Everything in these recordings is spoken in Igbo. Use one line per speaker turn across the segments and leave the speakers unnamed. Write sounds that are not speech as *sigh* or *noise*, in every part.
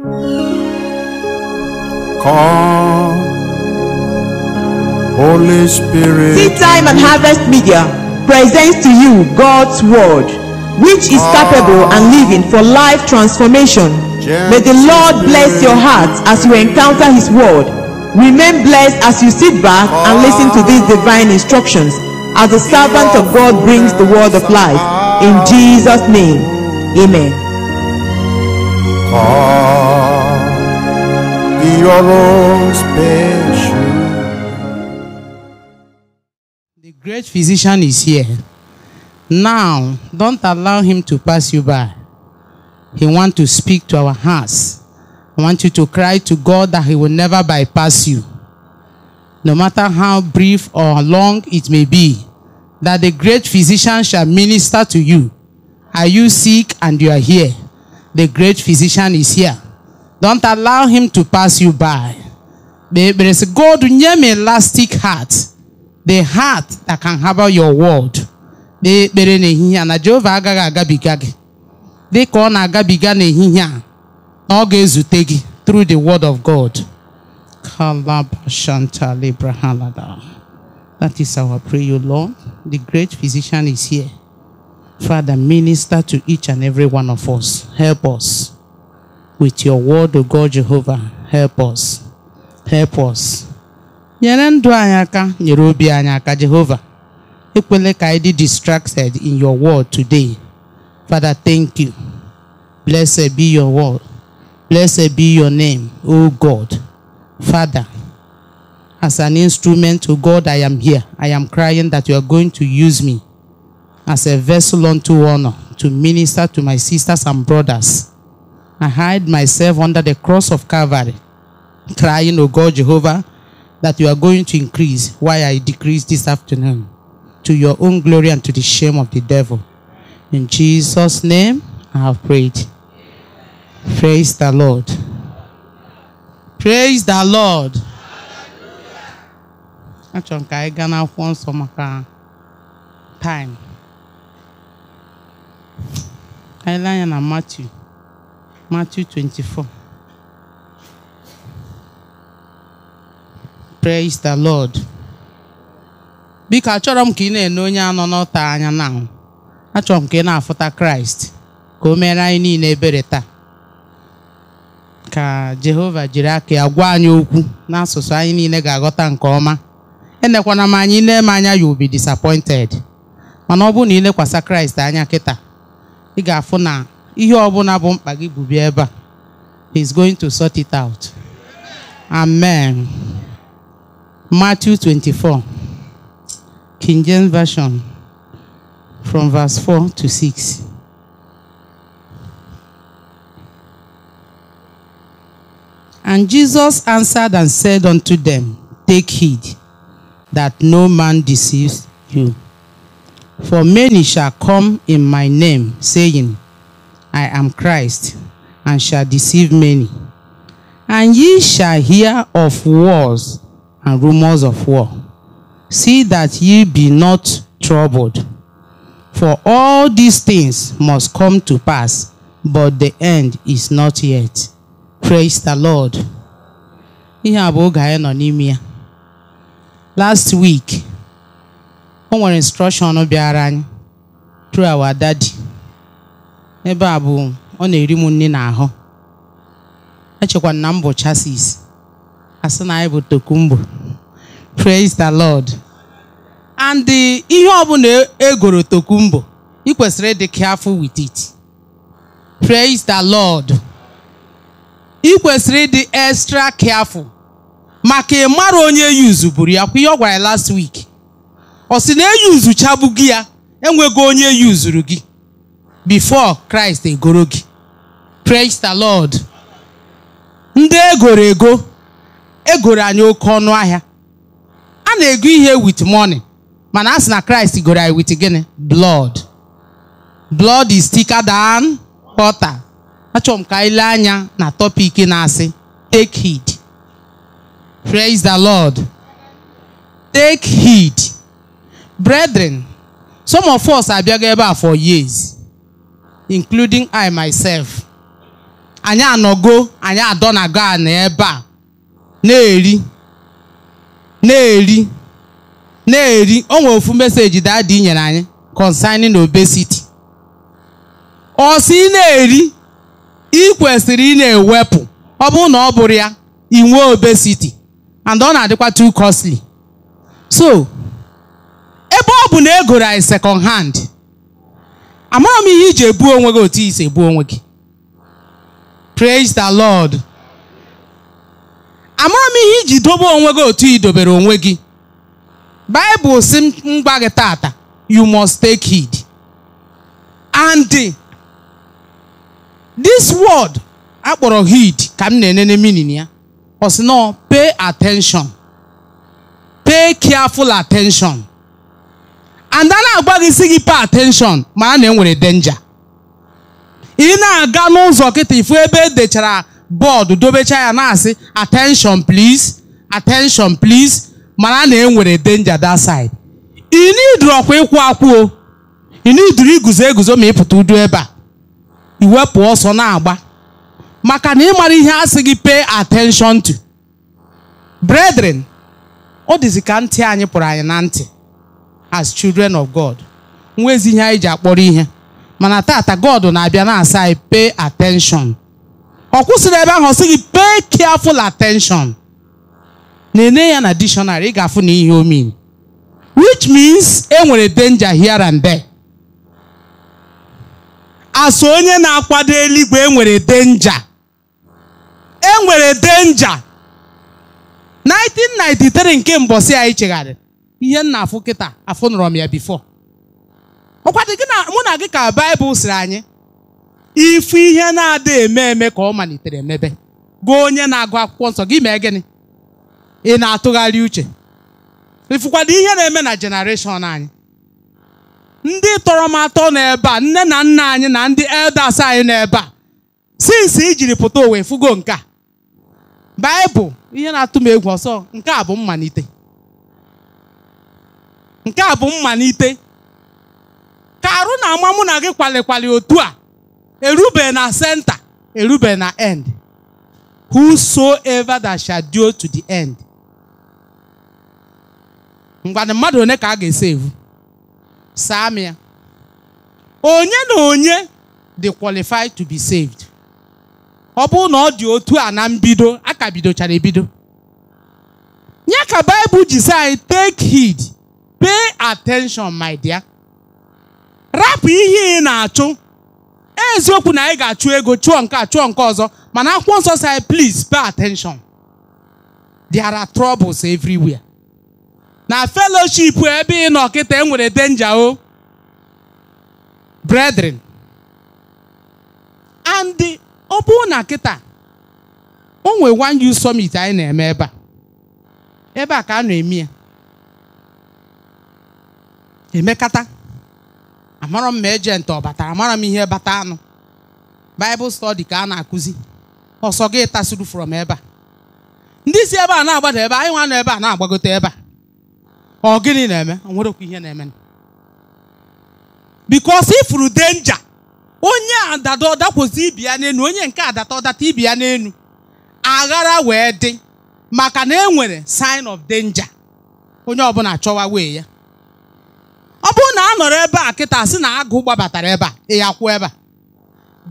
Come, Holy Spirit. Seed Time and Harvest Media presents to you God's Word, which is capable and living for life transformation. May the Lord bless your heart as you encounter His Word. Remain blessed as you sit back and listen to these divine instructions as the servant of God brings the Word of life. In Jesus' name, Amen be your own
special. The great physician is here. Now, don't allow him to pass you by. He wants to speak to our hearts. I want you to cry to God that he will never bypass you. No matter how brief or long it may be, that the great physician shall minister to you. Are you sick and you are here? The great physician is here. Don't allow him to pass you by. There is God nyem elastic heart. The heart that can harbor your word. They call n'ehihie a na Jehova agabiga gị dị na-agabiga through the word of God. That is our prayer, Lord. The great physician is here. Father, minister to each and every one of us. Help us with your word, O God Jehovah. Help us. Help us. nyere ndụ anyị aka nyere obi anyị aka Jehovah. ekwele ka anyị dị distracted in your word today father thank you blessed be your word blessed be your name o god father as an instrument to god i am here i am crying that you are going to use me as a vessel unto honor to minister to my sisters and brothers I hide myself under the cross of Calvary, crying, O God Jehovah, that you are going to increase while I decrease this afternoon to your own glory and to the shame of the devil. In Jesus' name, I have prayed. Praise the Lord. Praise the Lord. Achọrọ m ka anyị gaa n'akwụkwọ time. na Matthew Matthew 24. Praise the Lord. Biko achọrọ m ka ị na-ene onye anọ n'ọta anya n'ahụ achọrọ m ka ị na-afụta Kraịst ka o mere anyị niile ebere taa ka Jehova jiri aka ya gwa anyị okwu n'asụsụ anyị niile ga-aghọta nke ọma enekwana m anyị na m anya you obi be disappointed mana ọ na ilekwasa Kraịst anya kịta ị ga-afụ na ihe ọbụla bụ mkpa gị bụ ebe a he's going to sort it out amen matthew 24 king james version from verse 4 to 6 And Jesus answered and said unto them, Take heed that no man deceives you. For many shall come in my name, saying, I am Christ, and shall deceive many. And ye shall hear of wars and rumors of war. See that ye be not troubled. For all these things must come to pass, but the end is not yet. Praise the Lord. Last week, o nwere instruction through our daddy. ebe a bụ ọ na-eri m nne n'ahụ echekwa na m bụ chasis asị na anyị bụ tokumbo praise the lord and ihe ọbụla egoro tokumbo ị kwesịrị ịdị careful with it praise the lord ị kwesịrị ịdị extra careful maka mara onye yuzu buru ya kwa ihe ọ gwara last week ọ sị na e gị ya enweghị onye yuzuru gị before Christ egoro gị praise the Lord ndị egoro ego egoro anyị oke ọnụ ahịa a na-ego ihe with money mana a na Christ goro anyị with gịnị blood blood is thicker than water achọrọ m ka anyị lee anya na topic na-asị take heed praise the Lord take heed brethren some of us abịago ebe a for years including I myself anyị anọgo anyị adọnago a na ebe a na-eri na-eri na-eri o nwere ofu meseji dadi nyere anyị concerning obesity ọ sị na-eri ị kwesịrị ị na-ewepụ ọ bụrụ na ọ bụrụ ya ị nwee obesity and ọ na-adịkwa too costly so ebe ọ bụ na egoro anyị second hand amara m ihe iji ebu onwe gị otu isi ebu onwe gị praise the lord amara m ihe iji dobe onwe gị otu idobere onwe gị Bible si m gwa gị tata you must take heed and this word akpọrọ heed ka m na-enene minin ya ọ sị nọ pay attention pay careful attention and a na-agwa gị si gị pay attention mana na enwere denja ị na-aga n'ụzọ kịta ifu ebe edechara bọọdụ dobecha ya na-asị attention please attention please mara na enwere denja that side ị niduru ọkwa ịkwụ akwụo ị niduru iguzo eguzo ma ịpụta udu ebe a iwepụ ọsọ na-agba maka na ịmara ihe a sị gị pay atenshọn to bredren ọ dịzi ka ntị anyị pụrụ anyị na ntị as children of god nwezi ihe anyị ji akpọrọ ihe mana tata god na-abịa na-asa anyị pay attention ọ kwụsịrị ebe ahụ ọ sị gị pay careful attention na enye ya na dictionary ị ga-afụ na ihe omin which means e nwere danger here and there asụ onye na-akwado eluigwe enwere danger enwere danger 1993 nke mbọsị anyị chegharị ihe nna afụ kịta afụ m ya bifo ọkwa gị na mụ na gị ka baịbụl sịrị anyị ifu ihe na-adịghị eme eme ka ọ malitere mebe gụ onye na-agụ akwụkwọ nsọ gị mee gịnị ị na-atụgharị uche ịfụkwado ihe na-eme na jenereshọn anyị ndị tọrọ m atọ n'ebe a nne na nna anyị na ndị elders anyị n'ebe a sinsi ijiri pụta owe fugo nke a baịbụl ihe na-atụ m egwu ọsọ nke a bụ mmalite nke a bụ mmalite ka arụ na ama mụ na gị kwalikwali otu a erube na senta erube na end ever that shall do to the end mgbanị mmadụ one ka a ga-ese evu saa onye na onye dị qualified to be saved ọ bụrụ na ọ dị otu a na mbido aka bidochara ebido ya ka baịbụl ji sị anyị take hid. pay attention my dear rapụ ihe ị na-achụ eziokwu na anyị ga-achụ ego chụọ nke a chụọ nke ọzọ mana akwụkwọ nsọ si please pay attention there are troubles everywhere na fellowship ebe ị nọ enwere denja o brethren and ọ bụrụ na kịta o one youth summit anyị na-eme ebe a ebe a ka a na-eme ya emekata amarọ m ma ejenti ọ batara Amaram m ihe bata anụ baịbụl stọdi ka a na-akụzi ọsọ gị tasuru from ebe a ndị si ebe a na-agbada ebe anyị nwa nọ ebe a na-agbagote ebe a ọ gịnị na-eme okwu ihe na-eme bikos ifuru denja onye adada ọdakwụzi ibi ya n'enu onye nke adata ọdata ibi ya n'enu aghara wee dị maka na e nwere sign of denja onye ọbụla chọwa wee ya nọrọ ebe a kịta sị na agụ gbabatara ebe a ya kwuo ebe a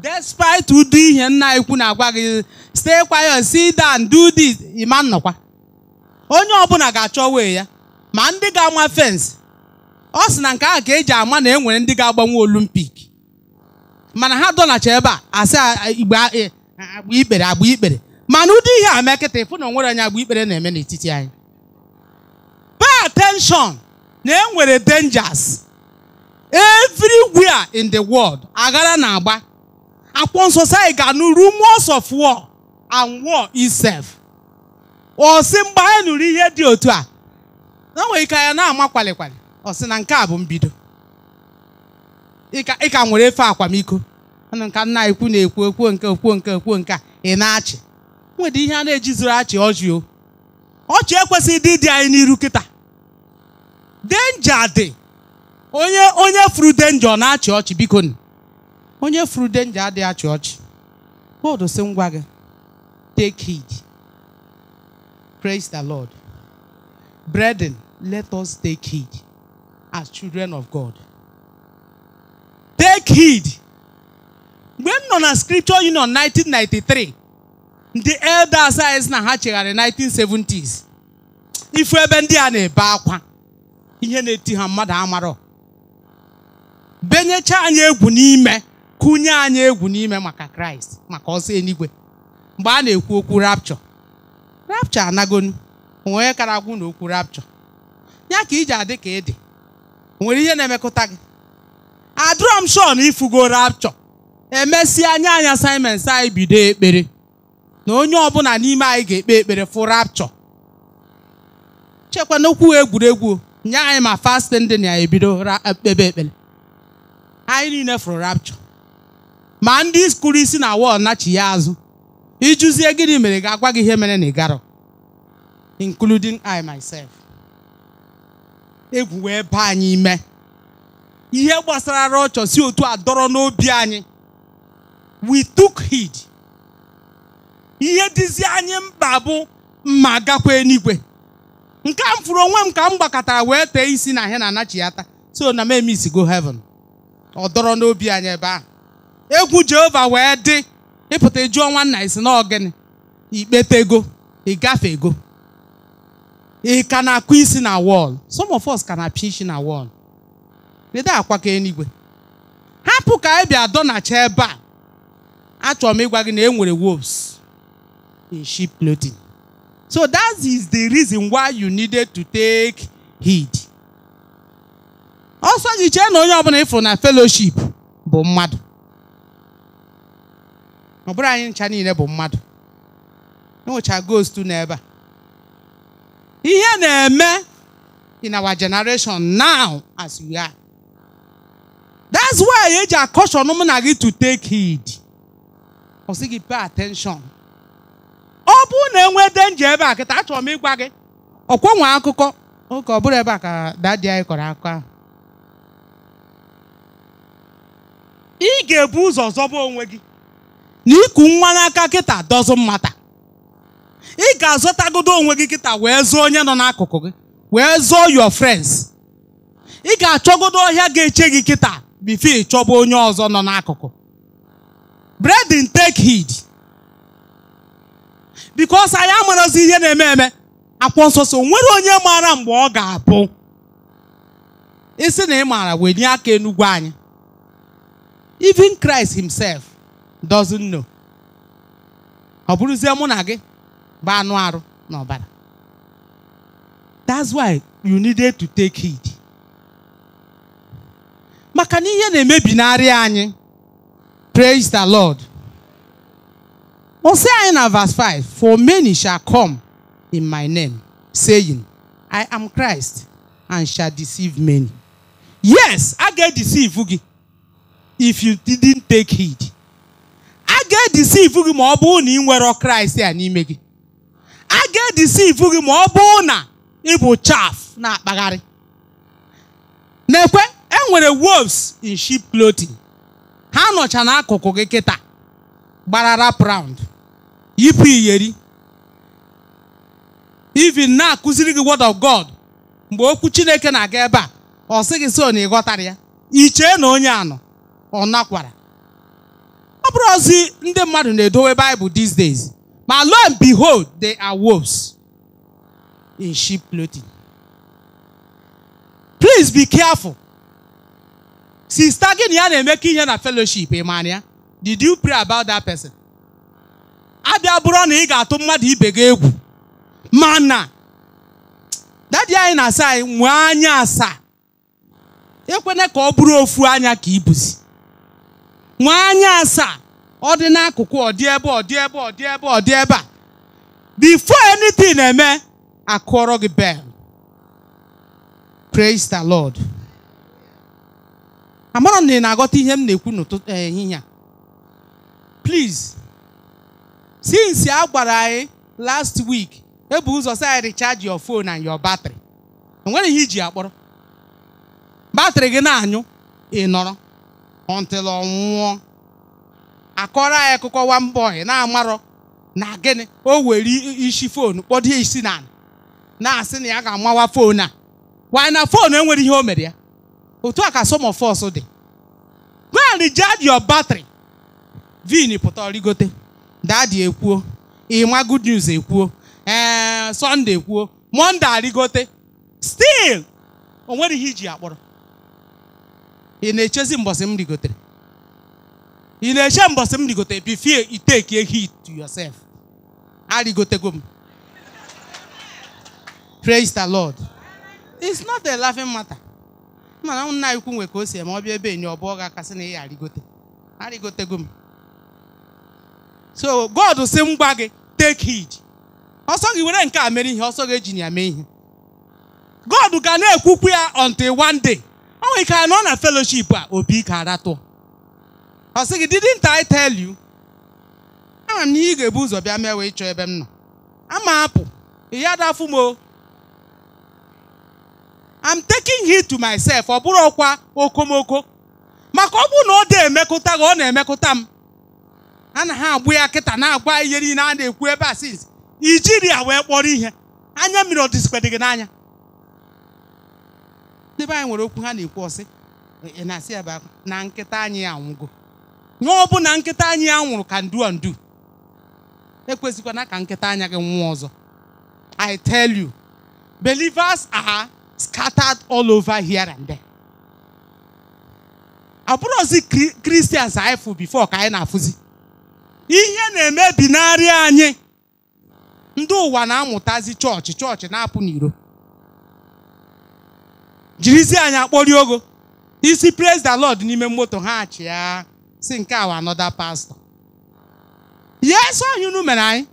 despite ụdị ihe nna ikwu na-agwa gị stay quiet sit down do this ịma nnọkwa onye ọbụla ga-achọ wee ya ma ndị ga-ama fensị ọ sị na nke ahụ ka eji ama na e nwere ndị ga-agbanwe olimpik mana ha dọnacha ebe a asị igbe e, agba ikpere agba ikpere mana ụdị ihe a mee kịta ịfụ na onwere anyị agba ikpere na-eme n'etiti anyị pay attention na e nwere dangers everywhere in the world aghara na-agba akwụkwọ nsọ sị ga-anụ rumors of war and war itself Ọsị mgbe anyị nụrụ ihe dị otu a na nwere ike ya na-ama kwalikwali ọ sị na nke a bụ mbido ị ka nwere efe akwamiko nka nna ekwu na-ekwu ekwuo nke ekwuo nke ekwuo nke a ị na-achị nwere ihe a na-ejizuru achị ọchị o ọchị ekwesịghị ịdị dị anyị n'iru kịta denja dị onye onye furu denja ọ na-achị ọchị biko onye furu denja adịghị achị ọchị God sị ngwa gị take heed praise the Lord brethren let us take heed as children of God take heed mgbe m nọ na Scripture Union 1993 ndị elders anyị na ha chegharị 1970s ifu ebe ndị a na-ebe akwa ihe na-eti ha mmadụ amarọ benyecha anyị egwu n'ime kụnye anyị egwu n'ime maka kraịst maka ọsọ eluigwe mgbe a na-ekwu okwu rapchọ rapchọ anagonu onye kara agwụ na okwu rapchọ ya ka iji adị ka ịdị nwere ihe na-emekọta gị adrọm shọ ifugo rapchọ emesịa anya anya assignment anyị bido ekpere na onye ọbụla n'ime anyị ga-ekpe ekpere fụ rapchọ chekwa n'okwu egwuregwu nye anyị ma fastin dị na ya ebido kpebe ekpere anyị niile fụrụ rapture ma ndị kụrụ isi na wọl nachi ya azụ ijuzie gịnị mere ga-agwa gị ihe mere na ịgarọ including I myself egwu wee baa anyị ime ihe gbasara rọchọ si otu a dọrọ n'obi anyị we took heed ihe dịzi anyị mkpa bụ mma gakwa eluigwe nke a m fụrụ onwe m ka m gbakọtara wee tee isi na ihe na anachi ya taa so na m emisigo heaven ọ dọrọ n'obi anya ebe ahụ egwu jehova wee dị ịpụta jụọ nwanna isi na ọgịnị ikpete ego ịgafe ego ị ka na-akụ isi na wọl some of us ka na-apịa isi na wọl ịda akwa ka enigwe hapụ ka anyị bịa dọnacha ebe a achọrọ m ịgwa gị na enwere nwere wolves in sheep clothing so that is the reason why you needed to take heed ọsọ gị chee na onye ọbụla ịfụ na feloship bụ mmadụ ọ bụrụ anyị ncha niile bụ mmadụ enwecha ghost n'ebe a ihe na-eme in our generation now as we are that's why eji akọshọn mụ na gị to take heed ọ sị gị pay attention ọ bụrụ na enwe denje ebe a kịta achọrọ m ịgwa gị ọkwenwe akụkọ oke ọ bụrụ ebe a ka dadi anyị kọrọ akụkọ ahụ ị ga-ebu ụzọ zọba onwe gị na iku nwa n'aka kịta dọzụ mmata ị ga-azọtagodo onwe gị kịta wee zụọ onye nọ n'akụkụ gị wee zụọ your friends ị ga-achọgodo ọhịa ga-eche gị kịta fi ịchọba onye ọzọ nọ n'akụkụ bredin take heed because anyị amarazi ihe na-eme eme akwa nsọ so nwere onye maara mgbe ọ ga-abụ isi na ị maara wee nye aka enugwu anyị even Christ himself doesn't know ọ bụrụzie mụ na gị bụ anụ arụ that's why you needed to take heed maka na ihe na-emebinarị anyị praise the lord o si anyị na verse 5 for many shall come in my name saying i am christ and shall deceive many yes a ga-edeceive gị if you didn't take heed a ga-edisivu gị ma ọ bụrụ na ị nwere kraịst a n'ime gị a ga-edisivu gị ma ọ bụrụ na ị bụ chaf na-akpagharị na-ekwe enwere wolves in sheep clothing ha nọcha n'akụkụ gị kịta gbara rap round yipụ iyeri even na-akụziri gị word of God mgbe okwu Chineke na-aga ebe a ọ sị gị so na ya ichee na onye anọ ọ nakwara ọ bụrụ ozi ndị mmadụ na-edowe Bible these days ma lo and behold they are wolves in sheep clothing please be careful sista gị na ya na-eme ka ihe na fellowship ị did you pray about that person abịa bụrụ na ị ga-atụ mmadụ ibe gị egwu mana dadi anyị na-asa anyị nwee anya asaa ekwene ka ọ bụrụ ofu anya ka ibuzi nwa anya asaa ọ dị n'akụkụ ọ dị ebe ọ ebe ọ ebe ọ ebe a before anything na-eme akụọrọ gị bel praise the lord amara na ị na agọta ihe m na-ekwu n'ụtụtụ ehihie a please since a gwara anyị last week ebu ụzọ sị anyị recharge your phone and your battery enwere ihe iji akpọrọ batrị gị na-anyụ ị nọrọ until ọ nwụọ akọrọ anyị akụkọ mba ọhịa na-amarọ na gịnị o were isi foonu kpọdo isi na na-asị na ya ga-amawa foonu a why na fonu enwere ihe o mere ya otu a ka somofos dị go and recharge batrị vin pụta rigote dadi ekwuo ịma good news ekwuo ee Sunday ekwuo Monday arịgote still o nwere ihe iji akpọrọ ị na-echezi mbọsị m rigotere ị na-eche mbọsị m rigotere bifie iteki a hit to yourself arigotego m praise the lord it's not a laughing matter mana nna ikwu nwe ka o si eme ọbịa ebe enyi ọbụ ọga kasị na ya arigote arigotego m so god si m gwa gị take heed ọsọ gị were nke a mere ihe ọsọ gị eji ya mee ihe god ga na-ekwukwu ya until one day Ọ nwere ike anọ na fellowship a obi ka aratụ ọ sị gị didn't I tell you ama m na ị ga-ebu ụzọ bịa mewe ịchọ ebe m nọ ama apụ ya dafụ m I'm taking heed to myself ọ bụrụ ọkwa okomoko maka ọ bụrụ na ọ dị emekụta gị ọ na-emekụta m a na ha agbụ ya kịta na-agwa ihe niile a na-ekwu ebe a since Ijiria wee kpọrọ ihe anya mmiri ọ dịzikwa gị n'anya ndị anyị nwere okwu ha na-ekwu ọsị na-asị ya bụ na nkịta anyị anwụgo nye ọ bụ na nkịta anyị ya nwụrụ ka ndu ndu ekwesịkwana ka nkịta anya gị nwụọ ọzọ I tell you believers are scattered all over here and there. abụrụzi kristians anyị fụ bifo ka anyị na-afụzi ihe na-emebinarị emebi anyị ndị ụwa na-amụtazi chọọchị chọọchị na-apụ n'iro jirizi anya akpọri ogo isi praise the lord n'ime moto ha achị ya si nke awa another pastor yes onye unu mere anyị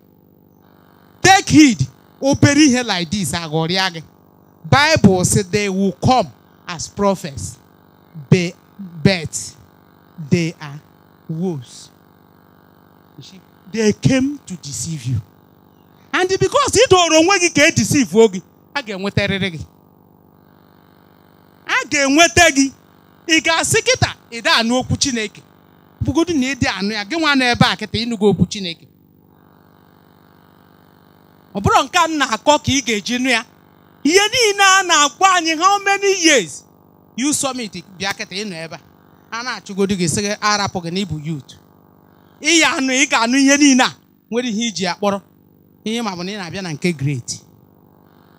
take heed obere ihe like this aghọrịa gị bible say they will come as prophets be, but they are worse. they came to deceive you and because ị doro onwe gị ka e deceive gị a ga-enwetarịrị gị ga-enweta gị ị ga-asị kịta ịda anụ okwu Chineke bụgodu na ịdị anụ ya gị nwa nọ ebe a kịta ịnụgo okwu Chineke ọ bụrụ nke m na-akọ ka ị ga-eji nụ ya ihe niile a na-agwa anyị how many years you summit bịa kịta ịnọ ebe a na-achụgodu gị sị gị arapụ gị na youth ị ya anụ ị ga-anụ ihe niile a nwere ihe iji akpọrọ ihe ma bụ na ị na-abịa na nke great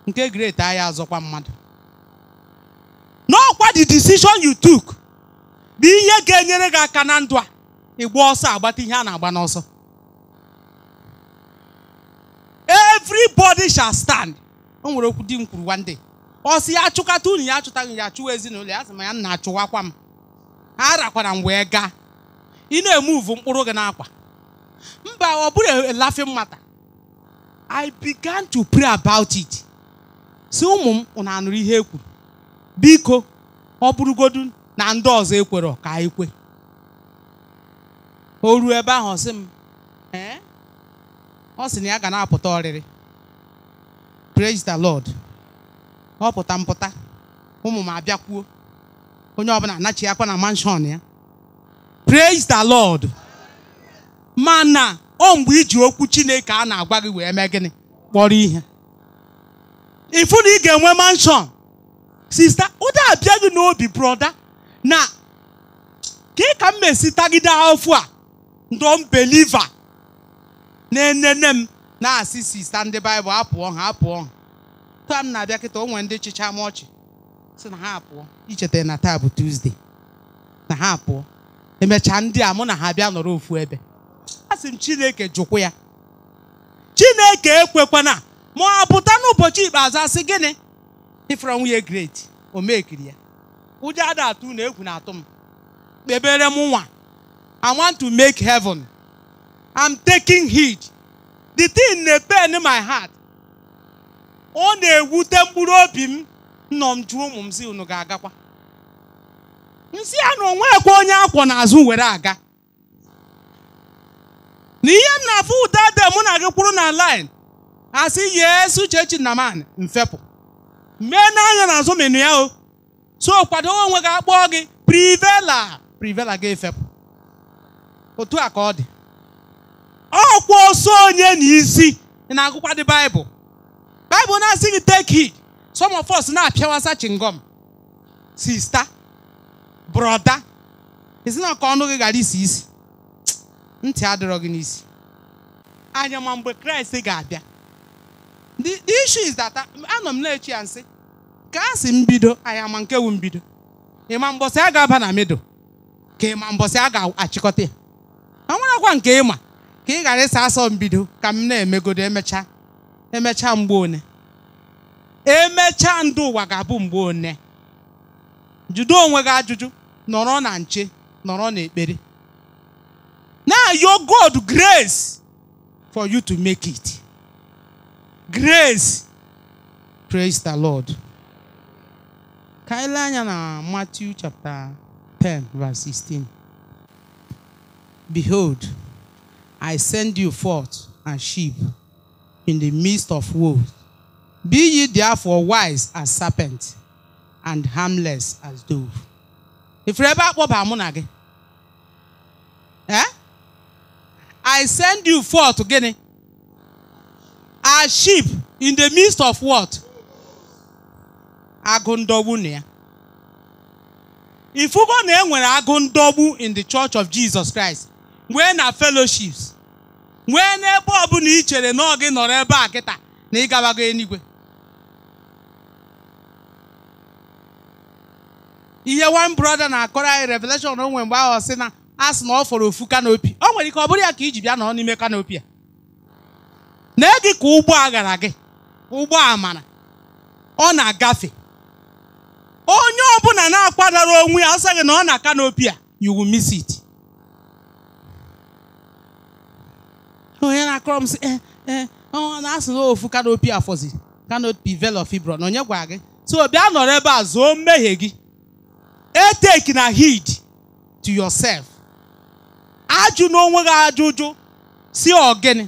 nke great ahịa azọkwa mmadụ n'ọkwa the decision you took bụ ihe ga-enyere gị aka na ndụ a ịgba ọsọ agbata ihe a na-agba n'ọsọ everybody shall stand o nwere okwu di m kwuru one day ọ sị ya achụkata unu ya achụtaghị ya chụwa ezinụlọ ya sị ma ya nna achụwakwa m ha rakwara m wee gaa ị na-emuvu mkpụrụ gị n'akwa mba ọ bụrụ e laughing mata I began to pray about it si ụmụ m ụnụ anụrụ ihe e kwuru biko ọ bụrụgodu na ndị ọzọ ekwerọ ka anyị kwe o ruo ebe ahụ ọsị m ee ọ sị na ya ga na-apụta ọrịrị praise the lord ọ pụta mpụta ụmụ m abịakwuo onye ọbụla anachi akwa na manshọn ya praise the lord mana o mgbe iji okwu chineke a na-agwa gị wee mee gịnị kpọrọ ihe ịfụ na ị ga-enwe manshọn sista ụda abịa gị n'obi broda na ka ka m mesi tagide afọ a ndọm beliva na-enene m na-asị sista ndị baịbụl apụọ ha apụọ ha taa m na-abịa kịta onwe ndị chịcha m ọchị si na ha apụọ icheta na taa bụ tuzde na ha apụọ emechaa ndị a mụ na ha bịa nọrọ ofu ebe a sị m chineke jụkwa ya chineke ekwekwana ma ọ pụta n'ụbọchị ikpeazụ asị gịnị ifere nwunye great o mekiri ya ụdị ada atụ na egwu na-atụ m kpebere m nwa I want to make heaven I'm taking heed the thing na-pain my heart ọ na-ewute mkpụrụ obi m nọ m jụọ ụmụ m si unu ga-agakwa nsị a na onwekwe onye akwọ n'azụ were aga na ihe m na-afụ ụda de mụ na gị kwụrụ na line asị yesu chechi na man mfepụ mee n'anya n'azụ menu ya o so kwado onwe gị akpọọ gị privela privela gị efepụ otu a ka ọ dị ọkwa oso onye n'isi na-agụkwa dị baịbụl baịbụl na-asị gị teki some of us na-apịawasa chingom sista broda ezina ka ọnụ gị gara isi isi ntị adịrọ gị n'isi anya ma mgbe kraịst ga-abịa the issue is that uh, anọ m na-echi ya nsị ka a sị m bido anya ma nke wu mbido ịma mbọsị a ga-aba na mido ka ịma mbọsị a ga-achịkọta ya ọ nwerekwa nke ịma ka ị ghara ịsa asọ mbido ka m na-emegodo emecha emecha mgbe one emechaa ndụ ụwa ga-abụ mgbe one jide onwe gị ajụjụ nọrọ na nche nọrọ ekpere na yo God grace for you to make it grace. Praise the Lord. Kaila anyị na Matthew chapter 10 verse 16. Behold, I send you forth as sheep in the midst of wolves. Be ye therefore wise as serpents, and harmless as dove. Ifere ebe akpọba mụ na I send you forth gịnị? are sheep in the midst of what? Agụ ndọgbu na ya. Ifugo na enwere agụ in the church of Jesus Christ. Nwee na fellowships. Nwee na ọbụla ị chere na ọ nọrọ ebe a kịta na ịgabago enigwe. Ihe one brother na-akọrọ anyị revelation onwe mgbe ahụ sị na a na ọ fọrọ ofu kanopi. O nwere ike ọ bụrụ ya ka iji bịa nọ n'ime kanopi a. na gị ka ụgbọ aghara gị ụgbọ amara ọ na-agafe onye ọbụla na-akwadoro onwe ya asị gị na ọ na kanopịa a you will miss it onye na-akọrọ m sị ee eh, ee eh, ọ na-asụrụ ofu kanopi afọzi kanopi velo na onye gwara gị so bịa nọrọ ebe a zụọ mmehie gị eteki na hid to yourself ajụ n'onwe gị ajụjụ si ọgịnị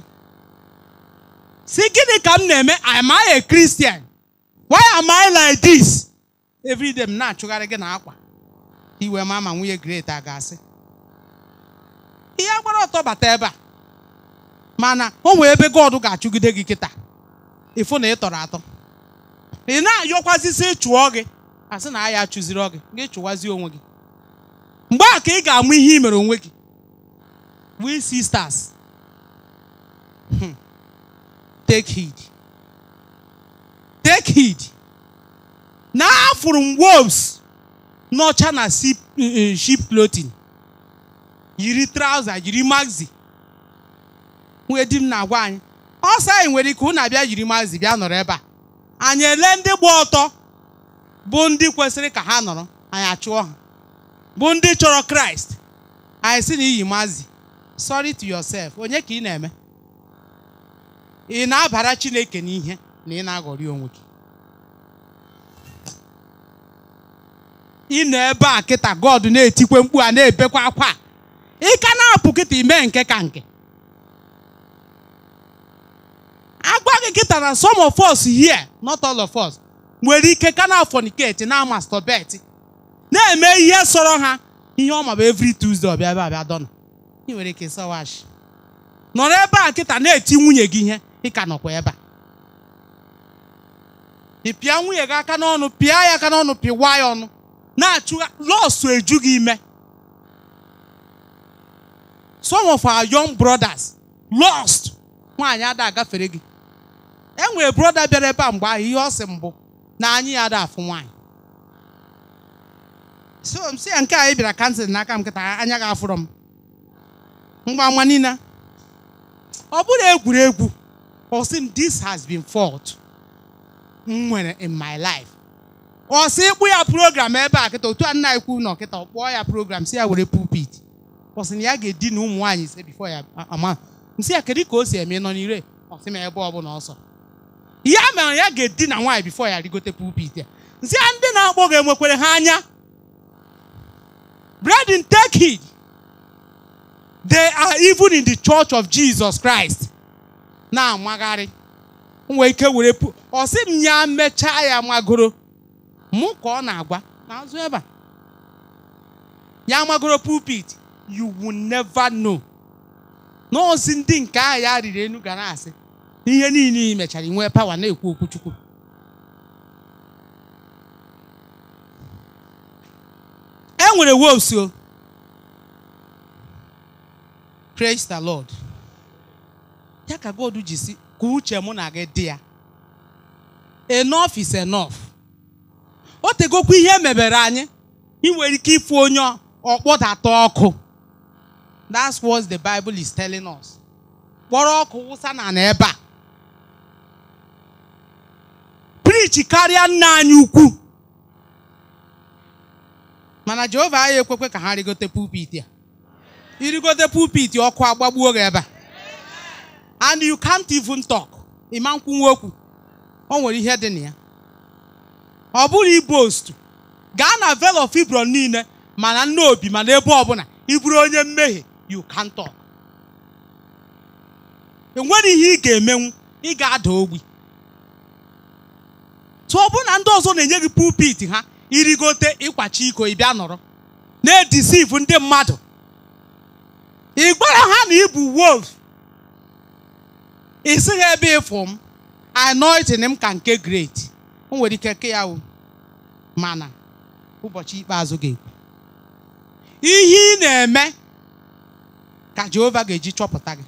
si gịnị ka m na-eme am I a Christian why am I like this everyday m na-achụgharị gị na akwa iwe ma ma nwunye great a ga-asị ihe gbara ọtọ bata ebe a mana o ebe God ga-achụgide gị kịta ịfụ na ị tọrọ atọ ị na-ayọkwazisi chụọ gị asị na ya chụziri gị gị onwe gị mgbe a ka ị ga-amụ ihe i mere onwe gị we sisters hmm. take heed. Take heed. Now from wolves, not China sheep, uh, Yiri trouser, yiri maxi. Wee di na-agwa anyị. Ọsọ anyị nwere ike na abịa yiri maxi bịa nọrọ ebe a. Anyị ele ndị gba ọtọ bụ ndị kwesịrị ka ha nọrọ, anyị achụọ ha. Bụ ndị chọrọ Kraịst, anyị si na iyi maxi. Sorry to yourself, onye ka ị na-eme? ị na-abara Chineke n'ihe na ị na-aghọrị onwe gị ị nọ ebe a kịta God na-etikwe mkpu a na-ebekwa akwa ị ka na-apụ kịta ime nke ka nke agwa gị kịta na some of us here not all of us nwere ike ka na fornicate na masturbate na-eme ihe sọrọ ha ihe ọ maba every Tuesday ọbịa ebe abịa dọna ị nwere ike sọwashi nọrọ ebe a kịta na-eti nwunye gị ihe ka nọkwa ebe a ị pịa nwunye gị aka n'ọnụ pịa ya aka n'ọnụ pịwa ya ọnụ na-achụ lọsụ eju gị ime some of our young brothers lost nwaanyị ada agafere gị enwere broda bịara ebe a mgbe ahụ ihe ọ sị mbụ na anyị ya ada afụ nwaanyị so m si ya nke anyị bịara kansịl n'aka m kịta anya ga-afụrọ m mgba mma niile ọ bụrụ egwuregwu or sị this has been fault in my life ọ ịkpụ ya program ebe eh, a kịta otu a nna ekwu nọ kịta ọ kpọọ ya program si were pulpit ọ ya ga na ụmụ nwaanyị before ya ama nsị ya kedu ka o si eme nọ n'ire ọ sị ebe ọ na ọsọ ya mere ya ga-edina nwaanyị before ya rigote pulpit ya nsị a ndị na-akpọ gị enwekwere ha anya brethren take they are even in the church of Jesus Christ na-amagharị nwee ike were ọ m ya mechaa ya magoro mụ ka ọ na-agwa n'azụ ebe a ya magoro pulpit you will never know n'ozi ndị nke ahụ ya riri enu gara asị ihe niile i mechara nwee pawa na-ekwu okwu Chukwu e nwere wolves o oh. praise the ya ka God ji si ka uche mụ na gị dị ya enough is enough o tegokwa ihe mebere anyị ị nwere ike ịfụ onye ọkpọdata ọkụ that's what the Bible is telling us kpọrọ ọkụ wụsa na na ebe a preach karịa nna anyị ukwu mana Jehova anyị ekwekwe ka ha rigote pulpit ya irigote pulpit ọkụ agbagbuo gị ebe a and you can't even talk ịma nkwunwe okwu o nwere ihe dị na ya ọ bụrụ ibost gaa na vel of Hebron niile mana nne obi mana ebe ọbụla ị bụrụ onye mmehie you can't talk enwere ihe ị ga-emenwu ị ga-ada ogbi tụọ bụ na ndị ọzọ na-enye gị pulpit ha irigote ịkwachi iko ịbịa nọrọ na-edisivu ndị mmadụ ị ha na ị ị sịghị ebe ịfụ m anointing m ka nke great o nwere ike nke ya mana ụbọchị ikpeazụ ga-ekwu ihe ị na-eme ka Jehova ga-eji chọpụta gị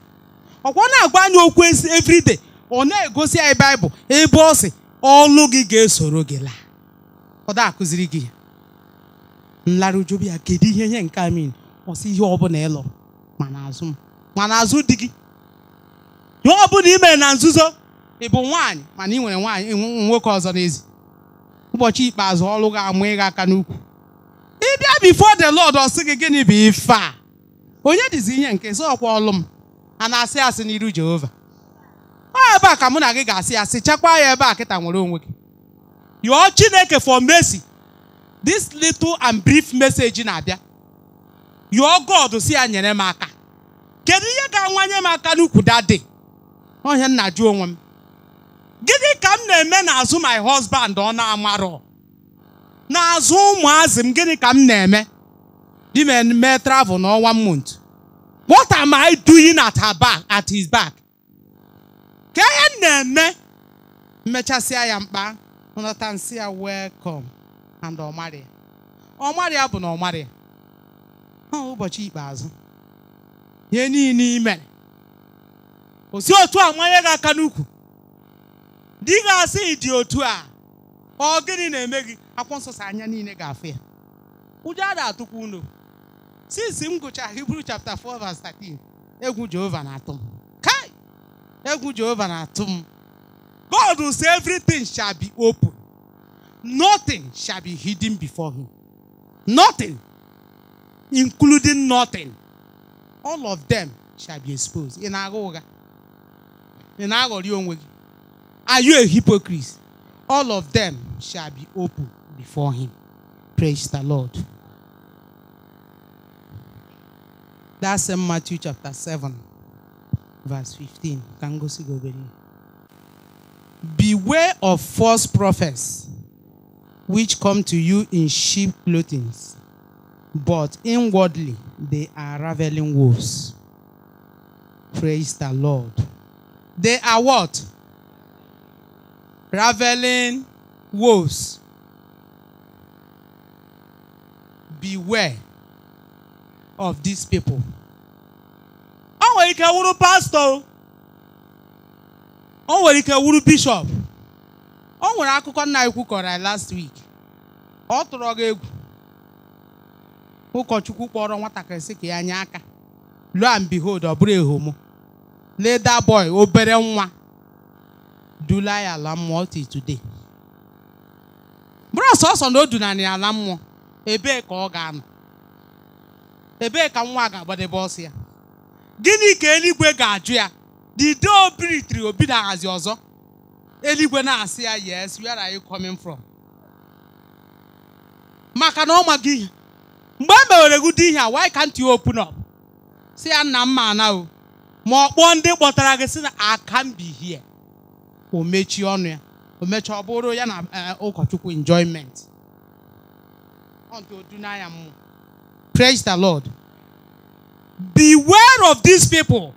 ọkwa na-agwa anyị okwu everyday ọ na-egosi anyị baịbụl ebe ọ si ọlụ gị ga-esoro gị laa ọ da-akụziri gị nlarụjubi ya kedu ihe ihe nke amin ọ ihe ọ bụla ịlọ mana azụ m mana azụ di gị ihe ọ bụla i na nzuzo ị bụ nwaanyị mana ị nwere nwaanyị nwoke ọzọ n'ezi ụbọchị ikpeazụ ọrụ ga-amụ ịga aka n'ukwu ị bịa before the Lord ọ sị gị gịnị bụ ife a onye dịzi ihe nke sị ọkwa ọlụ m a na-asị asị n'iru Jehova ọ ebe a ka mụ na gị ga-asị asị chekwaa ya ebe a kịta nwere onwe gị yọọ Chineke for mercy this little and brief message na-abịa yọọ God si ya nyere m aka kedu ihe ga-anwanye m aka n'ukwu dadị ọhịa nna jụ onwe m gịnị ka m na-eme n'azụ my husband ọ na-amarọ n'azụ ụmụazị m gịnị ka m na-eme di m mee travel n'ọnwa mont what am I doing at her back at his back ka ihe m na-eme mmechasịa ya mkpa nata nsị ya welcome and ọmarịa ọmarịa bụ na ọmarịa ọ ụbọchị ikpeazụ ihe niile i o otu a manye gị aka n'ukwu di ga-asị dị otu a ọ gịnị na-eme gị akwụkwọ nsọ anya niile ga-afụ ya ụjọ a na-atụkwa unu since m Hibru chapter 4 verse 13 egwu Jehova na-atụ m kai egwu Jehova na-atụ m God will say everything shall be open nothing shall be hidden before him nothing including nothing all of them shall be exposed ị na-agha ụgha ị na-aghọrị are you a hypocrite all of them shall be open before him praise the lord that's in matthew chapter 7 verse 15 ka m beware of false prophets which come to you in sheep clothing but inwardly they are ravening wolves praise the lord the are what? Raveling wolves. Beware of these people. O nwere ike wuru pastor. O nwere ike wuru Bishop. O nwere akụkọ nna ekwu kọrọ last week. Ọ tụrụ gị egwu. Ụkọchukwu kpọrọ nwatakịrị sị ka ya nye aka. Lo and behold, ọ bụrụ Leda boy obere nwa dula ya ala mmụọ till today. Bụrụ sọsọ na o dunanị ala mmụọ ebee ka ọ ga-anọ ebee ka nwa ga-agbadebe ọsọ ya gịnị ka eluigwe ga-ajụ ya dido obiritiri obi na-ahazi ọzọ eluigwe na-asị ya yes where are you coming from maka na ọ maghị ihe mgbe e mewere gị dị ihe a why can't you open up si ya nna mma ana o ma ọ kpọọ ndị kpọtara gị si na here o mechie ọnụ ya o mechie ọ bụrụ ya na eh, ụkọchukwu enjoyment odunanya mmụọ praise the lord beware of these people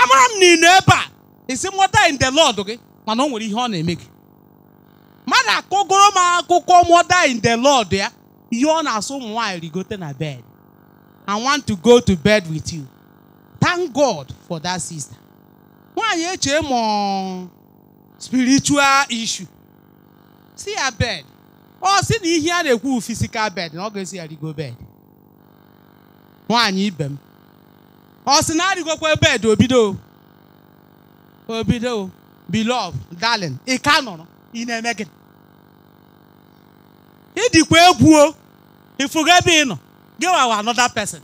amara m na ebe a isi mụta in the lord gị mana o nwere ihe ọ na-eme gị mmadụ akọgoro m akụkọ mụta in the lord ya ihe ọ na-asụ ụmụ nwaanyị rigote na bed I want to go to bed with you. Thank God for that sister. Nwaanyị eche mọ spiritual issue. See her bed. Oh, sị na ihe the na physical bed na ọ see her go bed. Why them? Oh, m. now sị go to bed obido obido beloved darling ị ka in a na-eme gị. go egwu o, ịfụga ebe ị nọ. gị wawa another person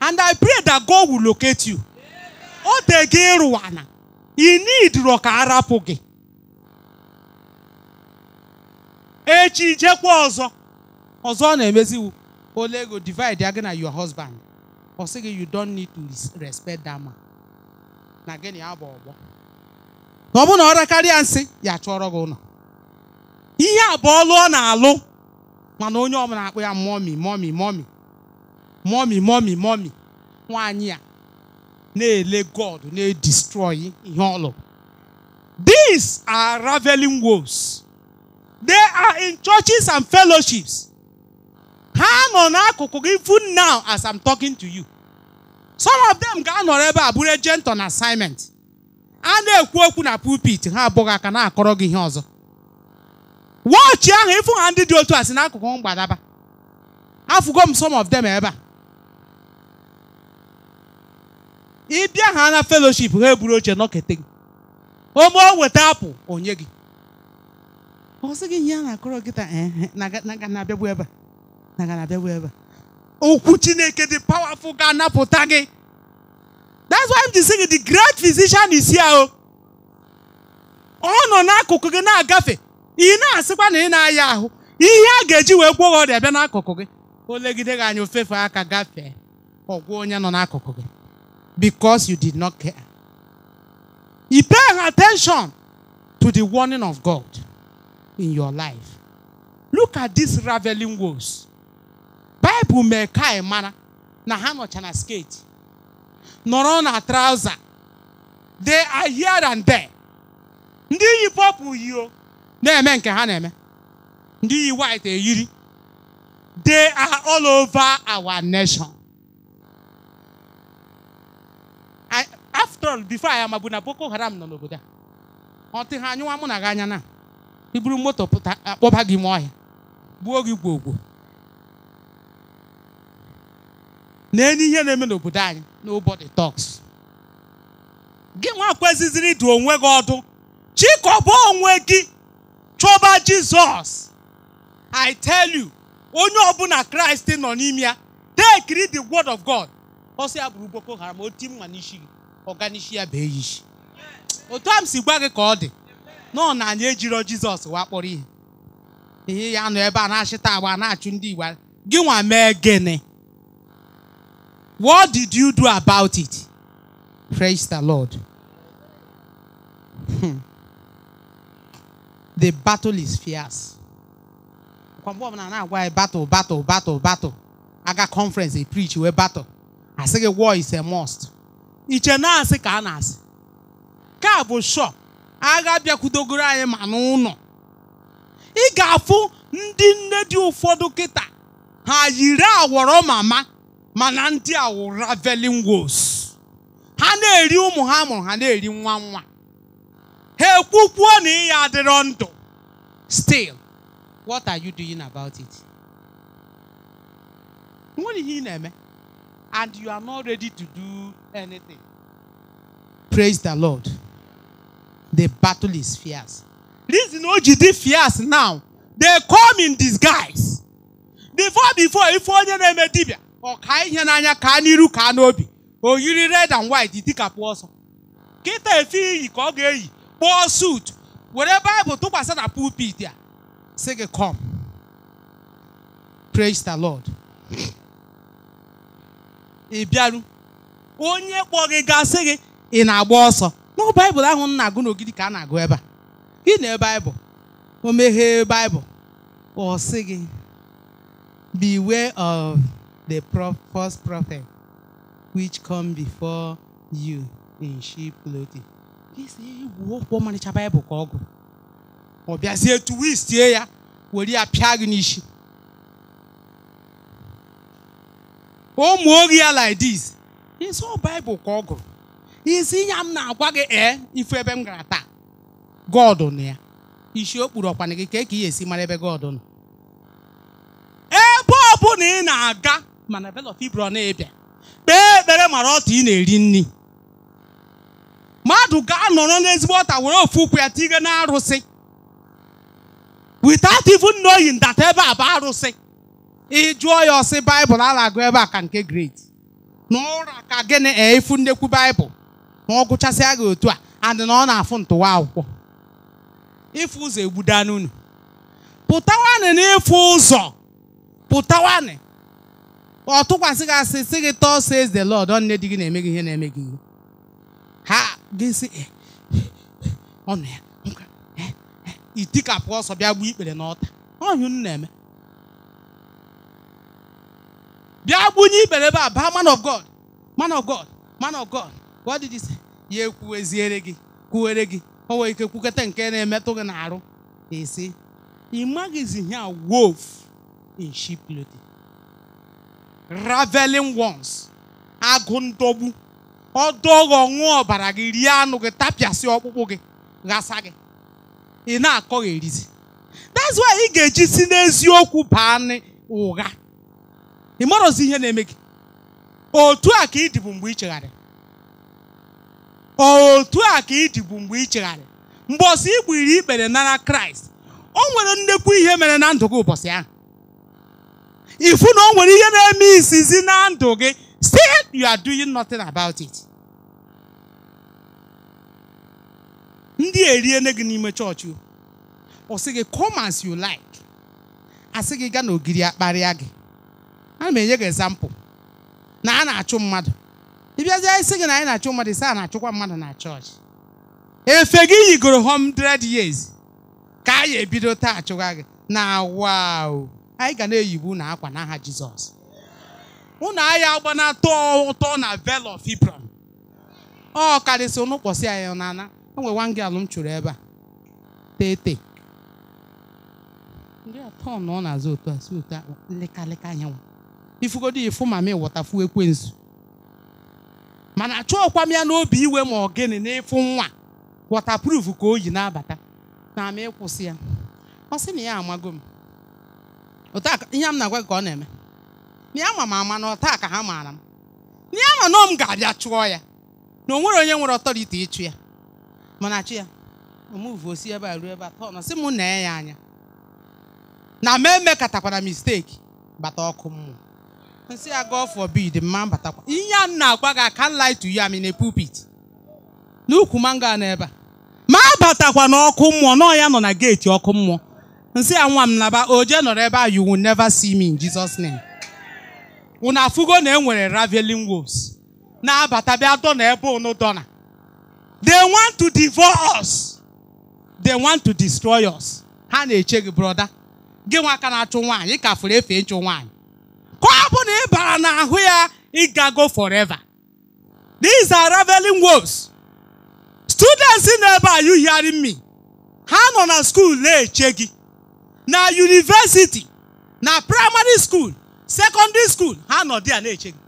and I pray that God will locate you oge gị rụwana inidiro ka arapụ gị echi jekwa ọzọ ọzọ ọ na-emeziwu ole ego divide ya gị na your husband for say you don't need to respect that man na gị na ya ọgbọ na ọ bụ na ọ rekarịa nsị ya chọrọ gị ụlọ ihe a bụ ọlụ ọ na-alụ mana onye ọbụla akpụ ya mọmi mọmi mọmi mọmi mọmi mọmi nwaanyị a na-ele God na-edestroy ihe ọlụ these are raveling wolves they are in churches and fellowships ha nọ n'akụkụ gị even now as I'm talking to you some of them ga-anọrọ ebe a bụrụ agent on assignment a na-ekwu okwu na pulpit ha abụghị aka na-akọrọ gị ihe ọzọ wọchị ahụ ịfụ ha ndị dị otu a si n'akụkụ mgbadaba afụgo m some of them ebe a bịa ha na feloship ha eburu oche nọkete gị ome o weta apụ onye gị ọ sị gị ihe a na-akọrọ gị taa na-abịagbu ebe abịagbu ebe okwu Chineke dị powerful ga-anapụta gị that's why m ji sị gị the great physician is here oh. ọ nọ n'akụkụ gị na-agafe ị na-asịkwa na ị na-aya ahụ ihe a ga-eji wee gwọọ ọrịa bịa n'akụkụ gị olegide gị anya ofefe aka gafee ọgwụ onye nọ n'akụkụ gị because you did not care. He paying attention to the warning of God in your life. Look at these raveling words. Bible mee ka anyị na ha nọcha na skate nọrọ na trouser they are here and there. Ndị yi pọpụ yio na-eme nke ha na-eme. Ndị yi white They are all over our nation. after all before anyị amabu na Boko Haram nọ n'obodo a ọ tị ha anyụwa mụ na gị anya na i moto pụta akpọba gị ime ọhịa gbuo gị gwogwo na-enye ihe na-eme n'obodo anyị nobody talks gị nwa kweziziri dị onwe gị ọdụ chikọba onwe gị chọba Jizọs I tell you onye ọbụla Kraịst nọ n'ime ya tekiri the word of God ọ sị ya bụrụ Boko Haram oti mma n'isi gị ọganishi ya otu a si gwa gị ka ọ dị nọ na anyị ejiro jizọs wakpọrọ ihe ihe ya nọ ebe a na-achịta agba na-achụ ndị igbo gị nwa mee gịnị what did you do about it praise the lord hmm. the battle is fierce mgbe ọbụla na-agwa ya battle battle battle battle aga conference e preach wee battle I say war is a must iche na-asị ka a na-asị ka bụ shọ agha bịakwudogoro anyị ma n'ụlọ ị ga-afụ ndị nne dị ụfọdụ kịta ha yiri awọrọ mama mana ndị awụ raveling ha na-eri ụmụ ha mụrụ ha na-eri nwa nwa ha ekwukwuo na ya adịrọ ndụ still what are you doing about it? Nwere ihe ị na-eme and you are not ready to do anything. Praise the Lord. The battle is fierce. Reason OGD fierce now. They come in disguise. Before, before, if onye na-eme dibia, ọ ka kaniru kanobi. ka you red and white You think a Kịta efe iyi ka ọ ga-eyi kpọọ suit. Whatever Bible tụkwasị na pulpit a. Sị gị come. Praise the Lord. ị bịaru onye kpọ gị gasị gị ị na-agba ọsọ n'ọ baịbụl ahụ m na-agụ n'ogidi ka a na-agụ ebe a gị na baịbụl o meghee baịbụl ọ sị gị beware of the first prophet which come before you in sheep clothing egwu okwu ọmarịcha baịbụl ka ọ gụ ọ bịazie tuwistie ya were ya pịa gị n'isi ụmụ ohi ya like this ịsọ baịbụl ka ọ gụrụ isi ya m na-agwa gị ee ife ebe m gara taa God nọ ya isi okpuru kpuru ọkwana gị ka ka ị esi mara ebe God nọ ebe ọ bụla ị na-aga mana bel of na-ebịa kpee ekpere mara ọtụ ị na-eri nri mmadụ ga-anọrọ n'ezigbo ọta were ofu ụkwụ ya tige na arụsị without even knowing ebe a bụ arụsị ị jụọ ya ọsị baịbụl a na-agụ ebe a ka nke grade na ụra ka gịnị efu nnekwu baịbụl na ọ gụchasịa gị otu a andị na ọ na-afụ ntụwa akwụkwọ ịfụ ụzọ egbudana unu pụtawanị n'ịfụ ụzọ pụtawanị ọ tụkwasị gị asị sị gị tọọ says the Lord nne di gị na-eme gị ihe na-eme gị ihe ha gịsị ọnụ ya itikapụ ọsọ bịa gbuo ikpere n'ọta ọhịa unu na-eme bịa gbunye ibere ebe a baa man of God man of God man of God what did he say ya ekwuweziere gị kwuwere gị o nwere ike kwukọta nke na-emetụ gị n'arụ esi ị maghịzi ihe wolf in sheep clothing raveling ones agụ ndogbu ọdọghị ọbara gị rie anụ gị tapịasị ọkpụkpụ gị ghasa gị ị na-akọ gị erizi that's why ị ga-eji si n'eziokwu baa ụgha ị marọzi ihe na-eme gị otu a ka ịdịbụ mgbe ị otu a ka ịdịbụ mgbe ị mgbe ọsọ ị gbiri ikpere nara kraịst o nwere nnekwu ihe mere na ndụ gị ụbọchị ahụ ifu na o nwere ihe na-eme isizi na ndụ gị say you are doing nothing about it ndị eriene gị n'ime chọọchị ọ sị gị come as you like asị gị gaa n'ogiri akparịa gị ana m enye gị example. na a na-achụ mmadụ ịbịazie isi gị na anyị na-achụ mmadụ ise a na-achụkwa mmadụ na chọọchị efe gị yigoro hundred years ka a anyị ebido taa achụwa gị na wao anyị ga na-eyibu na akwa n'aha Jizọs ụnụ agha agbanata ụtọ na Vale of Hebron ọ karịsị ụnụ kpọsị anyị n'ana enwe nwa gị alụm chụrụ ebe a tete ndị atọ na ọ na-azụ otu a si otu a lekaleka anyanwụ ifugodo ifu mami wọtafu ekwensu mana achọọkwa m ya n'obi iwe ma ọ gịnị n'ịfụ nwa wọtapruf ka o yi na-abata na ama ịkwụsị ya ọ sị na ya amago m ihe m na-agwa gị ka ọ na-eme na ya ma m ama na ọta ka ha oh, maara m na ya ma na m ga-abịa chụọ ya na o nwere onye nwere ọtọriti ịchụ ya mana chi ya omuvu osi ebe a ruo ebe a tọọ nọ sị m na ya anya na m emekatakwara misteki bata ọkụ mmụọ nsị ya ah, God forbid mma batakwa ihe a na-agwa gị aka light you am in a pulpit n'ukwu mango a n'ebe a ma abatakwa n'ọkụ mmụọ nọ ya nọ na geeti ọkụ mmụọ nsị ya nwa m naba oje nọrọ ebe a you will never see me in Jesus name unu afụgo na enwere raveling wolves na-abata bịa dọna ebe unu dọna they want to divorce us they want to destroy us ha na-eche gị brọda gị nwa aka na-achụ nwaanyị ka fụrụ efe ịchụ nwaanyị ka ọ na ị bara n'ahụ ya ịgago forever these are reveling words students na-ebe are you ha nọ na school na-eche na university na primary school secondary school ha nọ dị a na-eche gị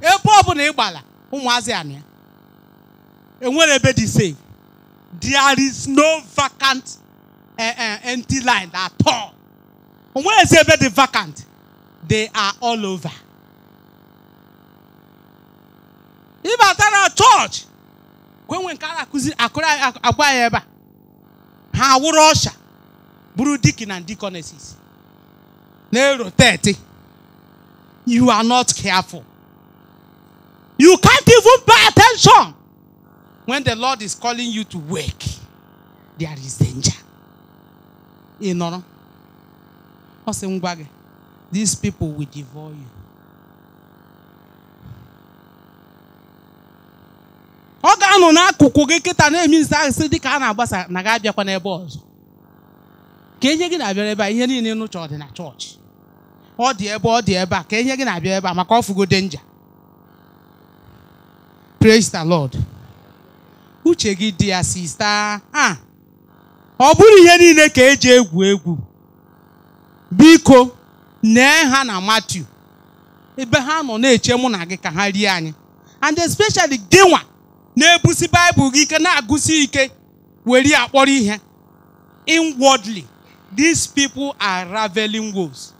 ebe na ị gbara ụmụazị anụ enwere ebe dị safe there is no vacant uh, uh, at all onweghịzi ebe dị vacant they are all over. If after our church, when we can acquire acquire ever, how would Russia, Buru Deacon and Deaconesses? Nero thirty, You are not careful. You can't even pay attention. When the Lord is calling you to work, there is danger. You know? What's the These people will devour you. ọ ga-anọ n'akụkụ gị kịta na-eme ise asị dị ka a na-agbasa na ga abịakwa n'ebe ọzọ ka enye gị na-abịara ebe a ihe niile nụcha ọ dị na chọọchị ọ dị ebe ọ dị ebe a ka enye gị na-abịa ebe a maka ọfụgo denja praise the lord uche gị dị ya sista ọ bụrụ ihe niile ka eji egwu egwu biko nee ha na Matiu ebe ha nọ na-eche mụ na gị ka ha rie anyị and especially Gịnwa na-ebusi baịbụl gị ike na-agụsi ike were akpọrọ ihe inwardly these people are raveling wolves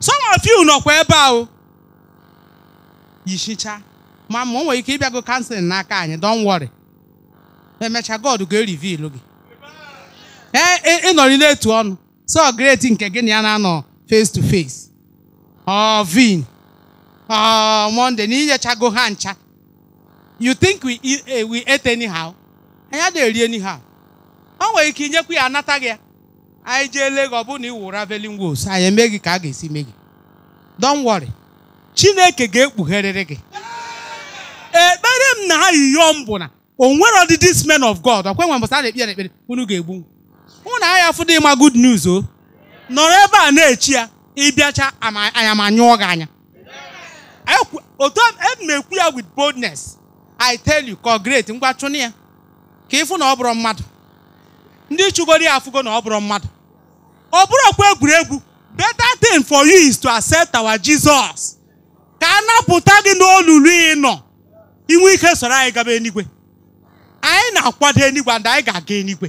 some of you nọkwa ebe ahụ yishicha ma ma o nwere ike ịbịago na n'aka anyị don't worry emecha God ga-erivil gị ee ịnọrịla etu ọnụ so great nke gị na ya na-anọ face to face or vin or ah, monday na inyechago ha you think we eat, eh, we ate anyhow anyị adịghị eri anyhow o nwere ike inyekwa ya anata gị anyị jee lee gị ọ bụrụ na ị wụ raveling wolves eme gị ka a ga-esi mee gị don't worry chineke ga-ekpugherịrị gị ekpere eh, m na ha yiyom na o nwere ọdị this man of god ọkwe nwe mbọsa a na-ekpe ekpere unu ga-egbu unu na-aya afụ dị ịma good news o nọrọ ebe a na-echi ya ịbịacha anya ma nyụọ gị anya otu na e ya with boldness I tell you ka ọ ngwa ya ka ịfụ na ọ bụrụ mmadụ ndị chụgoro ya afụgo na ọ bụrụ mmadụ ọ bụrụkwa egwuregwu better thing for you is to accept our Jesus ka a napụta gị n'olulu ị nọ inwe ike soro anyị gaba enigwe anyị na-akwado enigwe and anyị ga-aga enigwe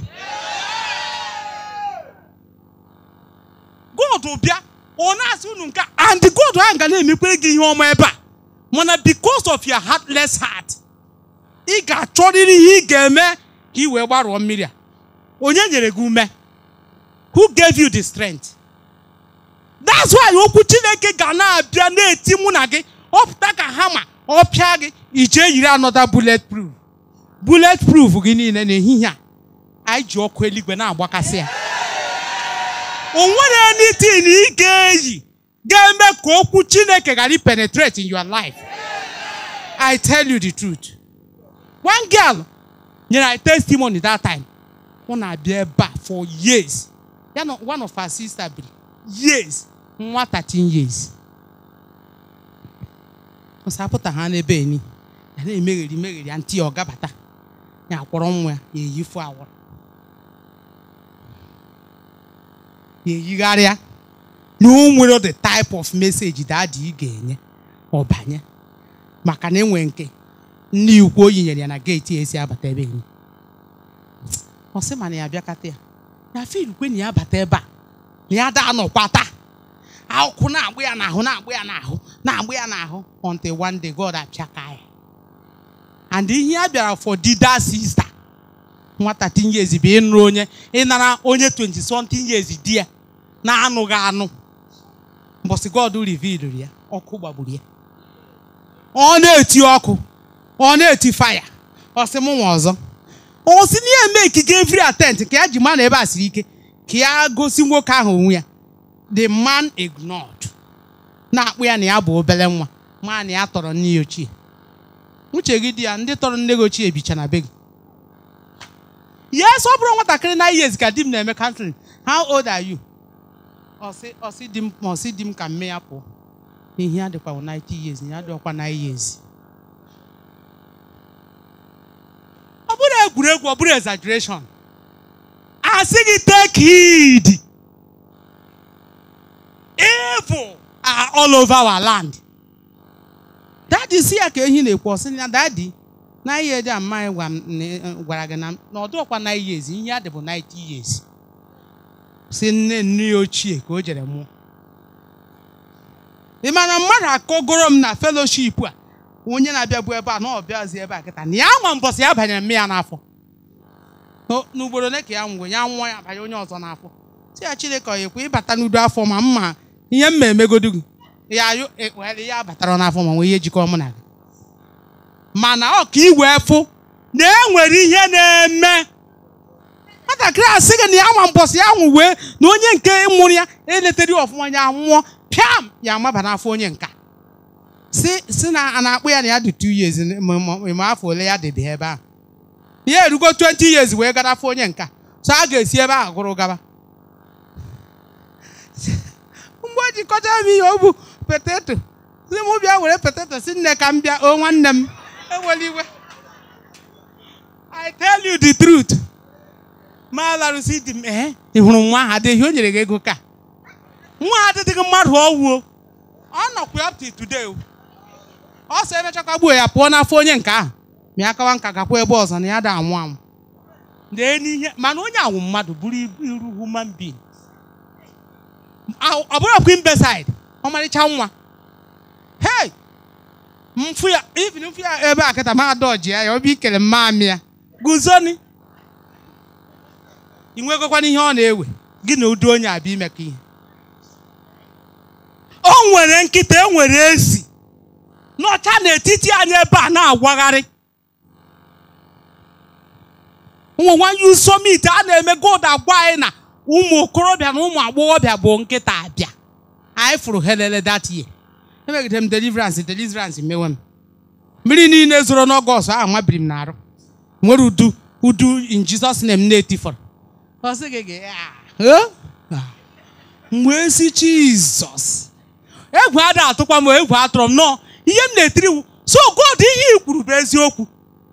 god bịa ọ na unu nke and god ahụ ga na-emekwere gị ihe ọma ebe a mana because of your heartless heart ị ga-achọrịrị ihe ị ga-eme ka ị wee gbarụọ mmiri a onye nyere gị ume who gave you the strength that's why okwu chineke ga na-abịa na-eti mụ na gị ọpụta ka ha ọ pịa gị ije yiri anọda bullet proof bulet proof gị niile n'ehihie a anyị ji ọkụ eluigwe na-agbakasị ya o nwere anything ị ga-eyi ga-eme ka okwu Chineke ghara penetrate in your life I tell you the truth one girl nyere I testimony that time ọ na-abịa ebe a for years ya na one of her sister bi years nwa 13 years ọsapụta ha n'ebe enyi ya na-emegheri megheri ya ntị ya ọ gabata ya akwọrọ nwa ya eyifu awọrọ na-eyigharịa na o nwere the type of message dadị ị ga-enye ọbanye maka na enwe nke nne ikwu oyi nyere ya na geeti esi abata ebe ya ọ sị ma na ya abịakata ya na filkwe na ya abata ebe a na ya daa nọkwa taa akwụkwụ na-agba ya n'ahụ na agbụ ya n'ahụ na-agba ya n'ahụ until one day God apịaka ya and ihe a bịara for dida sista nwata tinye ezi bụ ịnụ onye ịnara onye 20 something years di ya na-anụghị anụ mbọsị God revealed ya ọkụ gbagburu ya ọ na-eti ọkụ ọ na-eti faya ọ sị m nwa ọzọ ọ sị na ya eme ikike every atent ka ya ji ma na ebe a siri ike ka ya gosi nwoke ahụ onwe ya the man ignored na-akpụ ya na ya bụ obere nwa ma na ya tọrọ nne ya ochie uche gị dị ya ndị tọrọ nne gị ochie bicha na be gị yes ọ bụrụ nwatakịrị nine years ka di m na-eme country how old are you ọsị di m ma ọsị di m ka mme ya pụọ ihe ya dịkwa 90 years ya dịkwa 9 years ọ bụrụ egwuregwu ọ bụrụ exaggeration asị gị take heed evil are all over our land dadi si ya ka ehi na-ekwu ọsị na dadi na ihe dị amaghị e, gwara gị na ọdụọkwa na iyezi ihe adị bụ 90 years si nne nne ya ochie ka o jere mụọ ị mara mmadụ akọgoro m na feloship a onye na-abịa bụ ebe a na ọbịazi ebe a kịta na ya nwa mbọsị ya banyere mme ya n'afọ n'ugboro ole ka ya nwụrụ ya nwa ya banye onye ọzọ n'afọ si ya Chineke ọ ekwe ịbata n'udu afọ ma mma ihe ma emegodu gị ya ya batara n'afọ ma nwee ihe jikọ mụ na gị mana ọka iwe efu na enwere ihe na-eme nwatakịrị a sị gị na ya nwa mbọsị ya nwụ wee na onye nke mụrụ ya eletara ọfụma ya nwụọ pịam ya amaba n'afọ onye nka si na a na-akpụ ya na ya dị 2 years ma afọ ole ya dịbe ebe ahụ ya erugo 20 years wee gara afọ onye nka so a ga-esi ebe ahụ gụrụ gaba mgbe o jikọta m ihe ọ bụ poteto ndị mụ bịa were poteto si nne ka m bịa o nwanne m ewela iwe I tell you the truth ma larụsi di m eh? hụrụ nwa ahụ adịghị o nyere gị ego ka nwa ha adịghị mmadụ ọwụo ọ nọkwa up to today ọ sọ ebe gbuo ya pụọ n'afọ onye nke ahụ ma ya kawa nka gakwa ebe ọzọ na ya da anwụ anwụ dee n'ihe mana onye awụ mmadụ bụrụ iru human being ọ bụrụ ọbụghị mbesaid ọmarịcha nwa hey mfu ya ya ebe eh, a kịta ma adọji ya ya obi ikele ya guzoni ị nwegokwana ihe ọ na-ewe gị na ụdị onye abịa ka ihe o nwere nkịta e nwere ezi n'ọcha n'etiti anyị ebe a na-agwagharị ụmụ nwanyị usomite a na-eme gold agwa anyị e na ụmụ okorobịa na ụmụ agbọghọbịa bụ nkịta abịa anyị fụrụ helele that ewegide m deliverance deliverance mewe m mmiri niile zoro n'ọgọst ahụ mabiri m n'arụ nwere udu udu in na ah, eh? ah. m na-etifọrọ mgbe esi Jizọs egwu ada atụkwa m egwu atụrụ m nọọ ihe m na-etiri so God ihe i kwuru bụ eziokwu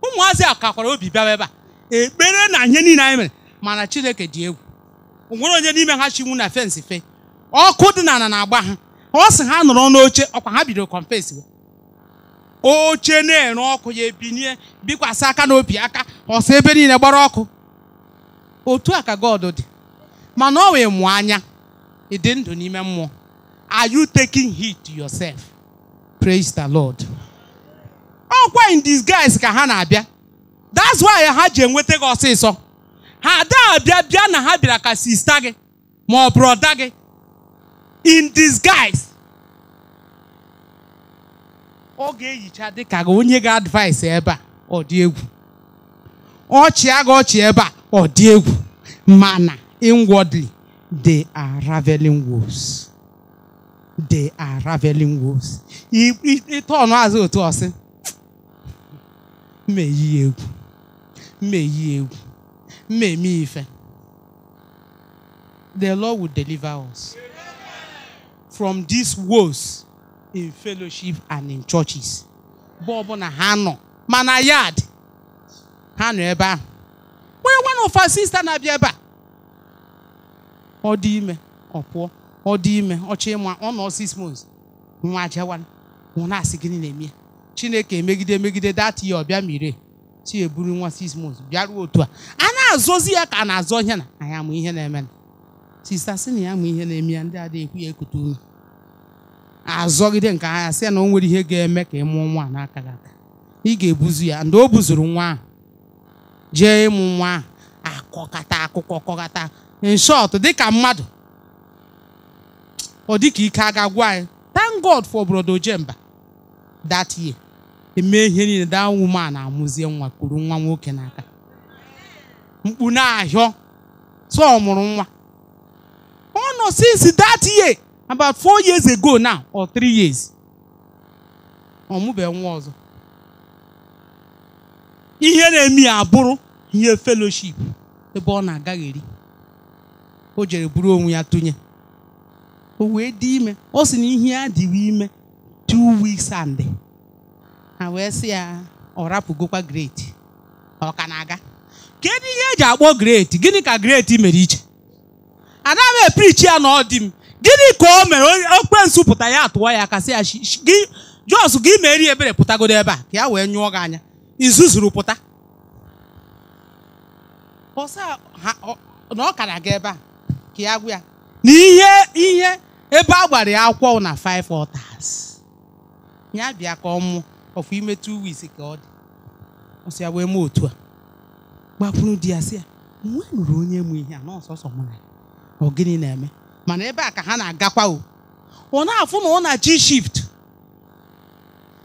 ụmụazị a kakwara obi bịawa ebe a ekpere na ihe niile anyị mere mana Chineke dị egwu onwere onye n'ime ha chinwu na fensi fe ọkụ dị na ala na-agba ha ọ sị ha nọrọ n'oche ọkwa ha bidoro kọmpesi oche na-ere ọkụ ya ebinye bikwasị aka n'obi aka ọsọ ebe niile gbara ọkụ otu a ka God dị mana ọ wee mụọ anya ị dị ndụ n'ime mmụọ are you taking heed to yourself praise the Lord ọkwa in disguise ka ha na-abịa that's why ha ji enweta gị ọsịsọ ha ada abịa bịa na ha bịara ka sista gị ma ọ gị in disguise ọ ga-ehicha dịka gị onye ga-advaịsị ebe a ọ dị egwu ọchịa gị ọchị ebe a ọ dị egwu mana inwardly they are raveling wolves they are raveling wolves ịtọnụ azụ otu ọsị mmeyi egwu mmeyi egwu mmeme ife the Lord will deliver us. Yeah. from these woes in fellowship and in churches mgbe na ha nọ mana yard ha nọ ebe ahụ onye nwana ụfa sista na-abịa ebe a ọ dị ime ọ pụọ ọ dị ime ọ ọchị ịma ọ nọ six months nwa jewara nwụna asị gịnị na-eme ya? chineke emegide emegide data ya ọbịa mire ti eburu nwa six months bịaruo otu a a na-azọzi ya ka a na-azọ ihe na anyị amụ ihe na-eme na sista si na ya amụ ihe na-eme ya ndị adịghị ekwu ya ekute ume azọgide nke ahịa sị na o nwere ihe ga-eme ka ị mụọ nwa n'aka gị aka ị ga-ebuzu ya ndị o buzuru nwa ahụ jee ịmụ nwa ahụ akọkata akụkọ kọkata in dịka mmadụ ọ dịka ike aga gwa anyị thank God for brodo jemba that year emee ihe niile that woman amụzie nwa kuru nwa nwoke n'aka mkpu na-ahịọ so ọ mụrụ nwa ọ nọ since that year about four years ago now or three years ọ nwa ọzọ ihe na-eme ya abụrụ ihe fellowship ebe ọ na eri o jere buru onwe ya tụnye o wee dị ime ọ sị na ihe adịghị ime two weeks and ha wee sị ya ọ rapụgokwa great ọ ka na-aga kedu ihe eji akpọ great gịnị ka great mere iche anaghị epirichi ya na ọ dị m gịnị ka o mere okwensu pụta ya atụọ ya kasị ya gị jos gị meri ebere pụtagodo ebe a ka ya wee nyụọ gị anya izuzuru pụta na ọ kara gị ebe a ka ya gwa ya na ihe ihe ebe a gbara ya akwụkwọ na five altars ya bịa ka ọ mụọ ọfụ ime two weeks ka ọ dị ọsị ya wee mee otu a gbakwuru di ya si ya e nwa nụrụ onye mụ ihe a na ọsọsọ mụ na ọ gịnị na-eme mana ebe a ka ha na-agakwa o ọ na-afụ na ọ na chi shift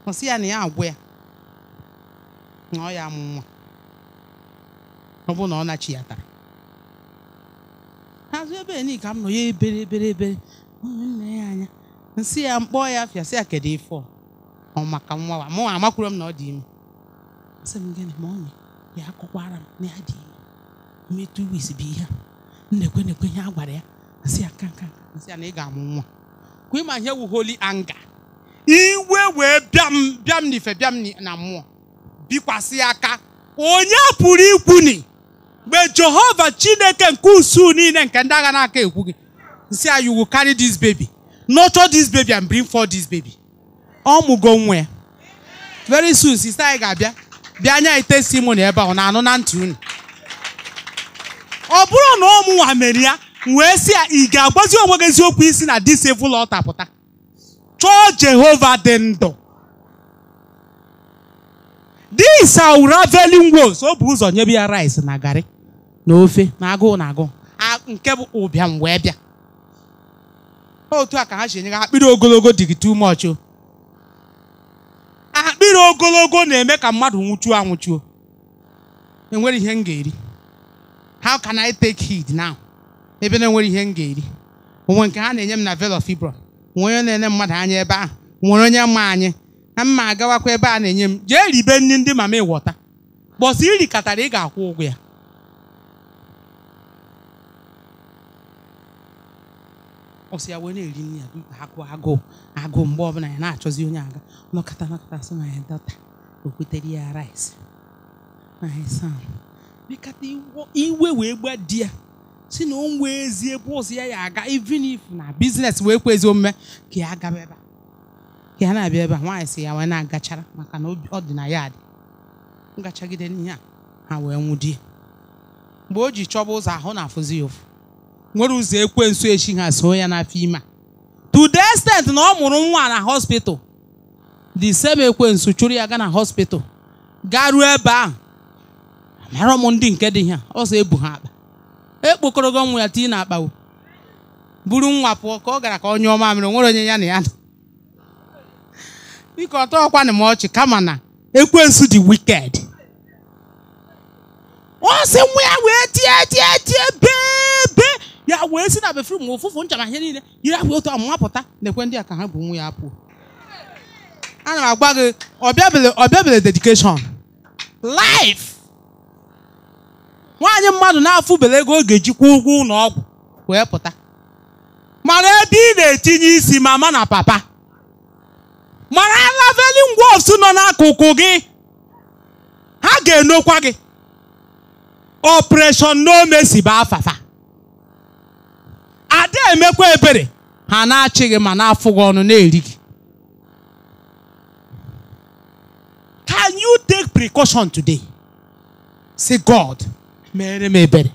ọ sị ya na ya agwụ ya na ọ ya amụ nwa ọ bụ na ọ na nachi ya tara azụ ebe ni ka m nọ ya ebere ebere ebere nne ya anya nsị ya mkpọ ya afịa sị ya kedu ife ọ maka nwa wa mụ amakwuru m na ọ dị ime sị m gịnị ma onye ya akọkwara m na ya dị ime metụ wis bụ ihe a nnekwe ekwe na-ekwe ihe a gwara ya nsị a na ị ga-amụ nwa kwa ịma ihe wu holy anger iwe wee bịam bịam n'ife bịam na mmụọ bikwasị aka onye pụrụ ikwu ni mgbe jehova chineke nke usu niile nke ndị agha na-aka ekwu gị nsị a you will carry this baby nurture this baby and bring forth this baby ọ mụgo nwa ya very soon sister anyị ga-abịa bịa anya itesi mụ na ebe ahụ na anụ na ntị unu ọ bụrụ na ọmụnwa mere ya wee si ya ị ga-agwazi onwe gị eziokwu isi na dis evil altar pụta chọọ Jehova dị ndụ Dis are veli wolves o bu ụzọ nyebe ya rice na garị na ofe na agụụ na agụụ nke bụ ụbịam wee bịa otu a ka ha si enye ha akpịrị ogologo dịgị too much o akpịrị ogologo na-eme ka mmadụ nwụchuo anwụchuo enwere ihe m ga-eri how can I take heed now? ebe na-enwere ihe m ga-eri onwe nke ha na-enye m na velofibro. of onye na-enye mmadụ anya ebe ahụ nwere onye mma anyị na mma agawakwa ebe a na-enye m jee ribe nri ndị mama ịwọta bọsị iri katara ị ga-akwụ ụgwọ ya ọ sị ya wee na-eri nri ya agụ agụụ agụụ mgbe ọbụla ya na-achọzi onye aga N'ọkata n'ọkata sị na ya dọta okwetere ya rice na ya sam iwe wee gba di ya si na o nwee ezi ebe ụzọ ya ya aga even if na biznes wee kwezi omume ka ya gaba ebe a ka ya na-abịa ebe a nwaanyị si ya wee na-agachara maka na ọ dị na yaadị. ngachagide n'ihe a ha wee nwụdie mgbe o ji chọba ụzọ ahụ na-afụzi ya ụfụ nwere ụzọ ekwensu echi ha so ya n'afọ ime a to the extent na ọ mụrụ nwa na hospital the same ekwensu chụrụ ya gaa na hospital ruo ebe ahụ mara m ndị nke dị ihe ọzọ ebu ha akpa E gị nwa ya tii na akpawo buru nwa pụọ ka ọ gara ka ọ nyụọ mere nwere onye ya na ya nọ biko ọtọ ọkwanị m ọchị kama na ekwensu dị wiked ọ sị nwa ya wee tie tie tie bebe ya wee si na befrum ụfụfụ ncha na ihe niile yiri ahụ otu pụta na-ekwe ndị a ka ha bụ nwa ya apụ ana m agwa gị ọbịabele ọbịabele dedikeshọn life nwaanyị mmadụ na-afụbele ego oge jikwa ụgwọ ụlọ ọgwụ wee pụta mara ebe ị na-etinye isi mama na papa mara laveling wolves nọ n'akụkụ gị ha ga-enokwa gị operation si bụ afafa ada emekwa ebere ha na-achị gị ma na-afụ gị ọnụ na-eri gị can you take precaution today say god mere m ebere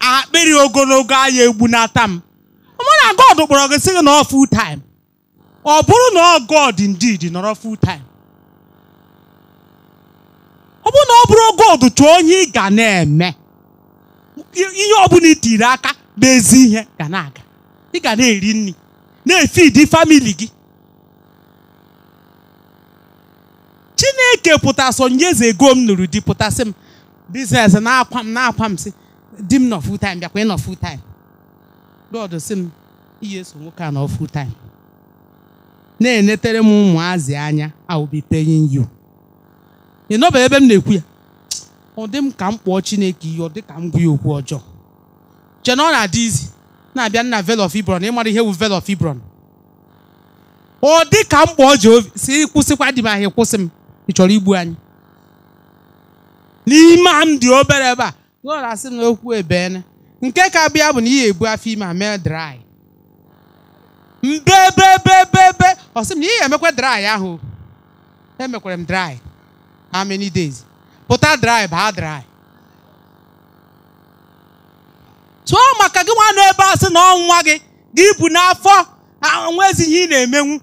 akpịrị ogologo anya egbunata m mụ na God kpọrọ gị sị gị nọọ full ọ bụrụ na ọ God indeed nọrọ full time ọ bụrụ na ọ bụrụ God chọọ onye ị ga na-eme ihe ọbụla itiri aka bụ ezi ihe ga na-aga ị ga na-eri nri na-efidi famili gị chineke pụta onye ego m nụrụ di pụtasị m biznes na-akwa m na-akwa m si di m nọ full time bịakwa ị nọ full time lọdụ si m iyi eso nwoke a nọ full time na-enetere m ụmụazị anya I will be paying you ị ebe m na-ekwu ya ọ dị m ka m kpọọ Chineke ihe ọ dị ka m gwa ya okwu ọjọọ chena ọ na-adị izi na-abịa nna Vale of ịmara ihe wu Vale of ọ dị ka m kpọọ Jehova si kwụsịkwa di m ahịa kwụsị m ị chọrọ igbu anyị n'ime a m dị obere ebe a God asị m na okwu nke ka bịa bụ na ihe ebu afọ ime a mee dry mbebebebebe ọ sị m na ihe emekwa dry ahụ emekwara m dry how many days pụta dry baa dry tụọ maka gị nwa nọ ebe a sị na ọnwa gị gị bụ n'afọ ah, ezi ihe ị na-emenwu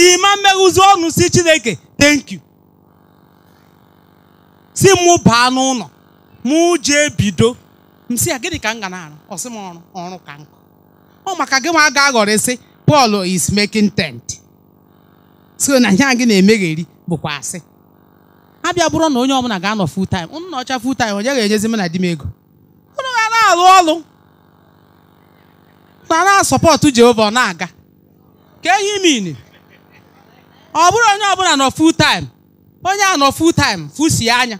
ihe ma mmeghuzi ọnụ si Chineke thank you si mụ baa n'ụlọ mụ jee bido m si ya gịnị ka m ga na-arụ ọ sị m ọrụ ọrụ ka nkụ ọ maka gị ma ga aghọrịsị Pọl is making tent so na ihe gị na-emegheri bụkwa asị abịa bụrụ na onye ọbụla ga-anọ full time nna ọcha full time onye ga-enyezi m na di m ego unu ga na-alụ ọlụ na na-asọpọtụ Jehova ọ na-aga ka ehi min ọ bụrụ onye ọbụla nọ full time onye a nọ full time fusi anya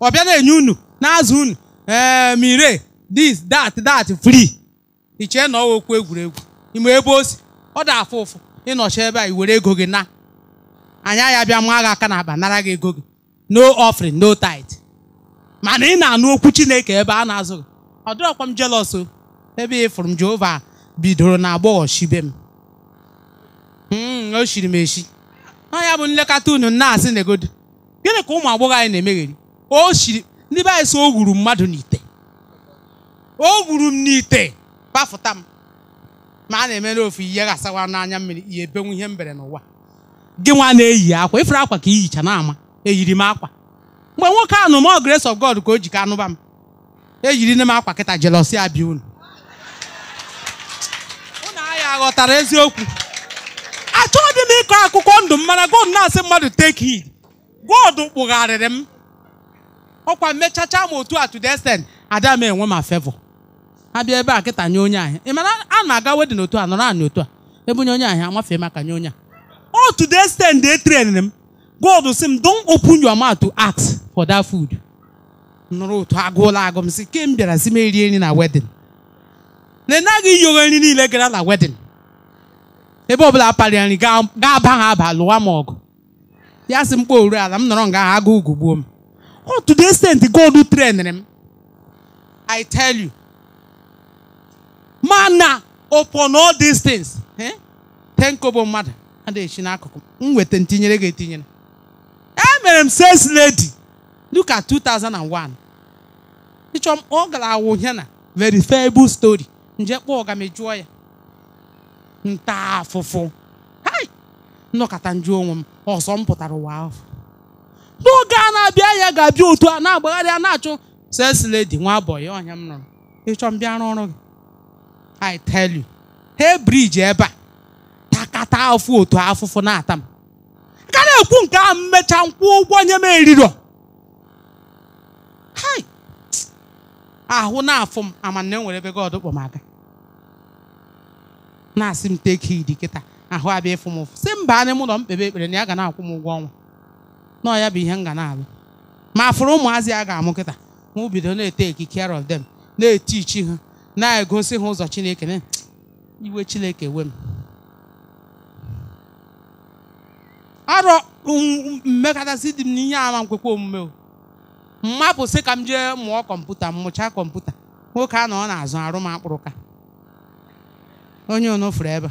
ọ bịa na-enye unu na-azụ unu ee ehm, mire dis dat dat fri ichee chee na ọwa okwu egwuregwu ime ebe o si ọ dị afụ ụfụ ịnọchi ebe a i were ego gị na anya ya bịa maa gị aka n'akpa nara gị ego gị no offering no tithe mana ị na-anụ okwu chineke ebe a na-azụ gị ọ dịrọkwa m jealous o ebe ị fụrụ m jehova bidoro na agbọghọ shibe m hmm, o shiri m eshi ọ ya bụ nlekọta unu na-asị na egodo gịnị ka ụmụ agbọghọ anyị na-emegheri o ndị be anyị si o gwuru mmadụ n'ite o gwuru m n'ite kpafụta m ma a na-emere ofu ihe ga-asawa n'anya mmiri ihe ebenwu ihe mbere n'ụwa gị nwa na-eyi akwa ifere akwa ka na n'ama eyiri m akwa mgbe nwoke ahụ m grace of God ka o ji ka anụba m eyiri ne m akwa kịta jelosi abịa unu unu anyị aghọtara eziokwu achọghị m ịkọ akụkọ ndụ m mana God na-asị mmadụ take heed God kpụgharịrị m ọkwa mmechacha m otu a to the extent ada m enwe ma abia ebea ebe a kịta nye onye ahịa ị mara a na-aga wedin otu a nọrọ anyị otu a ebe onye onye ahịa amafee maka nye onye a o to the de they m God si m don open your mouth to ask for that food nụrụ otu agụụla agụ m si ke m bịara si m eri nri na wedin na ịnaghị yogho nri niile gara na wedin ebe ọbụla parịa nri gaa aba ha aba lụwa m ọgụ ya si m kpọ oru ala m nọrọ nga agụ ugwu gbuo m Oh, to the extent God train them. I tell you. Mana upon all these things. Eh? Ten kobo mmadụ adịghị chi n'akụkụ m weta ntinyere ga etinyere. Emere m sales lady. Look at 2001. Ịchọ m ọ gara awụ ya na verifiable story. Nje kpọọ ga m juo ya. Nta afụfụ. Hai! Nnọkọta njụ onwe m ọzọ m pụtara ụwa ahụ. n'oge a na-abịa ya ga-abịa otu a na-agbagharị a na-achụ sesledi nwa abọghị ọnya m nụrụ ịchọ m bịa n'ọrụ gị I tell you he briji ebe a takata afụ otu afụfụ na-ata m ka na-ekwu nke ahụ mmecha nkwụ ụgwọ nye m Hi. ahụ na-afụ m amana enwere ebe nwere kpọ m aga na-asị m teke idi kịta ahụ abịa ịfụ m ụfụ si mba anyị mụ nọ m ekpere na ya ga na-akwụ m ụgwọ ọnwa nọọ ya bụ ihe nga na-alụ ma fụrụ ụmụazị a ga-amụ kịta mụ bido na-ete eki care of them na-eti chi ha na-egosi ha ụzọ chineke na iwe chineke we m arọ um, mmekọtasị dị m n'ihe ama nkwekwa omume o mmapụ sị ka m jee mụọ kọmputa mụchaa kọmputa nwoke a na ọ na-azụ arụ m akpụrụ ka onye onofuru ebe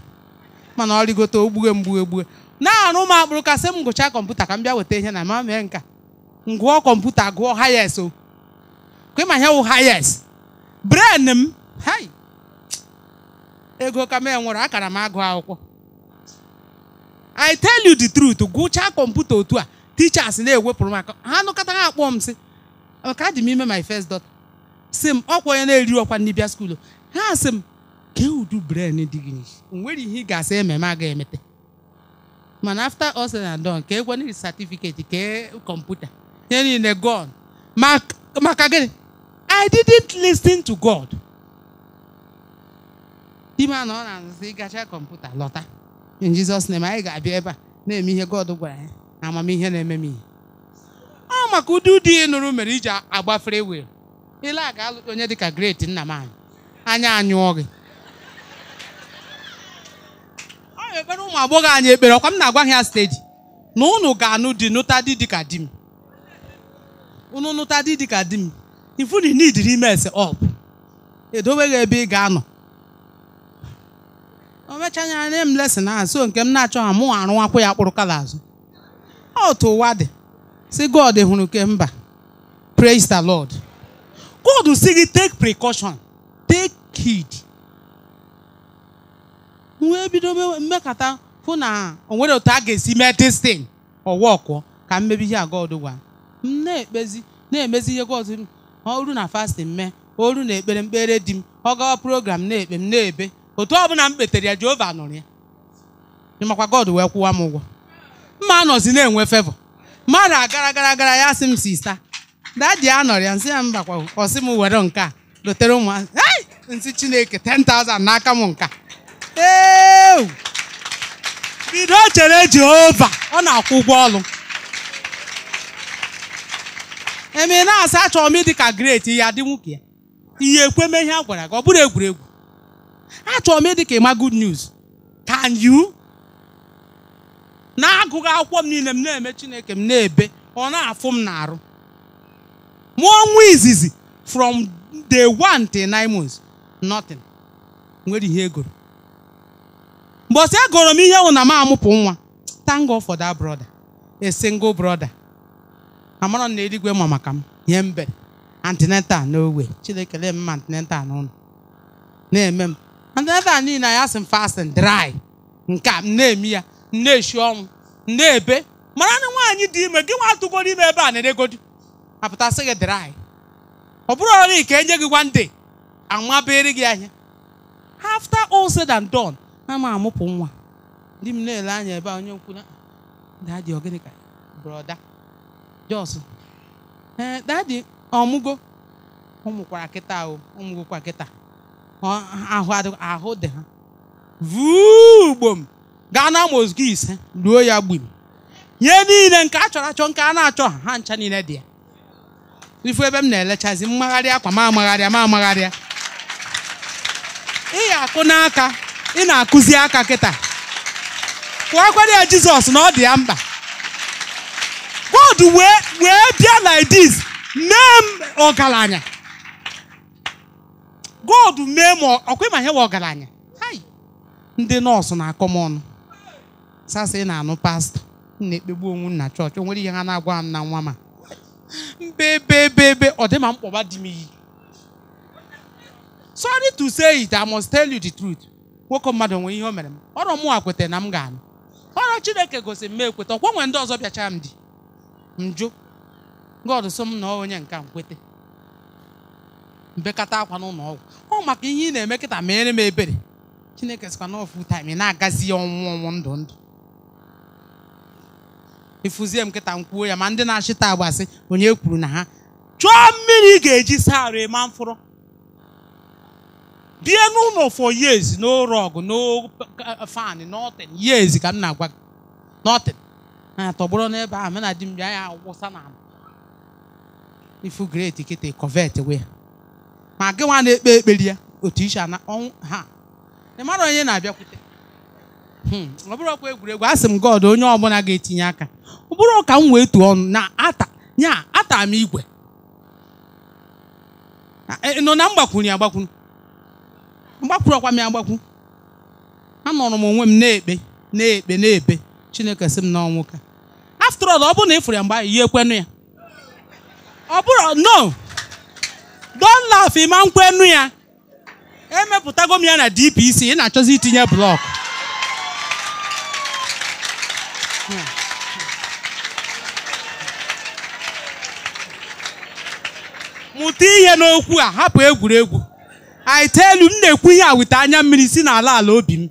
mana ọ rigote ogbughe mgbughe gbughe na-arụ m akpụrụ kasị m kọmputa ka m bịa weta ihe na ma mee nka ngụọ kọmputa gụọ hayes o kwema ihe wụ hayes bren m hai ego ka m enwere akara m agụ akwụkwọ i tell you the truth gụchaa kọmputa otu a teachers na-ewepụrụ m aka ha nụkọta ha akpọ m sị ka dị m ime my first daughter sị m ọkwa onye na-eri ọkwa ndị bịa ha sị m kee udu bren dị gị nwere ihe ị ga-asị ememe a ga-emete mana after all said and done ka egwe n'ihi certificate ke kọmputa ihe niile god maka gịnị I didn't listen to God ime na ọ na-azụzi ịgacha kọmputa lọta in Jesus name anyị ga-abịa ebe a na-eme ihe God gwara ya eh. na amamihe na-eme m ihe ah, ọ maka ụdị ụdị ihe nụrụ mere iji agbafere wee ile ga-alụ onye dịka great nna m anyị anya anyụọ gị na-ekpere ụmụ agbọghọ anyị ekpere ọkwa m na-agwa ha steji na ụnụ ga-anụ dị nụta dị dịka di m unu nụta dị dịka di m ifu na inidiri ime ese ọp edobeghị ebe ị ga-anọ o mechanya nye m lesin na so nke m na-achọ ha mụ arụwakwa ya kpụrụ kala azụ otu ụwa dị si God hụrụ ke mba praise the Lord God si gị take precaution take heed wee bido mmekọta hụ na o nwere otu a ga-esi mee destin ọwa ọkwọ ka mmebi ihe aga ọdụgwa m na-ekpezi na-emezi ihe gọzụ ọrụ na fastin mee ọrụ na ekpere mkpere di m ọ gawa program na-ekpe m na-ebe otu ọ bụla m kpetere ya Jehova nụrụ ya makwa God wee kwụwa m ụgwọ mma anọzi na-enwe fevọ mmadụ agara gara agara ya sị m sista dadi anọrọ ya nsị ya mbakwa sị m were nke a dotere ụmụazị nsị Chineke 10,000 n'aka m nka bido chere Jehova ọ na-akwụ ụgwọ ọlụ. eme na-asa achọrọ m ịdị ka great ya dị nwoke ya ihe ekweme ihe a gwara gị ọ bụrụ egwuregwu achọrọ m ịdị ka ịma good news can you na-agụghị akwụkwọ m niile m na-eme Chineke m na-ebe ọ na-afụ m n'arụ arụ nwa izizi from the one till nine months nothing nwere ihe egoro mbọsị agụrụ m ihe wụ na m amụpụ nwa thank God for that brother a single brother amara na eluigwe ma maka m nye mbe antineta na owe chinekele m ma antineta n'ụlọ na-eme m antineta niile anya sị m fasting dry nke a m na-eme ya m na-eshi ọnwụ m na-ebe mara na nwaanyị dị ime gị nwa nwatụgoro ime ebe a na-edegodi apụtasị gị dry ọ bụrụ ọrụ ka enye gị one day amabere gị ahịa after all said and done ama ma amụpụ nwa ndị m na-ele anya ebe a onye nkwụ na dadi ogịnị ka brọda jos ee dadi ọmụgo ụmụkwara kịta ahụ ụmụgokwa kịta ahụ dị ha vuo ugbom gaa na mozgo ise ruo ya gbim nye niile nke a chọrọ achọ nke a na-achọ ha ha ncha niile dị ya ifu ebe m na-elechazi mmagharị akwa ma amagharịa ma amagharịa ị ga-akụ n'aka ị na-akụzi aka kịta kwakwana ya jizọs na ọ dị ya mba, God wee wee bịa like this mee m ọgaranya God mee m ọkwa ịma ihe wa ọgaranya ndị nọọsụ na-akọ m ọnụ sasa ị na-anụ pastọ m na-ekpegbu onwe na chọọchị onwere nwere ihe ha na-agwa m na nwa ma mbebebebe ọ dị ma mkpọba dị m iyi sorry to say it I must tell you the truth nwoke mmadụ nwee ihe o mere m ọrọ mụnwa kweta na m ga-anụ ọrọ chineke gosi m ekweta ọkwa nwere ndị ọzọ bịacha m dị njụ God so m na onye nka nkwete mbekata akwa n'ụlọ ọgwụ ọ maka ihe ị na-eme kịta mere m ebere chineke sịkwa na ofu taim ị na-agazi ya ọnwụ ọnwụ ndụ ndụ ịfụzie m kịta m kwuo ya ma ndị na-achịta agbasị onye kwuru na ha chụọ mmiri ị ga-eji saa arụ ịma mfụrụ bie n'ụlọ for years no rug no fan nothing years ka m na-agwa gị nothing atọgbụrụ n'ebe ahụ mena di m bịa ya wụsa na ala ifu great kịta covet we ma gị nwa na-ekpe ekpere ya otu iche na ọnwụ ha ị mara onye na-abịakwute hmm, ọ bụrụ ọkwa egwuregwu asị m god onye ọbụla ga-etinye aka ọ bụrụ ka m wee tuo ọnụ na ata nya atara m igwe e, nọ na mgbakwunye agbakwunye. mgbakwuru ọkwa m ya mgbakwu anọrọ m onwe m na-ekpe na-ekpe na-ekpe chineke sị m na ọnwụ ka after all ọ bụrụ na ị fụrụ ya mgbe ahụ ya ya ọ bụrụ no don't laugh ịma ya emepụtago m ya na DPC ị na-achọzi itinye blọk mụta ihe n'okwu a hapụ egwuregwu I tell you, m na-ekwu ihe a anya mmiri si n'ala ala obi m.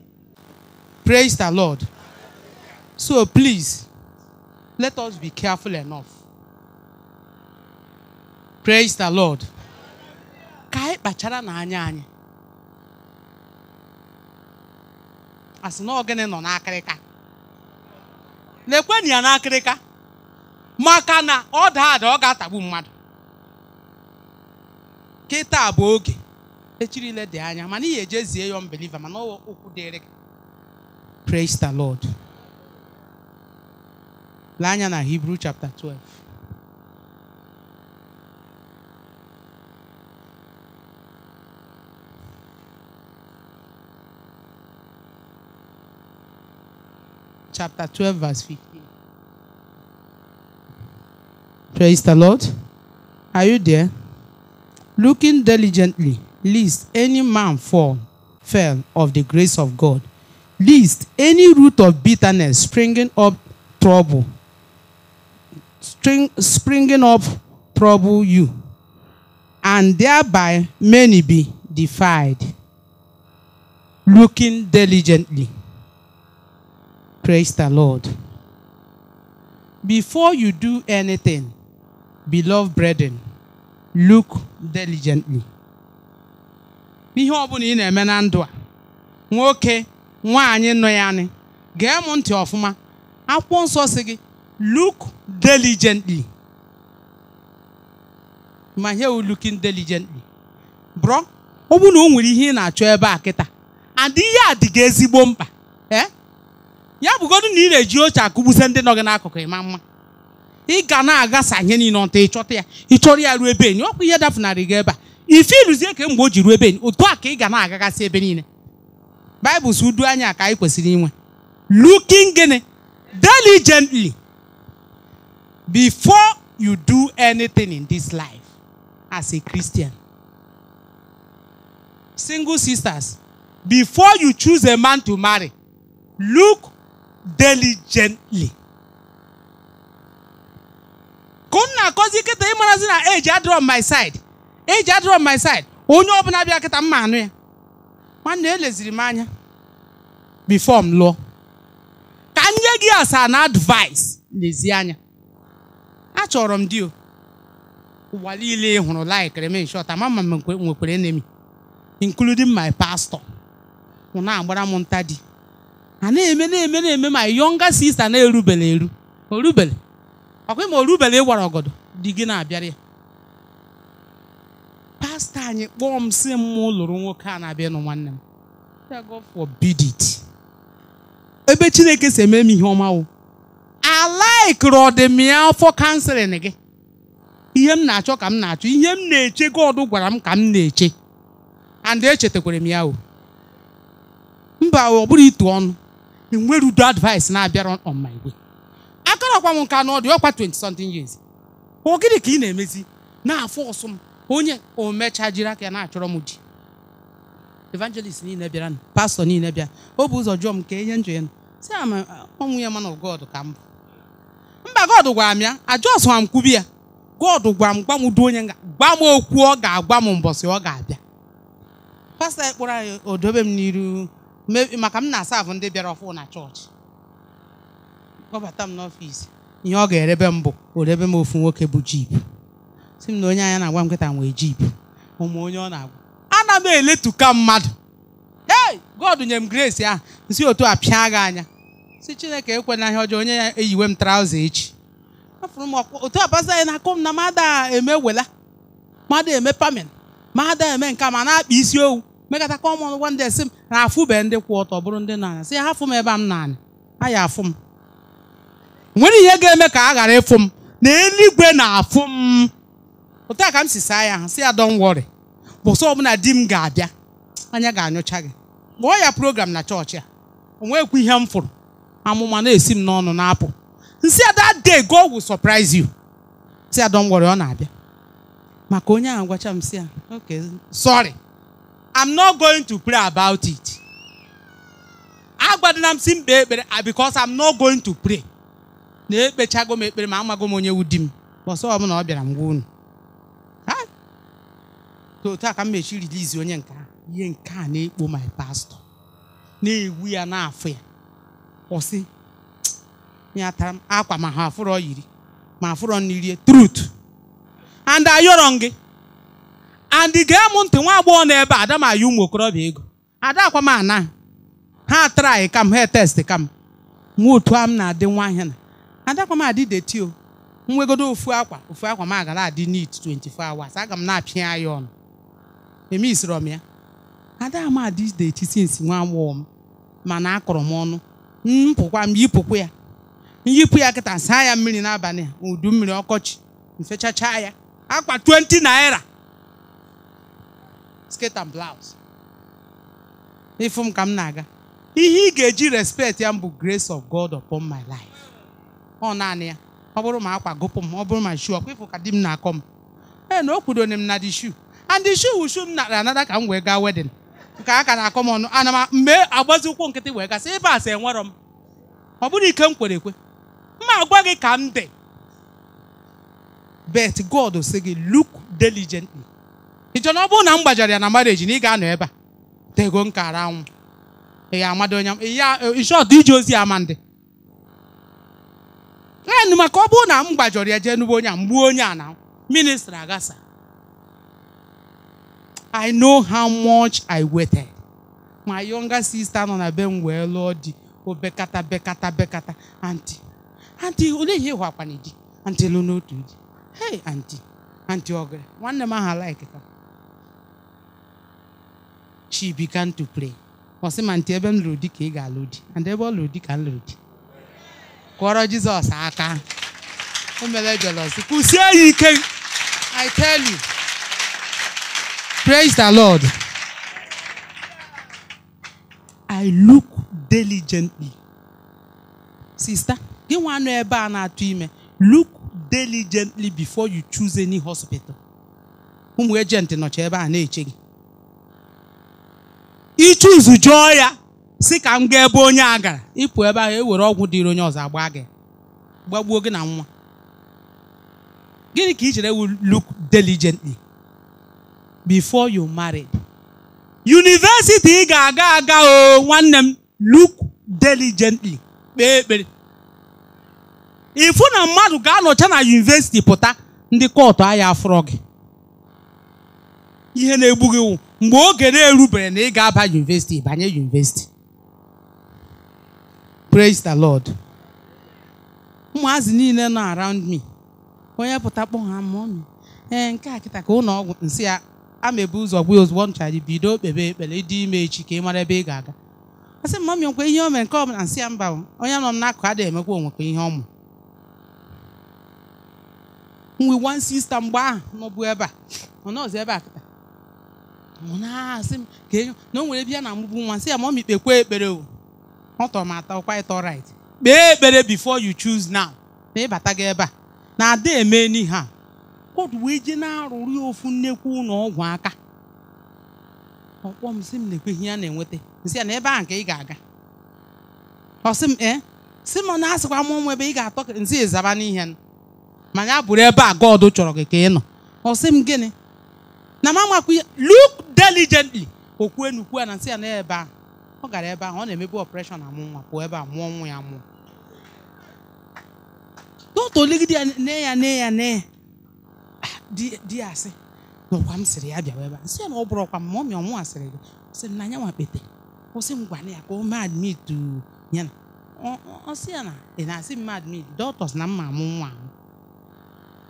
Praise the Lord. So please, let us be careful enough. Praise the Lord. Ka anyị kpachara n'anya anyị. Asị na ogene nọ n'akịrịka. Lekwenụ ya n'akịrịka. Maka na ọ daa ada ọ ga-atagbu mmadụ. Kịta bụ oge. echiri dị anya mana ejezie ya mana okwu dịrị praise the lord lee anya na hebrew chapter 12 chapter 12 verse 15 praise the lord are you there looking diligently lest any man fall, fell of the grace of God, lest any root of bitterness springing up trouble, spring, springing up trouble you, and thereby many be defied, looking diligently. Praise the Lord. Before you do anything, beloved brethren, look diligently n'ihe bụla ị na-eme na ndụ a nwoke nwaanyị nọ ya anị gee m ntị ọfụma akwụkwọ nsọ si gị look diligently ma here we looking diligently bro ọ bụrụ na o nwere ihe ị na-achọ ebe a kịta adịghị adịghị ezigbo mkpa ee ya bụgodu na ị na-eji oche akụgbuse ndị nọ gị n'akụkụ ịma mma ị ga na-agasa ihe niile ọta ịchọta ya ịchọrọ ya ruo ebe enyi ọkwa ihe dafụnarị gị ebe a ife iluzie ke mgbe o ji ruo ebe otu a ka ị ga na-agagasị ebe niile baịbụl si udu anya ka anyị kwesịrị inwe looking gịnị diligently before you do anything in this life as a Christian single sisters before you choose a man to marry look diligently ka m na-akọzi kịta ịmarazi na age adịrọ on my side eji adịrọ my side onye ọbụla bịa kịta mma anụ ya nwanne eleziri m anya bifo m lụọ ka m nye gị asaa na advice lezie anya achọrọ m di o ụwa niile hụrụ laikere m nshọta ama ma m nwekwere enemi including my pastor mụ na-agbara m nta di a na-eme na-eme na-eme ma younger sista na-erubele eru orubele ọkwa ma orubele ịwara ọgọdọ di gị na-abịara ya pastọ anyị kpọọ m si m lụrụ nwoke a na-abịa nụ nwanne m God it ebe chineke si eme m ihe ọma wụ alaikiri ọdịmya afọ kanselin gị ihe m na-achọ ka m na-achọ ihe m na-eche God gwara m ka m na-eche and echetakwara m ya o mba ọ bụrụ ịtụ ọnụ enwere udo advice na-abịara on my way akarakwa m nka ọ ọkwa 20 something years ọ gịnị ka ị na-emezi na-afọ ọsọ m onye omecha jiri aka ya na-achọrọ m ji evangelist niile bịara pastọ niile bịa o bụ ụzọ jụọ m nke ihe njọ ya si ọnwụ ya mana God ka m bụ mba God gwara m ya ajọsụwa m kwubi ya God gwa m gwa m du onye gwa m okwu ọ ga-agwa m mbọsị ọ ga-abịa pastọ ya anyị odobe m n'iru maka m na-asa ahụ ndị bịara ọfụ na chọọchị kpọbata m n'ọfịs ihe ọ ga-erebe m bụ orebe m ofu nwoke bụ jip si m na onye anya na-agwa m nkịta nwe jip ụmụ onye ọ na-agwa ana m eletuka mmadụ ee God nye m grace ahụ nsi otu a pịa gị anya si Chineke ekwe na ihe ọjọọ onye ya eyiwe m traụza echi afụrụ m otu abasa anyị na-akụ m na mada eme wela mada eme pamin mada eme nka ma na-akpa isi owu mekata kọmọn wanda esi m na afụbe ndị kwụ ọtọ bụrụ ndị na-anya si hafụ m ebe m na-anya aya afụ m nwere ihe ga-eme ka a ghara ịfụ m na eluigwe na-afụ m otu a ka m si saa ya ha si ya don wori bụsọ ọbụla di m ga-abịa anya ga-anyụcha gị kpọọ ya program na chọọchị a o nweghịkwa ihe m fụrụ amụma na-esi m n'ọnụ na-apụ nsị ada de go will surprise you si adọ ngwere ọ na-abịa maka onye ahụ gwacha m si ya okay sorry i'm not going to pray about it agwadona m si mkpe ekpere ah, because am not going to pray na ekpechago m ekpere ma amago m onye wudi m bọsọ ọbụla ọ bịara m gwa unu otu a ka m mechi rilizi onye nke a ihe nke a na-ekpo my pastọ na-ewu ya na-afụ ya ọsị ya tara m akwa ma ha afụrọ yiri ma afụrọ rie trut and ayọrọ gị and gem m ntị nwa agbọghọ na ebe ada m ayọ ụmụ okorobịa ego ada akwa m ana ha trai kam ha test kam nwa otu a m na-adị nwa ahịa na ada akwa m adị detio o nwegodo ofu akwa ofu akwa m agara adị nit 24 hours aga m na-apịa ya ọnụ emisiri m ya ada amadi dị echi sinsi nwa nwụọ m mana akọrọ m ọnụ mpụkwa m yipụkwa ya yipụ ya kịta saa ya mmiri n'abalị udu mmiri ọkọchị mfechacha ya akpa 20 naira skate and blouse ịfụ m ka m na-aga ihe ị ga-eji respect ya m bụ grace of God upon my life ọ naanị ya ọ bụrụ ma akwa gụpụ m ọ bụrụ ma shu ọkwa ịfụ ka di m na-akọ m ee na o kwudone m na di shu and the shoe shoe m nara anada ka m wee gaa wedin nke a ka na-akọ m ọnụ ana m mgbe agbazi ụkwụ nkịtị wee gasị ebe a sị enwerọ m ọ bụrụ ike m kwere ekwe mma agwa gị ka m dị bet God sị gị look diligently ịchọ na ọ bụrụ na m gbajara ya na marriage na ị ga-anọ ebe a tego ara anwụ ị ga-amado onye ya ịchọtụ ije ozi ama ndị enụ maka ọ bụrụ na m gbajọrọ ya jee n'ugbo onye a mgbuo onye a na ministri agasa I know how much I waited. My younger sister nọ na be m wee lụọ di obekata bekata bekata anti anti olee ihe ịhụ ịhụakwana di anti lụ n'otu di hey anti anti ọgara nwanne m aha like ka she began to pray ọ sị ma nti ebe m lụrụ di ka ị ga-alụ di and ebe ọ lụrụ di ka m lụrụ di kụọrọ Jizọs aka o mere jelọs kwụsie ya ike I tell you Praise the Lord. I look diligently. Sister, gị nwa ebe a na-atụ ime look diligently before you choose any hospital. Ụmụ ejenti nọcha ebe a na-eche gị. Ichuzu jụọ ya si ka m gaa ebe onye a gara ịpụ ebe ahụ ewere ọgwụ dịrị onye ọzọ agba gị gbagbuo gị na nwa. Gịnị ka i chere ewu look diligently? before you marry. University ga-aga aga o nwanne m look diligently kpee ekpere. Ifu na mmadụ ga-anọcha na university pụta ndị kọtụ ahịa afụrọ gị. Ihe na-egbu gị wụ mgbe oge na-erubere na ị ga-aba university banye university. Praise the Lord. Ụmụazị niile nọ around me. Onye pụta kpọọ ha mụọ m. Ee eh, nke a kịta ka ụlọ ọgwụ nsị ya amebu ụzọ gwa ozugbo ncha gị bido kpebe ekpere ịdị ime echi ka ị mara ebe ị ga-aga a sị mma mekwa ihe o mere nke ọ bụla nsị ya mba onye nọ m n'akụkụ adịghị emekwa onwekwa ihe ọmụ. mụ nwe wan sista mgbe ahụ nọbụ ebe a ọ nọzi ebe a kịta na-asị m ka enyo na o nwere bịa na mụbụ nwa sị ya ma ọ mikpekwa ekpere o ọ tọrọ m atọ kwa ịtọ right kpee ekpere before you choose now ma ịbata gị ebe a na ada eme n'ihe a koodu wee jee na-arụrụ ya ofu nnekwu na ọgwụ aka ọkpọ m sị m na-ekweghị a na-enweta nsị ya na ebe a nke ị ga-aga ọ sị m ee sị m na asịkwa m ụmụ ebe ị ga-atọ nsị ịzaba n'ihe ma abụrụ ebe a God chọrọ gị ka ị nọ ọ sị m gịnị na m amakwa ya look diligently okwu enukwu a na nsị ya na ebe a ọ gara ebe ahụ ọ na-emebu operation amụ nwa pụọ ebe a mụọ nwa ya mụọ dọta oligide ya nne ya nne ya nne di ya asị n'ọkwa m sịrị ya bịa ebe a ya na ọ bụrụ ọkwa m ma ọ mịa ọnwụ asịrị gị sị na anyanwụ nwa kpete kwụsị m gwana ya ka o mee admitu ya na ọ sị ya na ị na-asị m admit dọtọs na mma amụ nwa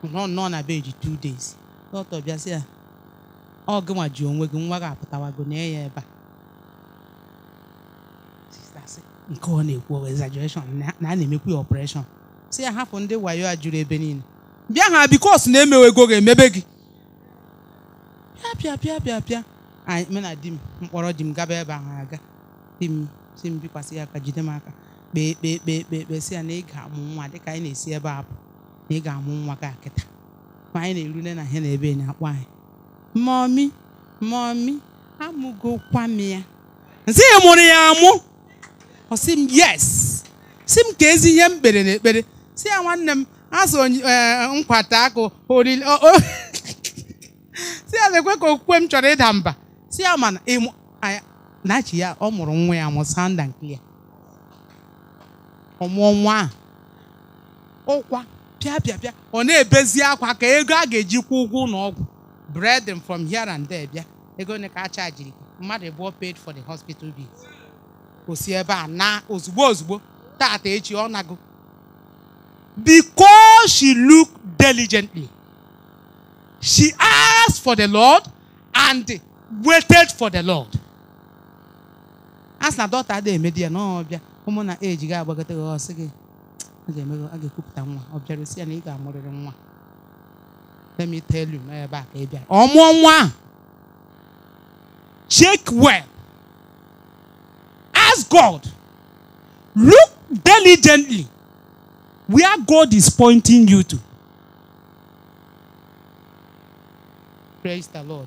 nọ nọ na beji two days dọtọ bịa sị ya ọ gịnwa ji onwe gị nwa gị apụtawago na ya ebe a nke ọ na-ekwu exaggeration na a na-emekwu ya ọpụreshọn si ya hapụ ndị wayo a juru ebe niile bịa ha bikos na emewe ego ga-emebe gị bịa bịa bịa bịa anyị mụ na di m mkpọrọ di m gaba ebe ahụ aga di m si m bikwasị ya aka jide m aka kpee kpee kpee kpee ekpee si ya na ị ga-amụ nwa dịka anyị na-esi ebe a pụ na ị ga-amụ nwa gị akịta ma anyị na-erule na ihe na ebe na-akpọ anyị mọmi mọmi amụgokwa m ya nsị ya mụrụ ya amụ ọ sị m yes si m ka ezi ihe m kpere na ekpere si ya nwanne m azụ e, nkwata akụ si ya na-ekwe ka okwukwe m chọrọ ịda mba si ya na chi ya ọ mụrụ nwa ya mụsa sanda nke ya ọmụọ nwa a ụkwa pịa pịa pịa ọ na-ebezi akwa ka ego a ga-eji kwụ ụgwọ ụlọ ọgwụ breading from here and there bịa ego ne ka a chajiri mmadụ abụọ paid for the hospital bill o ebe a na ozugbo ozugbo tata echi ọ nago biko she looked diligently. She asked for the Lord and waited for the Lord. As daughter let me tell you my back. a ka check well ask God look diligently where God is pointing you to. Praise the Lord.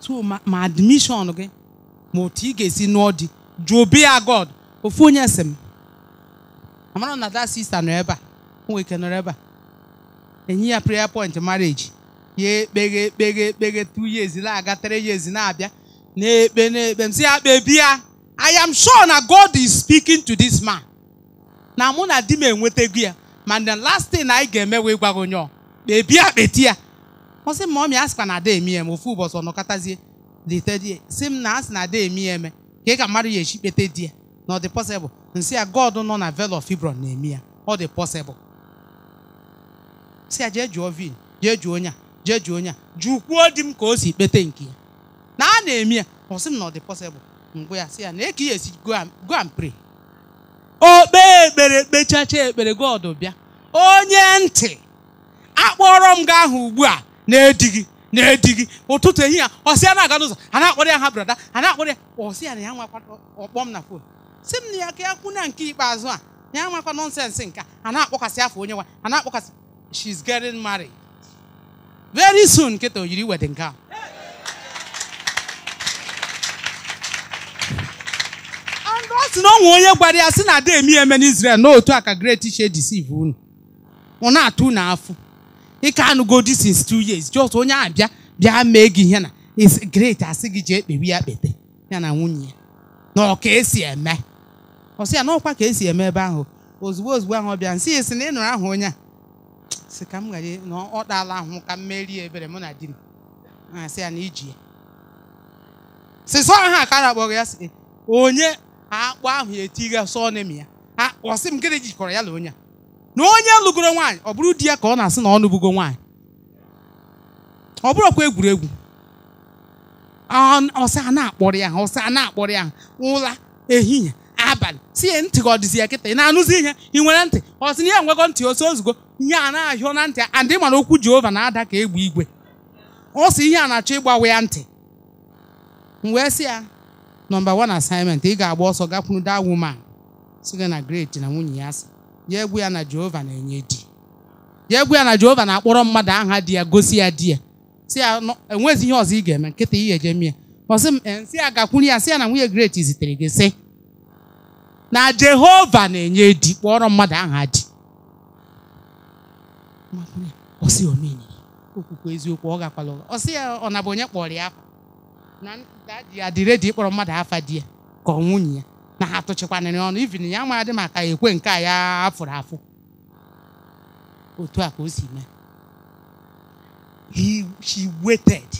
So my, my admission again. ma otu ị ga-esi nụọ di jụbi ya God ofu onye sị m amara na that sister nọ ebe a nwe ike nọrọ ebe ya prayer point marriage ya ekpeghe ekpeghe ekpeghe two years na-aga three years na-abịa na-ekpe na-ekpe m sị ya kpebie I am sure na God is speaking to this man na mụ na di m enwetego ya mana last thing anyị ga-eme wee gwa gị onye ọ kpebie akpeti ya ọ m ma asịkwa na ada emi eme ofu ụbọchị ọ nọkọtazie litedi si m na asị na ada emi eme ka ị ka mmadụ ya echi kpete di ya na ọ dị pọsịbụl nsị ya God nọ na Vale of Hebron na-emi ya ọ dị pọsịbụl si ya jee jụọ vin jee jụọ onye a jee jụọ onye a jụkwuo di m ka o si kpete nke ya na a na-emi ya ọ m na ọ dị pọsịbụl mgbe ya si ya na eke ya esi go and pray o kpee ekpere kpechacha ekpere God bịa onye ntị akpọrọ m gị ahụ ugbu a na-edighị na-edighị ụtụtụ ehihie ọsị ya na-aga n'ụzọ a na-akpọrọ ya ha brada a na-akpọrọ ya ọsị ya na ya nwakwa ọkpọm na fon si m na ya ka ya kwụ na nke ikpeazụ a ya nwakwa nọnsensị nke a na-akpọkasị afọ onye nwa a na-akpọkasị she's getting married very soon nkịta o yiri wedding gown sị na ọ onye gwara ya sị na ada emi eme n'Israel na otu a ka great ishe deceive unu ọ na-atụ unu afụ ike anụgodi since two years just onye a bịa bịa mee gị ihe na is great asị gị jee kpewe ya kpete ya na nwunye ya na ọka esi eme ọ sị ya n'ọkwa ka esi eme ebe ahụ ozugbo ozugbo ahụ ọ bịa nsị sị na ị nụrụ ahụ onye a sị ka m ghara na ọ dala ahụ ka m merie ebere mụ na di m na-asị ya na iji ya sị sọ ha ka a na-akpọrọ ya sị onye akpụ ahụ ya sọ n'ime ya ọ sị m gịnị jikọrọ ya na onye a na onye lụgoro nwaanyị ọ bụrụ di ya ka ọ na-asị na ọ nụbugo nwaanyị ọ bụrụkwa egwuregwu ọsị a na-akpọrọ ya ọsị a na-akpọrọ ya ụla ehihie abalị si ya ntị ka ọ dịzi ya kịta ị na-anụzi ihe ị nwere ntị ọ na ya nwego ntị osi ozugbo ihe a na-ahịọ na ntị adị mana okwu Jehova na-ada ka egbe igwe ọ sị ihe a na-achọ ịgbawa ya ntị m wee sị ya nọmba one asaịmentị ị ga-agba ọsọ gakwuru that woman si gị na great na nwunye ya si ya egwu ya na Jehova na-enye di ya egwu ya na Jehova na-akpọrọ mmadụ aha di ya gosi ya di ya si ya enwezi ihe ọzọ ị ga-eme nkịta ihe eje mie ọsị m eh, si ya gakwuru ya si ya na nwunye great zitere gị sị na Jehova na-enye di kpọrọ mmadụ aha di okwukwe eziokwu ọ gakwala ọsị ya ọ na bụ onye kpọrọ ya afa na ndị ya dị redi ịkpọrọ mmadụ afa di ya ka ọ nwunye ya na ha atụchikwanịrị ọnụ ivin ya maadị maka ekwe nke a ya afụrụ afụ otu a ka o si mee he she waited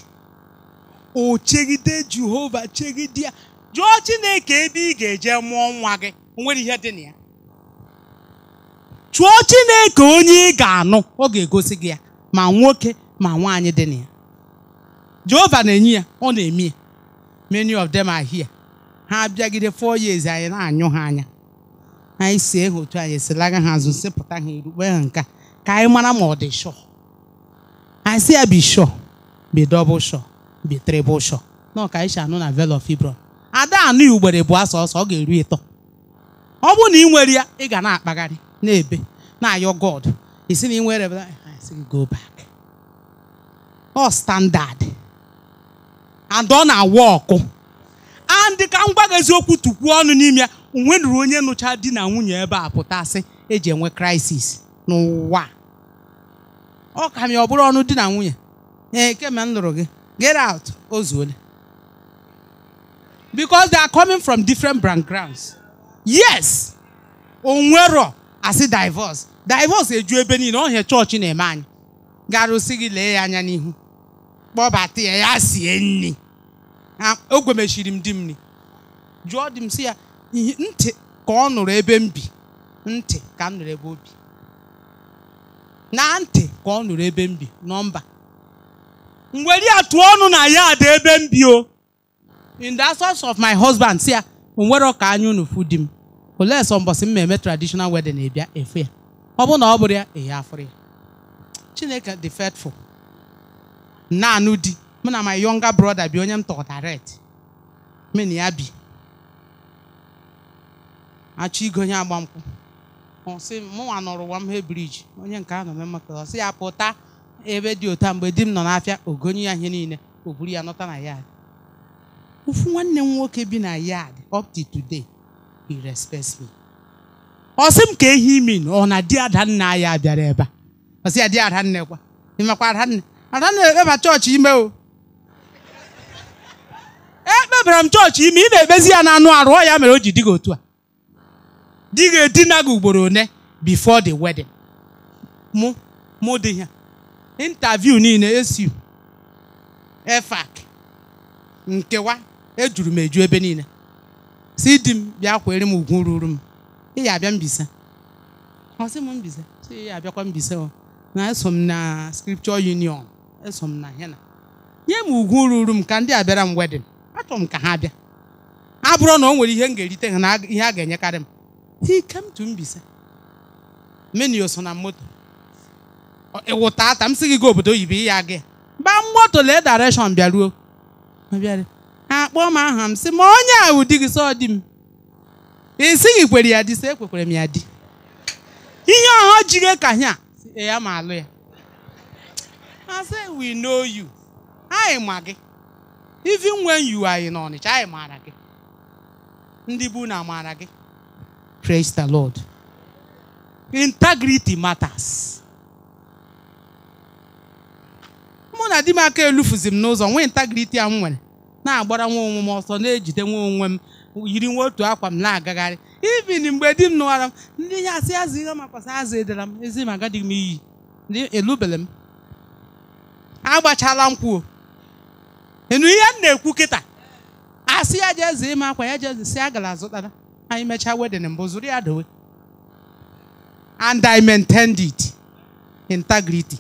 o chegide jehova chegide ya jụọ chineke ebe ị ga-eje mụọ nwa gị o nwere ihe dị na ya chụọ chineke onye ị ga-anụ ọ ga-egosi gị ya ma nwoke ma nwaanyị dị na ya jehova na-enye ya ọ na-eme many of them are here ha abịagide four years anyị na-anyụ ha anya anyị si ha otu anyị esilaga ha azụ sịpụta ha erukpe ha nka ka anyị mara ma ọ dị shọ anyị si ya bi shọ bi dọbụl shọ bi trịbụl shọ na ọka anyị anụ na velo fibron ada anụ ugbere bụ asọ ọsọ ọ ga-eru ịtọ ọ bụrụ na ị nwere ya ị ga na-akpagharị na-ebe na-ayọ god isi na ị nwere go back ọ standard and ọ na-awa ọkụ andị ka m eziokwu tukwuo ọnụ n'ime ya onwenuru onye nụcha di na nwunye ebe a pụtasị eji enwe krisis n'ụwa ọ ka m ya ọ bụrụ ọnụ di na nwunye ee kemgbe m lụrụ gị get out ozuole because they are coming from different backgrounds yes onwero asị divorce divorce eju ebe niile ọ hịa chọọchị na-eme anyị garụsi gị lee ya anya n'ihu kpọbata ya ya sie nri ogwemechiri m di m nri jụọ di m si ya ntị ka ọ nụrụ ebe m bi ntị ka m nụrụ ebe o bi na ntị ka ọ nụrụ ebe m bi nọmba mwere ya tụọ ọnụ na ya ada ebe m bi o in the absence of my husband si ya o nwere ọka anya unu di m olee sọ m na-eme traditional wedding na efu ya ọ bụrụ na ọ bụrụ ya ehe afụrụ ya Chineke dị faithful na di mụ na my younger brother bi onye m tọrọ direct na ya bi achọ igo onye agba nkwụ ọsị mụnwa nọrọ Wamhe briji onye nke a nọ na maka ọsị ya pụta ebe dị ụta mgbe di m nọ n'afịa ogonye ya ihe niile o buru ya nọta na yad ofu nwanne m nwoke bi na yad up to today he respects me ọ sị m ka ehi min ọ na di adanna ya bịara ebe a ọsị ya di adanna kwa ịmakwa adanna Adanna ekpeba chọọchị ime o ekpebara m chọọchị ime ị na-ekpezi ya n'anụ arụ ọ ya mere o ji dị gị otu a di gị edina gị ugboro one before the wedding mụ mụ dị ya interview niile esi efak nkewa ejuru m eju ebe niile si di m bịa kwere m ugwu ruru m ị ya abịa mbisa ọ sị m mbisa si ya abịakwa mbisa na eso m na scripture union eso m na hena nye m ugwu ruru m ka ndị a bịara m wedịn achọrọ m ka ha bịa a bụrụ na o nwere ihe m ga-erite ha na ihe a ga-enyekarị m ikemtu Mbaise menu so na moto ịwụta ata m si gị ga obodo oyibo ya gị ba moto lee direction bịaruo bịara akpọ m aha m sị ma onye a wụ di gị sọ di m ị sịghị kwere ya di sị ekwekwere m ya di ihe ọha jiri ka ya si ya ma alụ ya I say we know you. Anyị ma gị. Even when you are in Ọnịcha, anyị maara gị. Ndị bụ na maara gị. Praise the Lord. Integrity matters. Mụ na di m aka elufuzi m n'ụzọ nwee integrity a m nwere na-agbara nwa onwe m ọsọ na-ejide nwa onwe m yiri nwa otu akwa m na-agagharị even mgbe di m nụwara m ndị ya asị azụ ihe makwasị azụ edere m ezi m agadịghị m iyi elubele m agbachala nkwuo enu ihe m na-ekwu kịta asị ya jeze ime akwa ya jeze si agara azụtara anyị mechaa wedin mbụ zụrụ ya dowe and i'm maintained integrity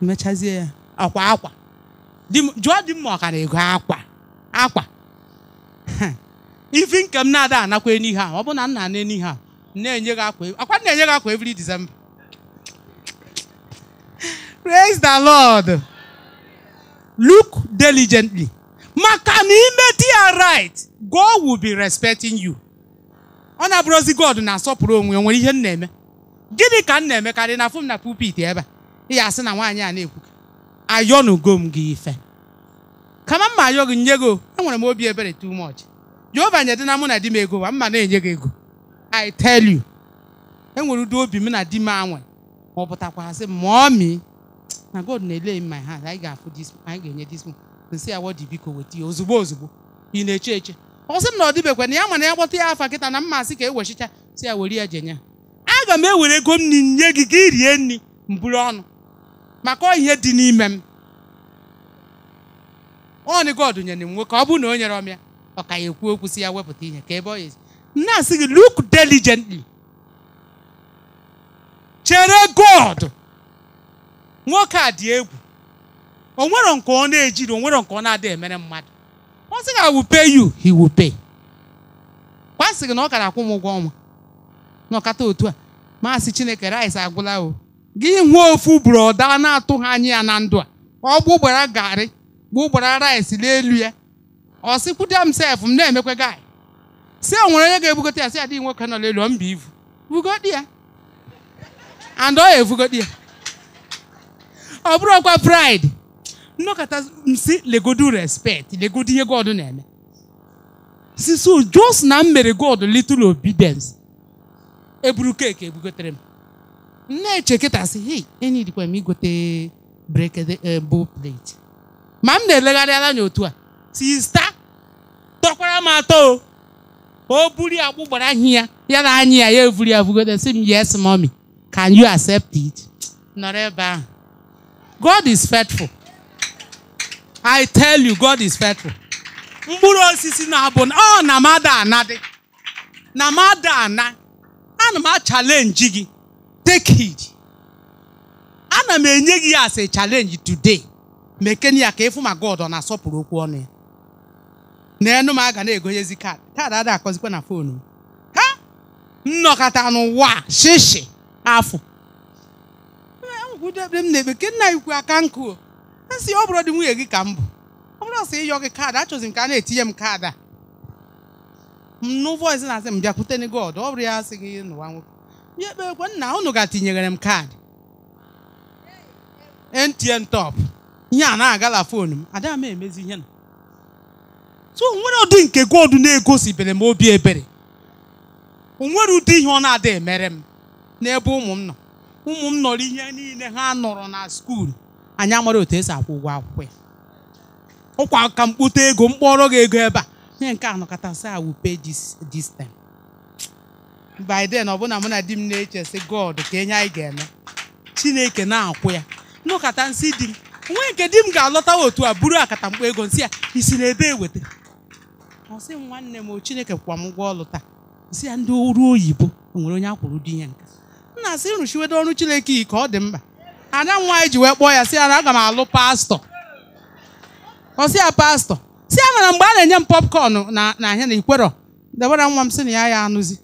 mechazie ya akwa akwa jụọ di mma ọkara ego akwa akwa *laughs* ifi nke m na-ada anakwa enihe ọ bụ na m na-ana na-enye gị akwa akwa na-enye gị akwa every December Praise the Lord. Look diligently. Maka na imeti ya right, God will be respecting you. Ọ na-abụrụzi God na-asọpụrụ onwe ya nwere ihe m na-eme. Gịnị ka m na-emekarị na afụ m na pulpit ebe a? Ịya asị na nwaanyị a na-ekwu ayọnugo m gị ife. Kama mma ayọ gị nye gị enwere m obi ebere too much. Jehova nyedị na mụ na di m ego ma mma na-enye gị ego. I tell you. Enwere ụdị obi m na di m anwe ma ọ mii na god na-ele m my hand anyị ga-afụ dis anyị ga-enye dis nsị ya wọdi biko weta ya ozugbo ozugbo ị na-eche eche ọ m na ọ dịbekwa na ya mana ya gbọta ya afa kịta na mmasị ka ewechicha si ya were ya jenye aga m ewere ego m nye gị ka rie eh, nri mburu ọnụ maka ihe dị n'ime m ọnị god nyere m nwoke ọ bụ na o nyere ọm ya ọ ka ya ekwu okwu si ya wepụta ihe ka ebe ọ ya na-asị gị look deligentli chere god nwoke a dị egwu o nwero nke ọ na-ejiri onwere nwero nke ọ na-adịghị emere mmadụ ọ sị ga wupe yu hi wupe kwa gị na ọ kara akwụ m ụgwọ ọnwa n'ọkata otu a maasị chineke rice agwụla o gị hụọ ofu buru ọda na-atụghị anya ya na ndụ a ọ gbụgbara garị gbụgbara rice n'elu ya ọ sị sịkwuda m sef m na-emekwa gai sị o nwere onye ga-ebugote ya si adịghị nwoke nọ n'elu ọ mba ivu bugodi ya and ọ ya evugodi ya ọ bụrụ ọkwa pride nnọkọta si legodu respect legodu ihe god na-eme si so jos na m mere god little obedience eburu keeki ebugotere m na-eche kịta si hei e dịkwa m igote brekede eh, bụ plate ma m na-elegharị anya otu a sista tọkwara m atọ o buri agbụ gbara ahịa ya ya na anyị ya ya eburi ya bugote si m yes mommy can you accept it nọrọ ebe ahụ God is faithful. I tell you, God is faithful. mkpụrụ osisi na-abụ ọ na mada anadị na mada ana ana m achalenji gị take it ana m enye gị ya a challenge today mekene ka efu ma God ọ na-asọpụrụ okwu ọnụ ya na enu m aga na-egonyezi kaadị kaadị ada akọzikwa na foonu m ha nnọkọta n'ụwa shishi afọ udo ekpere m na-ekpe nke nna ya ukwu aka nkụ esi ọ bụrụ dị nwunye gị ka m bụ ọ bụrụ sị ịyọ gị kaadị achọzi m ka a na-etinye m kaadị a mnụ voice na-asị m bịakwute ni god ọ bụrụ ya asị gị n'ụwa nwoke ya ekpe ekwe nna unu ga-atinyere m kaadị NTN top ihe a na-agala fonu m ada m emezi ihe na so onwere ụdị nke god na-egosibere m obi ebere onwere ụdị ihe ọ na-ada emere m n'ebe ụmụ m nọ ụmụ m nọrọ ihe niile ha nọrọ na skuul anyị amara otu esi akwụ ụgwọ akwụkwọ ya ụkwa ka kpute ego mkpọrọ gị ego ebe a mee nke a nọkọtasị I will pay this this ọbụna mụ na di m na-eche sị God ka enye anyị ga-eme Chineke na-akwụ ya nnọkọta nsị di m nwee nke di m ga-alọta otu a buru akata mkpọ ego nsị ya isi n'ebe eweta ọ sị nwanne m Chineke kwa m ụgwọ ọlụ taa nsị ya ndị ọrụ oyibo o nwere onye akwụrụ di ihe nka na asị rụchiwedo ọrụ Chineke ike ọ dị mkpa ada m nwaanyị ji wee kpọọ ya si ya na aga m alụ pastọ ọ si ya pastọ si ya mgbe a na-enye m popcorn na ahịa na ikwerọ debara nwa m sị na ya ya anụzi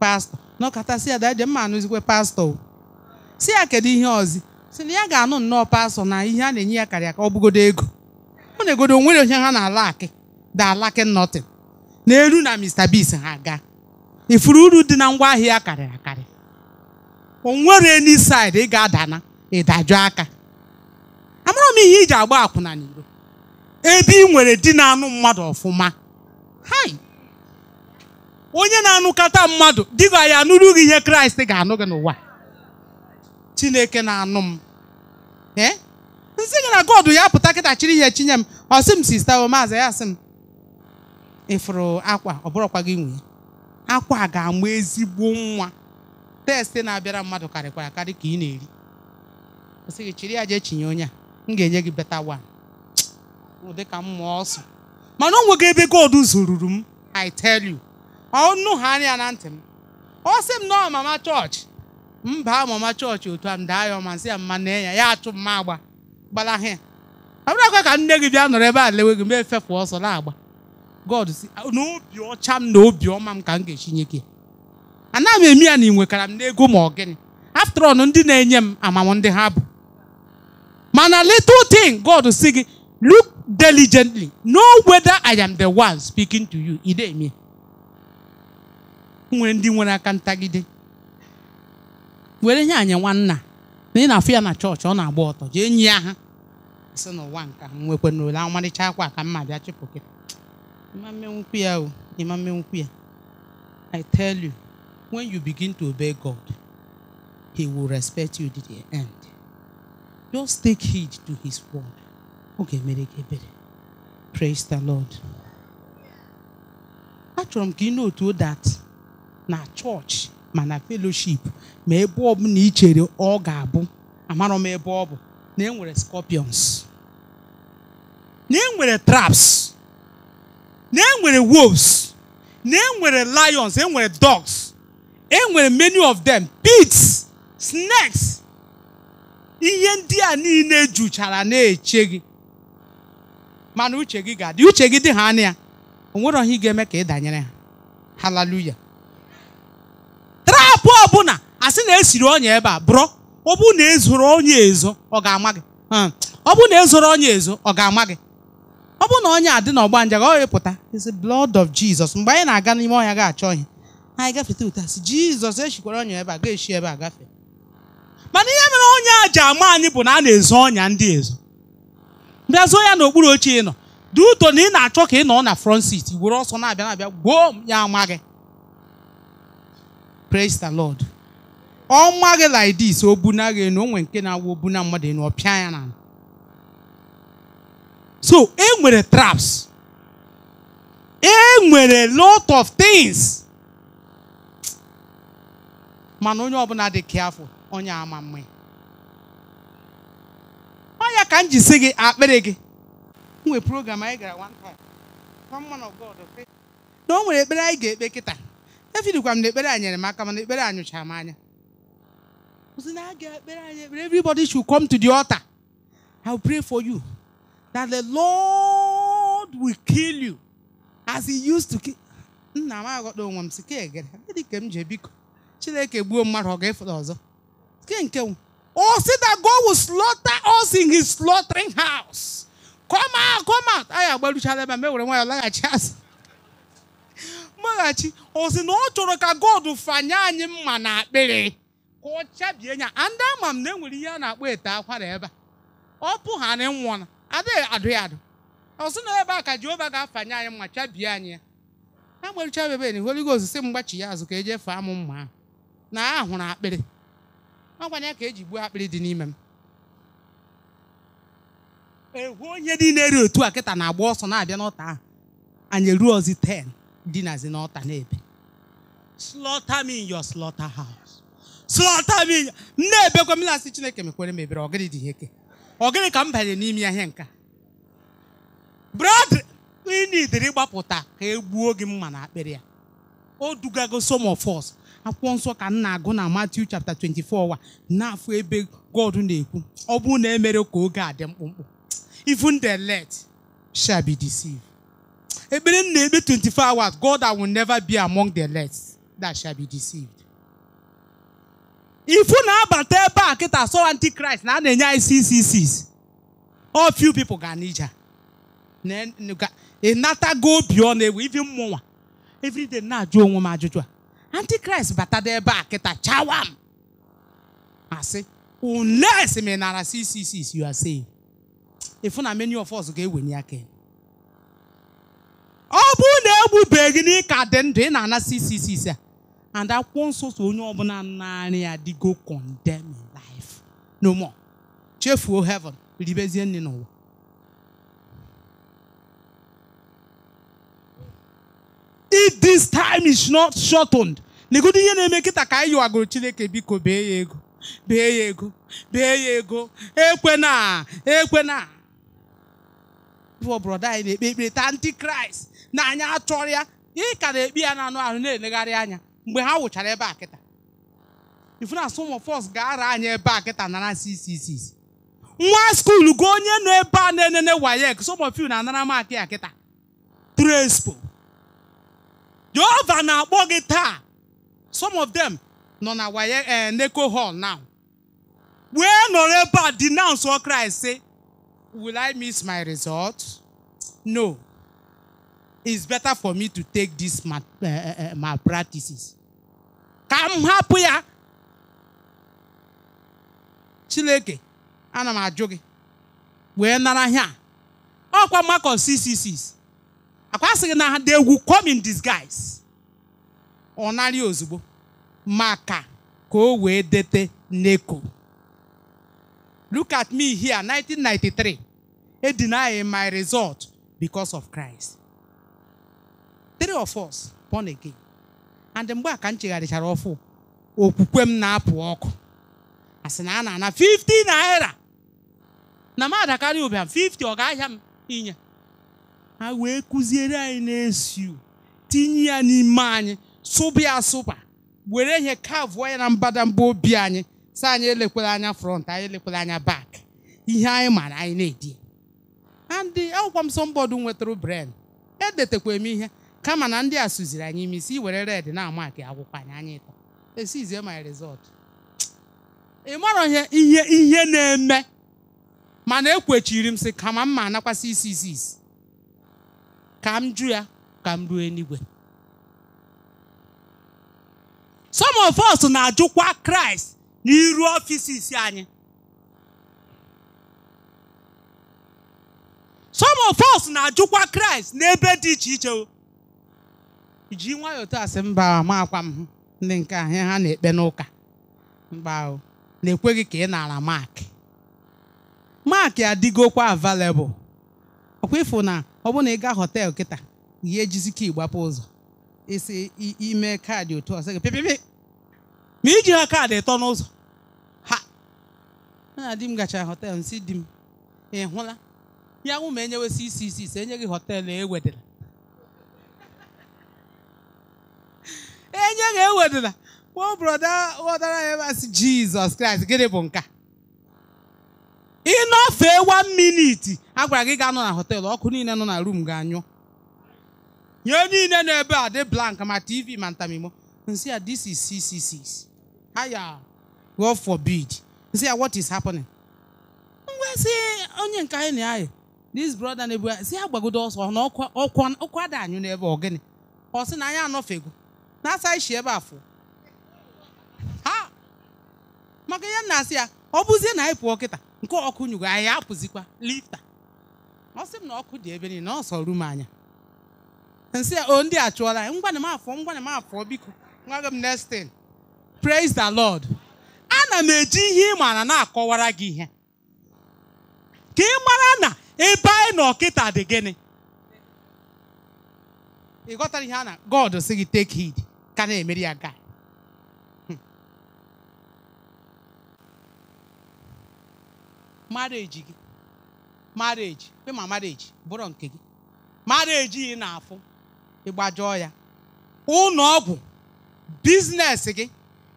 pastọ n'ọkata si ya daje mma anụzikwe pastọ si ya kedu ihe ọzi si na ya ga-anụ nnọọ pastọ na ihe a na-enye ya karịa ka ọ bụgodo ego ọ na-egodo onwere onye ha na-ala akị da alaki nọtin na eru na Mr. bis ha ga ifuru uru dị na ahịa ya karịrị akarị onwere ni side ị ga-adana ịdajụ aka amaghị m ihe iji agba akwụna n'iro ebe ị nwere di na-anụ mmadụ ọfụma hai onye na-anụkata mmadụ dịga ya anụrụ gị ihe kraịst ga-anụ gị n'ụwa chineke na-anụ m ee eh? gị na god ya pụta kịta chiri ihe chinye m ọ sị m sista maazị ya sị m ịfụrụ akwa ọ bụrụkwa gị nwunye akwa ga-amụ ezigbo nwa testị na-abịara mmadụ karịkwara karị ka ị na-eri ọ gị chiri ya jee chinye onye a m ga-enye gị beta wan ụdị ka m mụọ ọsọ mana o nwego ebe godu zoruru m I tell you ọnụ ha anya na ntị m ọ sị m nọọ mama chọọchị mba mama chọọchị otu a m daa ya ọma nsị ya mma na ya ya achụ mma agba gbalaha ya abụrakwa ka nne gị bịa nọrọ ebe a lewe gị ma efefu ọsọ na-agba God si na obi ọcha m na obi ọma m ka m ga-echinye gị ana m eme ya na ị nwekara m n'ego ma ọ gịnị after all ndị na-enye m amamụ ndị ha bụ mana little thing God si gị look diligently know whether I am the one speaking to you ị nwere ndị nwere aka ntagide were nye anyị nwanna na ị na-afụ ya na chọọchị ọ na-agba ọtọ jee enyi ya ha si n'ụwa nka ha nwekwa n'ole amalịcha akwa ka mma bịa chịpụ gị ịma mmenwukwu ya o ịma mmenwukwu ya I tell you when you begin to obey God, He will respect you to the end. Just take heed to His word. Okay, Praise the Lord. Achọrọ m ka to that na church, ma na fellowship ma ebe ọ bụ na ị chere ọ ga-abụ amarọ m ebe ọ bụ na enwere scorpions na enwere traps Name enwere wolves na enwere lions enwere dogs enwere many of them pits snakes ihe ndị a niile juchara na-eche gị mana uche gị ga-adị uche gị dị ha anya ya o nwere ị ga-eme ka ị danyere ha haleluya trapụ ọbụla asị na esiri onye ebe a bụrụ ọ na ezoro onye ezo ọ ga-ama gị hmm. ọ na ezoro onye ezo ọ ga-ama gị ọ bụ na onye adị n'ọgba nje ga ọ ịpụta is blood of Jesus mgbe anyị na-aga n'ime ọhịa ga-achọ ihe anyị gafeta ụtasị jizọs echikwara ọnya ebe a ga-echi ebe a gafe mana ihe mere onye a ji ama anyị bụ na a na-ezo ọnya ndị ezo bịa zoo ya n'okpuru oche ị nọ dị ụtọ na ị na-achọ ka ị nọ na front seat were ọsọ na-abịa na-abịa gboo ya ama gị praise the lord ọ ma gị like this o buna gị nke na-awụ obuna mmadụ ọ ya na so e nwere traps e nwere lot of things mana onye ọbụla dị kiafụ onye ama mma ọnya ka m ji si gị akpịrị gị nwee program anyị gara one time na o nwere ekpere anyị ga-ekpe kịta efidikwa m na ekpere anyị nyere m aka mana ekpere anyị anyụcha m anya ozi na aga ekpere anyị ekpere everybody should come to the altar I will pray for you that the Lord will kill you as he used to kill nna m aghọta onwe m si ka egere ka m ji biko Chineke gbuo mmadụ ọ ga-efụta ọzọ nke nke o si that God will slaughter us in his slaughtering house come out come out anyị agbaruchala ebe a mewere nwayọ laghachi azụ mmaghachi *laughs* o si na ọ chọrọ ka God fanye anyị mma na akpịrị ka ọ chabie nya ndị ama m na enwere ihe a na-akpọ ete akwara ebe a ọ pụ ha na nwụọ adịghị adụ ya adụ ọ na ebe a ka Jehova ga-afanye anyị mma chabie anyị ya agbaruchala ebe na Holy Ghost si mgbachi ya azụ ka eje faa amụ mma ahụ na a hụrụ akpịrị ọgwanye ya ka eji gbuo akpịrị dị n'ime m ehu onye dị na eri otu a kịta na-agba ọsọ na-abịa n'ọta ahụ anyị eruo ozi 10 dinazi n'ọta n'ebe slaughter me in your slaughter house slaughter me na-ebekwa m na-asị chineke mekwere m ebere ọgịrị dị ihe ọgịrị ka m banyere n'ime ahịa nka brad ị na-idiri gbapụta ka e gbuo gị mma na akpịrị ya o dugago some of akwụkwọ nsọ ka m na-agụ na Matthew chapter 24 wa n'afọ ebe God na-ekwu ọ bụrụ na emere ka oge a dị mkpụmkpụ even the elect shall be deceived ekpere m na-ekpe 24 hours God I will never be among the elect that shall be deceived ifu na-abata ebe a kịta sọ antichrist na a na-enye anyị 666 all few people ga n'ija ịnatago obi ọ na-ewe ivi mmụnwa everyday na-ajụ onwe m ajụjụ a bata dị ebe a kịta chawam asị unless me nara 666 you are ifu na many of us ga-ewenye aka ọ bụrụ na egbubeghị na ịka dị ndụ ị na-ana 666 a and akwụkwọ nsọ so onye ọbụla naanị ya dịgo condemn life no more chefuo heaven ribezie nne n'ụwa if this time is not shortened negodu ihe na-eme nkịta ka anyị yiwagoro chineke biko bee ya ego bee ya ego bee ya ego ekwena ekwena brọda anyị na-ekpe ekpere taa ndị kraịst na anya achọrọ ya ị ka na-ekpe ya anụ ahụ na-elegharị anya mgbe ha wụchara ebe a kịta ifu na some of us ga-ara anyị ebe a kịta nara ccc nwa skuul gụọ onye nọ ebe a na-enene wayek some of you na-anara maakị ya kịta trespo Jehova na-akpọ gị taa some of them nọ na waye eh, neko hall now wee nọrọ ebe a denounce Christ say will I miss my result no it's better for me to take this eh, eh, my, practices ka m hapụ ya Chineke ana m ajụ gị wee nara ihe a ọkwa Makọs 666 akwa na ha they egwu come in disguise ọ narị ozugbo maka ka o wee dete neko look at me here 1993 e deny my result because of Christ three of us born again and mgbe a ka m chegharịchara ọfụ okwukwe m na-apụ ọkụ asị na a na-ana 50 naira na m adakarị ụbịam 50 ọ ga-ahịa m inye ha wee kụziere anyị na tinye ya n'ime anyị sụba ya were ihe kavụọ ya na mbadamba obi anyị si anyị elekwala anya front anyị elekwela anya bak ihe anyị mara anyị na-edi andị akwụkwọ m sọmbọdụ nwetara bren edetakwa m ihe kama na ndị a suziri anyị ime isi were red na-ama ka akwụkwọ anyị anyị tọ esizie my result ị marọ ihe ihe na-eme mana ekwechiri m sị kama mma anakwasị isi isi isi ka m jụ ya ka m ruo eluigwe some of us na-ajụkwa kraịst n'iru anyị some of na-ajụkwa kraịst n'ebe dị iche iche ji nwayọọ sị mba ma akwa m ndị nke ahịa ha na-ekpe n'ụka mba na-ekweghị ka ị nara mark mark adịgokwa available ọkwa ịfụ na ọ bụrụ na ị gaa họteelụ kịta ya ejizike ịgbapụ ụzọ isi ime kaadị otu ọsọ gị pịpịpị ma iji ha kaadị ịtọ n'ụzọ ha na di m gachara họteelụ nsị di m ị hụla ya nwụ ma enyewesị isi isi ise enye gị họteelụ ewedịla *laughs* enye gị ewedịla kpọọ brọda ghọtara ya masị jizọs kraịst gịnị bụ nka ịnọfee one minute a gwara gị ga-anọ na họteelụ ọkụ niile nọ na rum ga-anyụ nye niile na ebe a dị blank ma tv ma ntamimo nsị ya this is 666 haya God forbid nsị ya what is happening ngwa si onye nke anyị na anyị this brother na-ebu si ya gbagodo ọsọ na ọkwa ada anyụ n'ebe ọgịnị ọ sị na anyị anọfego na asa ishi ebe afọ ha maka ihe m na-asị ya ọ bụzie na anyị pụọ kịta nke ọkụ nyugo anyị apụzikwa lifta ọ sị m na ọkụ dị ebe niile na ọ sọ ru m anya nsị o ndị a chụọla anyị ngwana m afọ ngwana m afọ biko nwa gị m nestin praise the lord ana m eji ihe ị maara na-akọwara gị ihe ka ị mara na ebe anyị na ọkịta dị gịnị ị ghọtara ihe a na god sị gị take heed ka na-emeri ya gaa marriage gị marriage pe ma marriage bụrụ nke gị marriage ị na-afụ ịgbajọọ ya ụlọ ọgwụ biznes gị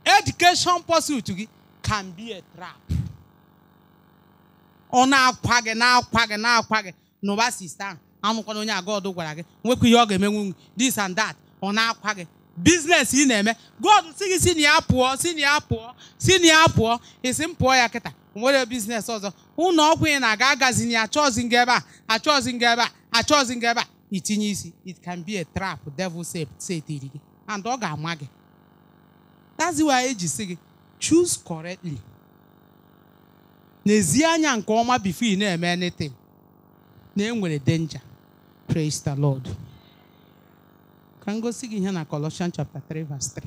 education pursuit gị can be a trap ọ na-akwa gị na-akwa gị na-akwa gị n'ụba sista ahụ amụkwana onye agod gwara gị nwekwa ihe ọ ga eme nwunye this and that ọ na-akwa gị biznes ị na-eme god si gị si na ya pụọ si na ya pụọ si na ya pụọ ị sị m pụọ ya kịta nwere biznes ọzọ ụnọ ọgwụ na-aga agazin achọzi nga ebe a achọzi ebe a achọzi ebe a itinye isi it can be a trap devil setiri gị and ọ ga-ama gị Taziwa eji si gị choose correctly n'ezi anya nke ọma before ị na anything na enwere danger praise the lord ka m gosi gị ihe na Colossians chapter 3 verse 3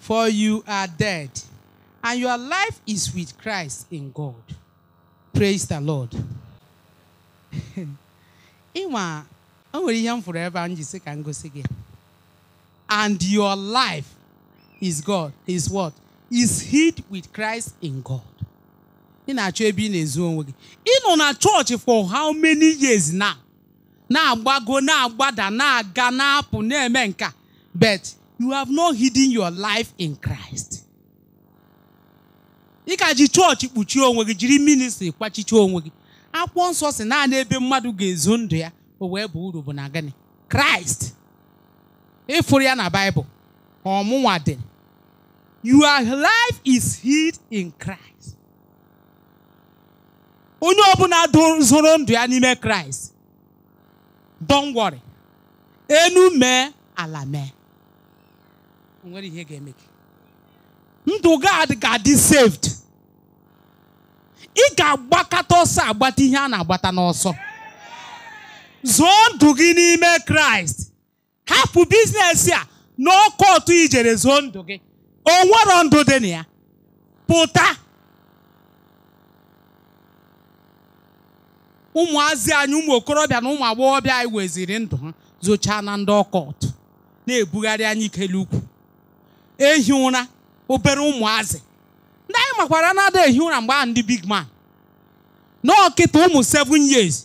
for you are dead and your life is with Christ in God. Praise the Lord. Ịnwa *laughs* o nwere ihe m fụrụ ebe a m ji sị ka And your life is God is what? Is hid with Christ in God. Ị na-achọ ebe ị na-ezu onwe gị. Ị nọ na acho ebe i na for how many years now? Na-agbago na-agbada na-aga na-apụ But you have not hidden your life in Christ. ị ka ji chọọchị kpuchie onwe gị jiri ministri kwachichie onwe gị akwụkwọ nsọ si naanị ebe mmadụ ga-ezo ndụ ya o wee bụ uru bụ na gịnị kraịst ịfụrụ ya na baịbụl ọmụnwa dị your life is hid in kraịst onye ọbụla zoro ndụ ya n'ime kraịst don't worry enu mee ala mee o nwere ihe ga-eme gị ndụ gị ga-adị saved ị ga-agbakọta ọsọ agbata ihe a na-agbata n'ọsọ zụọ ndụ gị n'ime kraịst hapụ biznesi a n'ọkụ ọtụ ijere zụọ ndụ gị o nwere ndụ dị na ya pụta ụmụazị anyị ụmụ okorobịa na ụmụ agbọghọbịa anyị weziri ndụ ha zụchaa na ndị ọkọt na-ebugharị anyị ikele ukwu ehi ụra obere ụmụazị ndị anyị makwara na-ada ehi ụra mgbe a ndị big man na ọkịta ụmụ 7 years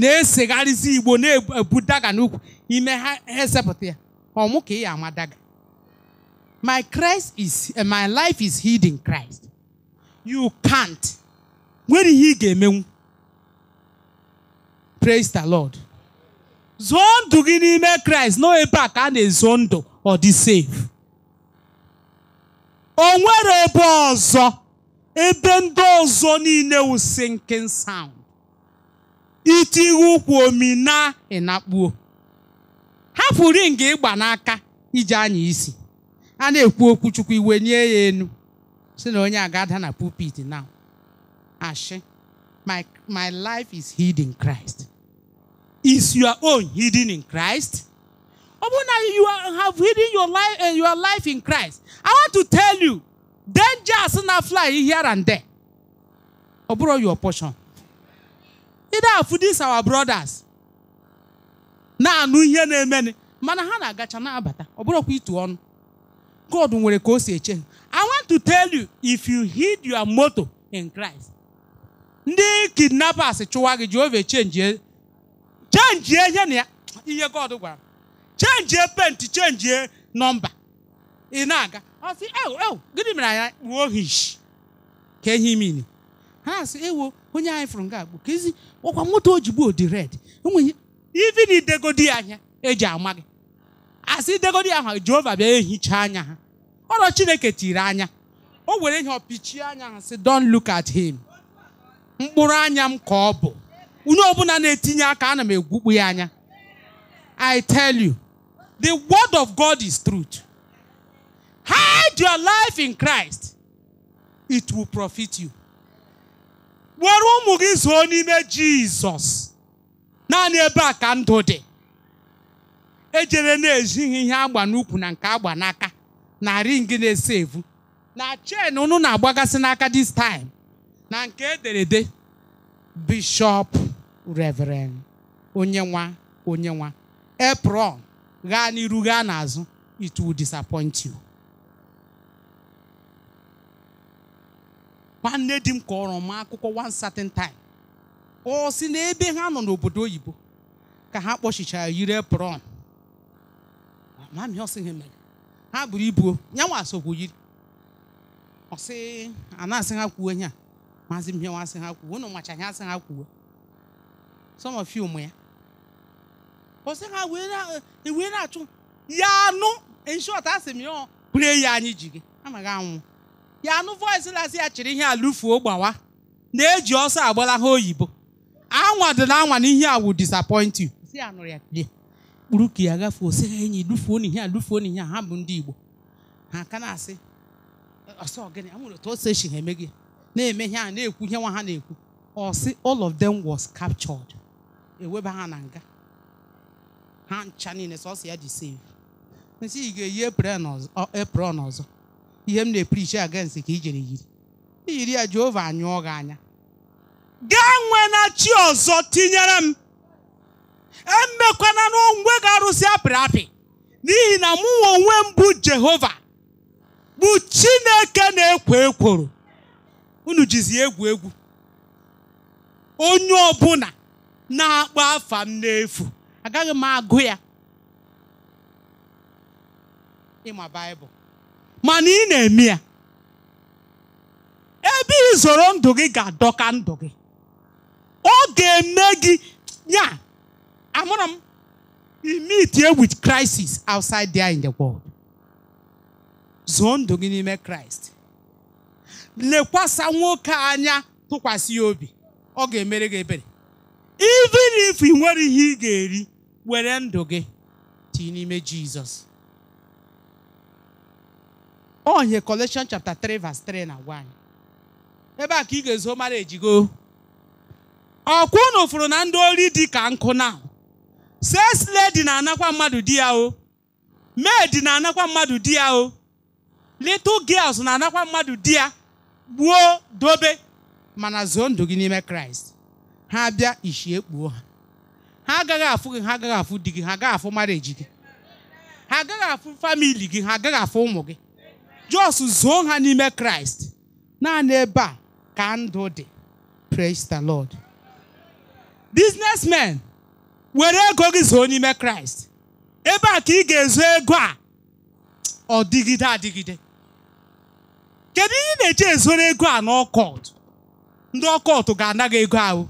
na-esegharịzi igbo na-ebu daga n'ukwu ime ha esepụta ya ọmụ ka ị ya ama daga my Christ is eh, my life is hidden Christ you can't nwere ihe ị ga-emenwu praise the Lord zụọ ndụ gị n'ime Christ nọ ebe a ka a na-ezo ndụ ọ dị safe o nwere ebe ọzọ ebe ndị ọzọ niile wụ sinking sound itighe ụkwụ na ịnakpuo hapụ ring ịgba n'aka iji anya isi a na-ekwu okwu chukwu iwe nye ya enu si na onye agada na pulpit now ashi my, my life is hidden in Christ is your own hidden in Christ Open you have hidden your life and eh, your life in Christ. I want to tell you, danger is not fly here and there. Oburo your portion. Either for this our brothers. Na anu here na-emeni. Mana agacha na-abata. Ọbụrụkwa itu on. God nwere ka o si I want to tell you, if you hid your motto in Christ, ndị kidnappers chụwa gị Jehova change change ihe na ya ihe God gwara. chenjie penti chenjie nọmba ị na-aga ọ sị ewu ewu gịnị mere anya kpuo hish ka ehi mini ha sị ewo onye anyị fụrụ nga agbo ka ezi ọkwa moto ojigbo dị red enweghị ivi na idegodi anya eji ama gị asị idegodi ahụ jehova bịa ehicha anya ha ọrọ chineke tiri anya o were ihe ọpichie anya ha sị don look at him mkpụrụ anya m ka ọ bụ onye ọbụla na-etinye aka ana m egwukpu ya anya I tell you The word of God is truth. Hide your life in Christ. It will profit you. Were ụmụ gị zoo n'ime Jizọs. Naanị ebe a ka ndụ dị. Ejere na-ejighị ihe agba n'ukwu na nke agba n'aka na ring na-ese evu. Na chen unu na-agbagasị n'aka this time. Na nke ederede Bishop Reverend Onyenwa Onyenwa Epron gaa n'iru gaa n'azụ it will disappoint you. nwanne di m kọrọ m akụkọ one certain time ọ si n'ebe ha nọ n'obodo oyibo ka ha kpọchichara yiri apron mami ọ sị ha mere ha buru ibu nyanwa sokwu yiri ọ sị anasị ha kwuo ihe a maazị mhịa asị ha kwuo unu macha ha asị ha kwuo some of you ụmụ ya Ọ pọsị ha wee na-achụ ya anụ inshọt asị m ya bụrụ ya anyị ji gị anaghị anwụ ya anụ voice na ya chịrị ihe alụfuo gbawa na-eji ọsọ agbala ha oyibo anwa dị na anwa na ihe a wụ disappoint you ya kpuru ka ya gafuo sị ha enyi lufuo na ihe a lufuo na ihe a ha bụ ndị Igbo ha aka na-asị ọsọ gịnị amụrụ otu ose chi ha eme gị na-eme ihe a na-ekwu ihe nwa ha na-ekwu ọsị all of them was captured eweba ha na nga ha ncha niile sọsọ ya ji save nsị ị ga-eyi ọzọ ihe m na-eprichi against ka i yiri iyiri ya Jehova anyụọ gị anya gaa nwe na chi ọzọ tinyere m emekwana n'onwe ga-arụsị apịrị apị n'ihi na mụ onwe m bụ Jehova bụ Chineke na-ekwo ekworo unu jizi egwu egwu onye ọbụla na-akpọ afa m n'efu agaghị m agụ ya ịma baịbụl mana ị na-eme ya ebe izoro ndụ gị ga-adọka ndụ gị ọ ga-eme gị ya amụrụ m meet here with crisis outside there in the world zoo ndụ gị n'ime kraịst lekwasa nwoke anya tụkwasị ya obi ọ ga-emere gị ebere even if ị nwere ihe ị ga-eri were ndụ gị tii n'ime jizọs onye Colossians chapter 3 verse 3 na 1 ebe a ka ị ga-ezo mara ejigo ọkwa unu fụrụ na ndị ori dị ka nkụ na sesle dị na-anakwa mmadụ di ya o maid na-anakwa mmadụ di ya o little girls na-anakwa mmadụ di ya gbuo dobe mana zoo ndụ gị n'ime kraịst ha bịa ishi ekpuo ha ha agaghị afụ gị ha agaghị afụ di gị ha agaghị afụ mareji gị ha agaghị afụ famili gị ha agaghị afụ ụmụ gị jos zoo ha n'ime kraịst naanị ebe a ka ndụ dị praise the lord businessmen were ego gị zoo n'ime kraịst ebe a ka ị ga-ezo ego a ọ dịgide adịgide kedu ihe ị na-eji ezoro ego a n'ọkọt ndị ọkọt ga-anaghị ego ahụ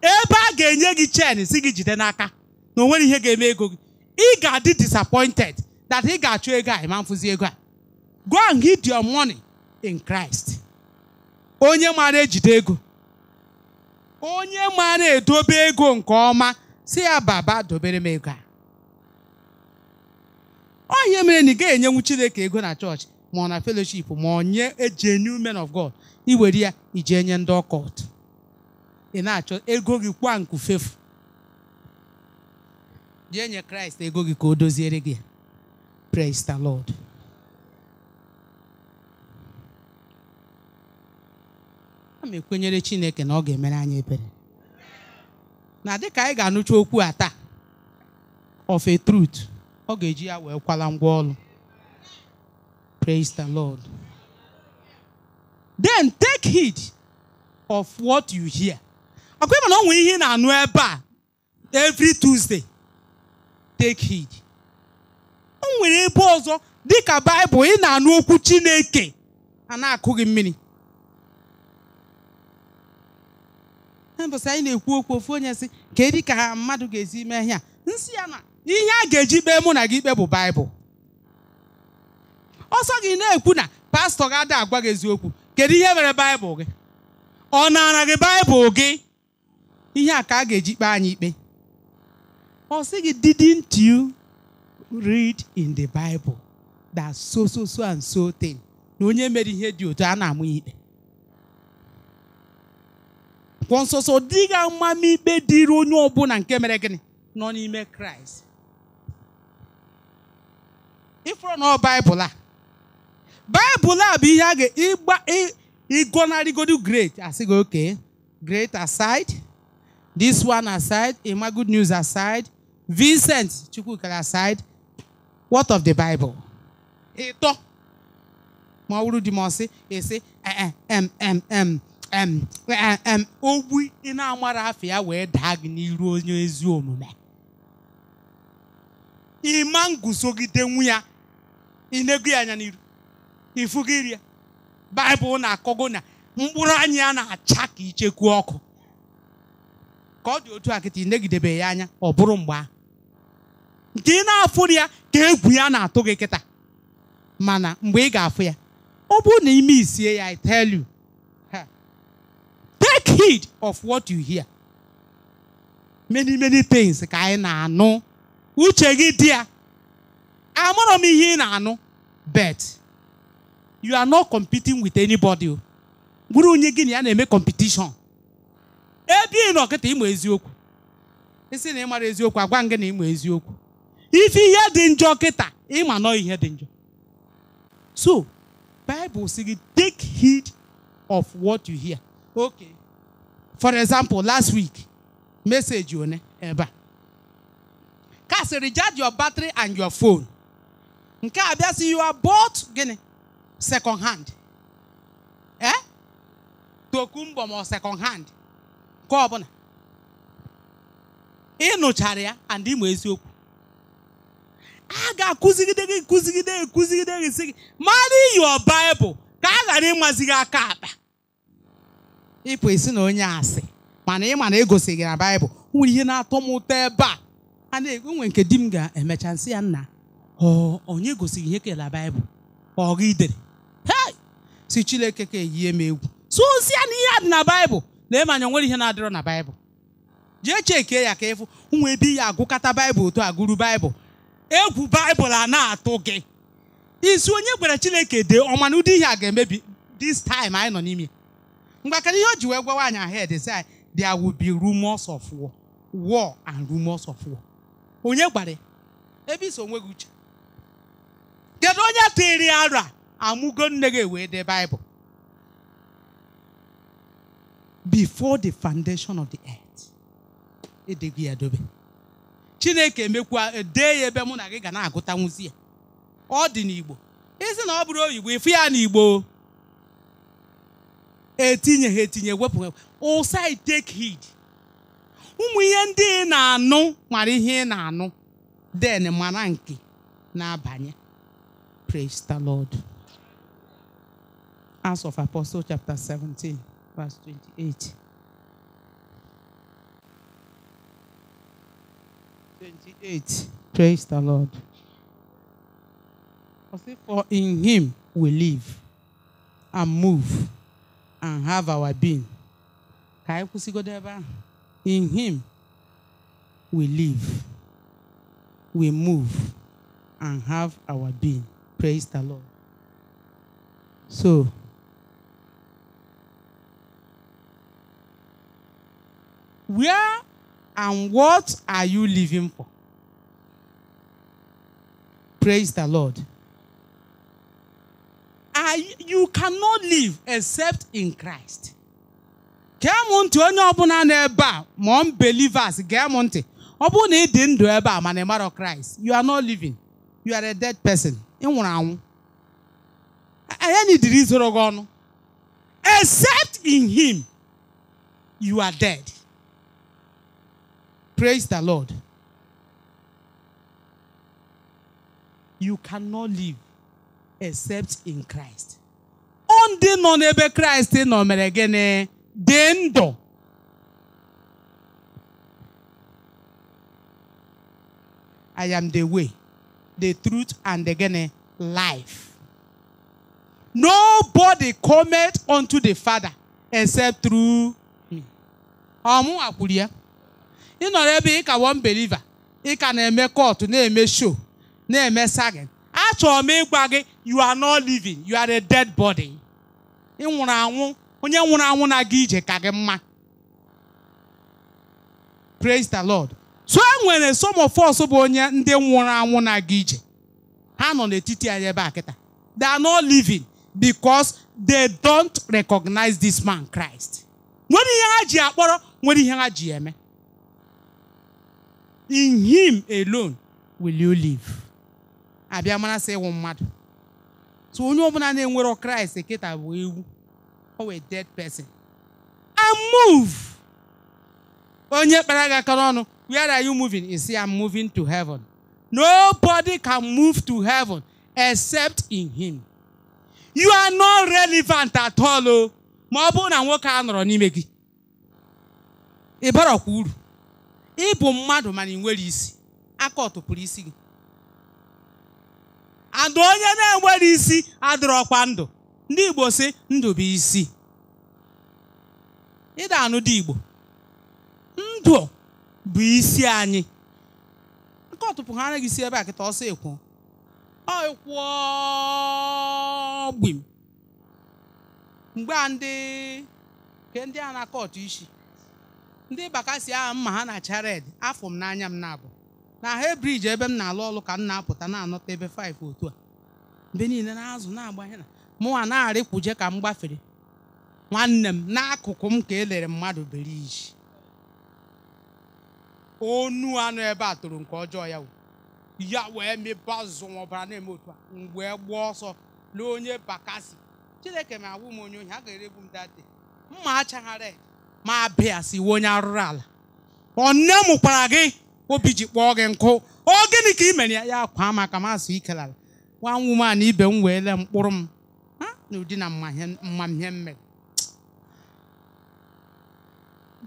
ebe a ga-enye gị chen si gị jide n'aka na onwere ihe ga-eme ego gị ị ga-adị disappointed that ị ga-achụ ego a ma mfụzi ego a go and hid your money in Christ onye maara ejide ego onye maara edobe ego nke ọma si ya baba dobere m ego a ọ mere na ị ga-enyenwu Chineke ego na chọọchị ma ọ na fellowship ma ọ nye enye men of God iwere ya iji nye ndị ọkọt ị na-achọ ego gị kwa nkufefu jee nye kraịst ego gị ka o doziere gị praise the lord a ma ekwenyere chineke na ọ ga-emere anya ebere na dịka anyị ga-anụcha okwu a taa of a truth ọ ga-eji ya wee kwala ngwa ọrụ praise the lord then take heed of what you hear ọkwa ịma na ọ nwere ihe na-anụ ebe a every Tuesday take heed o nwere ebe ọzọ dịka Baịbụl ị na-anụ okwu Chineke a na-akụ gị mmiri mbọsị anyị na-ekwu okwu ofu onye sị ka edi ka ha mmadụ ga-esi mee ihe a nsị ya na ihe a ga-eji kpee mụ na gị ikpe bụ Baịbụl ọsọ gị na-ekwu na pastọ ga adị agwa gị eziokwu kedu ihe mere Baịbụl gị ọ nara gị Baịbụl gị ihe a ka a ga-eji kpee anyị ikpe ọ sị gị didn't you read in the Bible that so so so and so thing na onye mere ihe dị otu a na-amụ ya ikpe kwọ nsọsọ dịghị ikpe dịrị onye ọbụla nke mere gịnị nọ n'ime kraịst ịfụrụ na baịbụl a baịbụl a bụ ihe a ga-ịgba ịgọnarịgodu great asị oke great aside This one aside, Emma Good News aside, Vincent Chukwuka aside, what of the Bible? Ito. Mawuru di mo si, e si, eh, eh, em, em, em, em, eh, em, em, ogbu ị na-amara afọ ya wee daa gị n'iru onye ezi omume. Ịma nguzogide nwu ya, ị na-egu ya anya n'iru, ifu gị rie. Baịbụl na-akọgo na mkpụrụ anyị a na-acha ka ọ dị otu a kịta negidebe ya anya ọ bụrụ mgbe ahụ nke ị na-afụ ya ka egwu ya na-atụ gị kịta mana mgbe ị ga-afụ ya ọ bụrụ na ime isie ya I tell you take heed of what you hear many many things ka anyị na-anụ uche gị dị ya amụrụ m ihe ị na-anụ bet you are not competing with anybody bụrụ onye gị na ya na-eme competition ebe ị nọ kịta ịma eziokwu isi na ịmara eziokwu agwa gị na ịma eziokwu ife ihe dị njọ kịta ịma nọ ihe dị njọ so Bible si gị take heed of what you hear okay for example last week message one ebe a ka recharge your battery and your phone nke a bịa si you are bought gịnị second hand eh tokumbo ma second hand nke ọbụla ị nụchara ya and ịmụ eziokwu a ga-akụzigide gị kụzigide gị kụzigide gị si gị mara iyi ọbaịbụl ka a ghara ịmazi gị aka akpa ịpụ esi na onye asị mana ị ma na egosi gị na baịbụl nwere ihe na-atọ m ụtọ ebe a a na-enwe nke di m ga-emecha nsị ya nna onye gosiri ihe kela baịbụl ọ idere." dere si Chineke ka eyie m egwu so ya na ihe a dị na baịbụl lee manya onwere ihe na-adịrọ na baịbụl jee chekee ya ka ịfụ ụmụ ebe ya agụkọta baịbụl otu agụrụ baịbụl egwu baịbụl a na-atụ gị isi onye gwara chineke dee ọma ụdị ihe a ga-emebi dis taịm anyị nọ n'ime mgbakara ihe o ji wee gwa nwaanyị ahed si anyị there will of war and rumors of war onye gbara ebe iso onwe gị uche kedu onye tiri ara amụgo nne gị wee dee baịbụl before the foundation of the earth edeghi ya dobe chineke emekwa dee ya ebe mụ na gị ga na-agụta ya ọ dị n'igbo isi na ọ bụrụ oyibo ịfụ ya n'igbo etinye ha etinye wepụ ụsa take heed ụmụ ihe ndị ị na-anụ nwara ihe ị na-anụ den mara nke na-abanye praise the lord Acts of Apostles chapter 17 verse 28. 28. Praise the Lord. For in him we live and move and have our being. In him we live, we move and have our being. Praise the Lord. So, Where and what are you living for? Praise the Lord. I, you cannot live except in Christ. ntị onye ọbụla nọ ebe a ma ntị ọ bụrụ na ị dị ndụ ebe a Christ you are not living you are a dead person ị nwụrụ anwụ anya na idiri gị ọnụ except in him you are dead Praise the Lord. You cannot live except in Christ. On the Christ nọ mere gịnị I am the way, the truth, and the gene, life. Nobody cometh unto the Father except through me. Amu akulia. nọrọ ebe ị ka won beliva ị ka na-eme kọtụ na-eme show na-eme sagin achọrọ m ịgwa gị you are not living you are a dead body ị nwụrụ anwụ onye nwụrụ anwụ na-aga ije ka gị mma praise the lord so e nwere some bụ onye ndị nwụrụ anwụ na-aga ije ha nọ n'etiti anyị ebe akịta they are not living because they don't recognize this man Christ nwere ihe ha ji akpọrọ nwere ihe ha ji eme In him alone will you live. abịa mara sị ịnwụ mmadụ so onye ọbụla na-enwero kraịst kịta bụ ewu a dead person i move onye kpara paraga aka where are you moving? You see, I'm moving to heaven. Nobody can move to heaven except in him. You are not relevant at all. Oh. Ma ọ na nwoke a nọrọ n'ime gị. ịbụ mmadụ mana ị nwere isi aka ọtụpụrụ isi gị adụ onye na-enwere isi adịrọkwa ndụ ndị Igbo si ndụ bụ isi ịda anụ dị Igbo ndụ bụ isi anyị aka ọtụpụ ha anaghị isi ebe a kịta ọsọ ekwu ọ ekwuo gbim mgbe a ndị nke ndị a na-akọ isi ndị baka ahụ mma ha na chared afọ m n'anya m na-abụ na hebriji ebe m na-alụ ọlụ ka m na-apụta na-anọta ebe 5 otu a mgbe niile na-azụ na-agbanye na mụnwa na-arịkwuje ka m gbafere nwanne m n'akụkụ m ka elere mmadụ beriji onu anụ ebe a tụrụ nke ọjọọ ya ya wee mebe azụzụ ọbara na-eme otu a mgbe gbuo ọsọ lee onye bakasi chineke ma awụ m onye ohi a ga erebu m date mma achaghara ma bịa si iwe onye arụrụ ala ọ nne mụkwara gị obi ji kpọọ gị nkụ ọ gịnị ka i mere ya ya kwaa maka mazụ ala nwa nwuman ibe m wee lee mkpụrụ m na ụdị na mmamhe mmere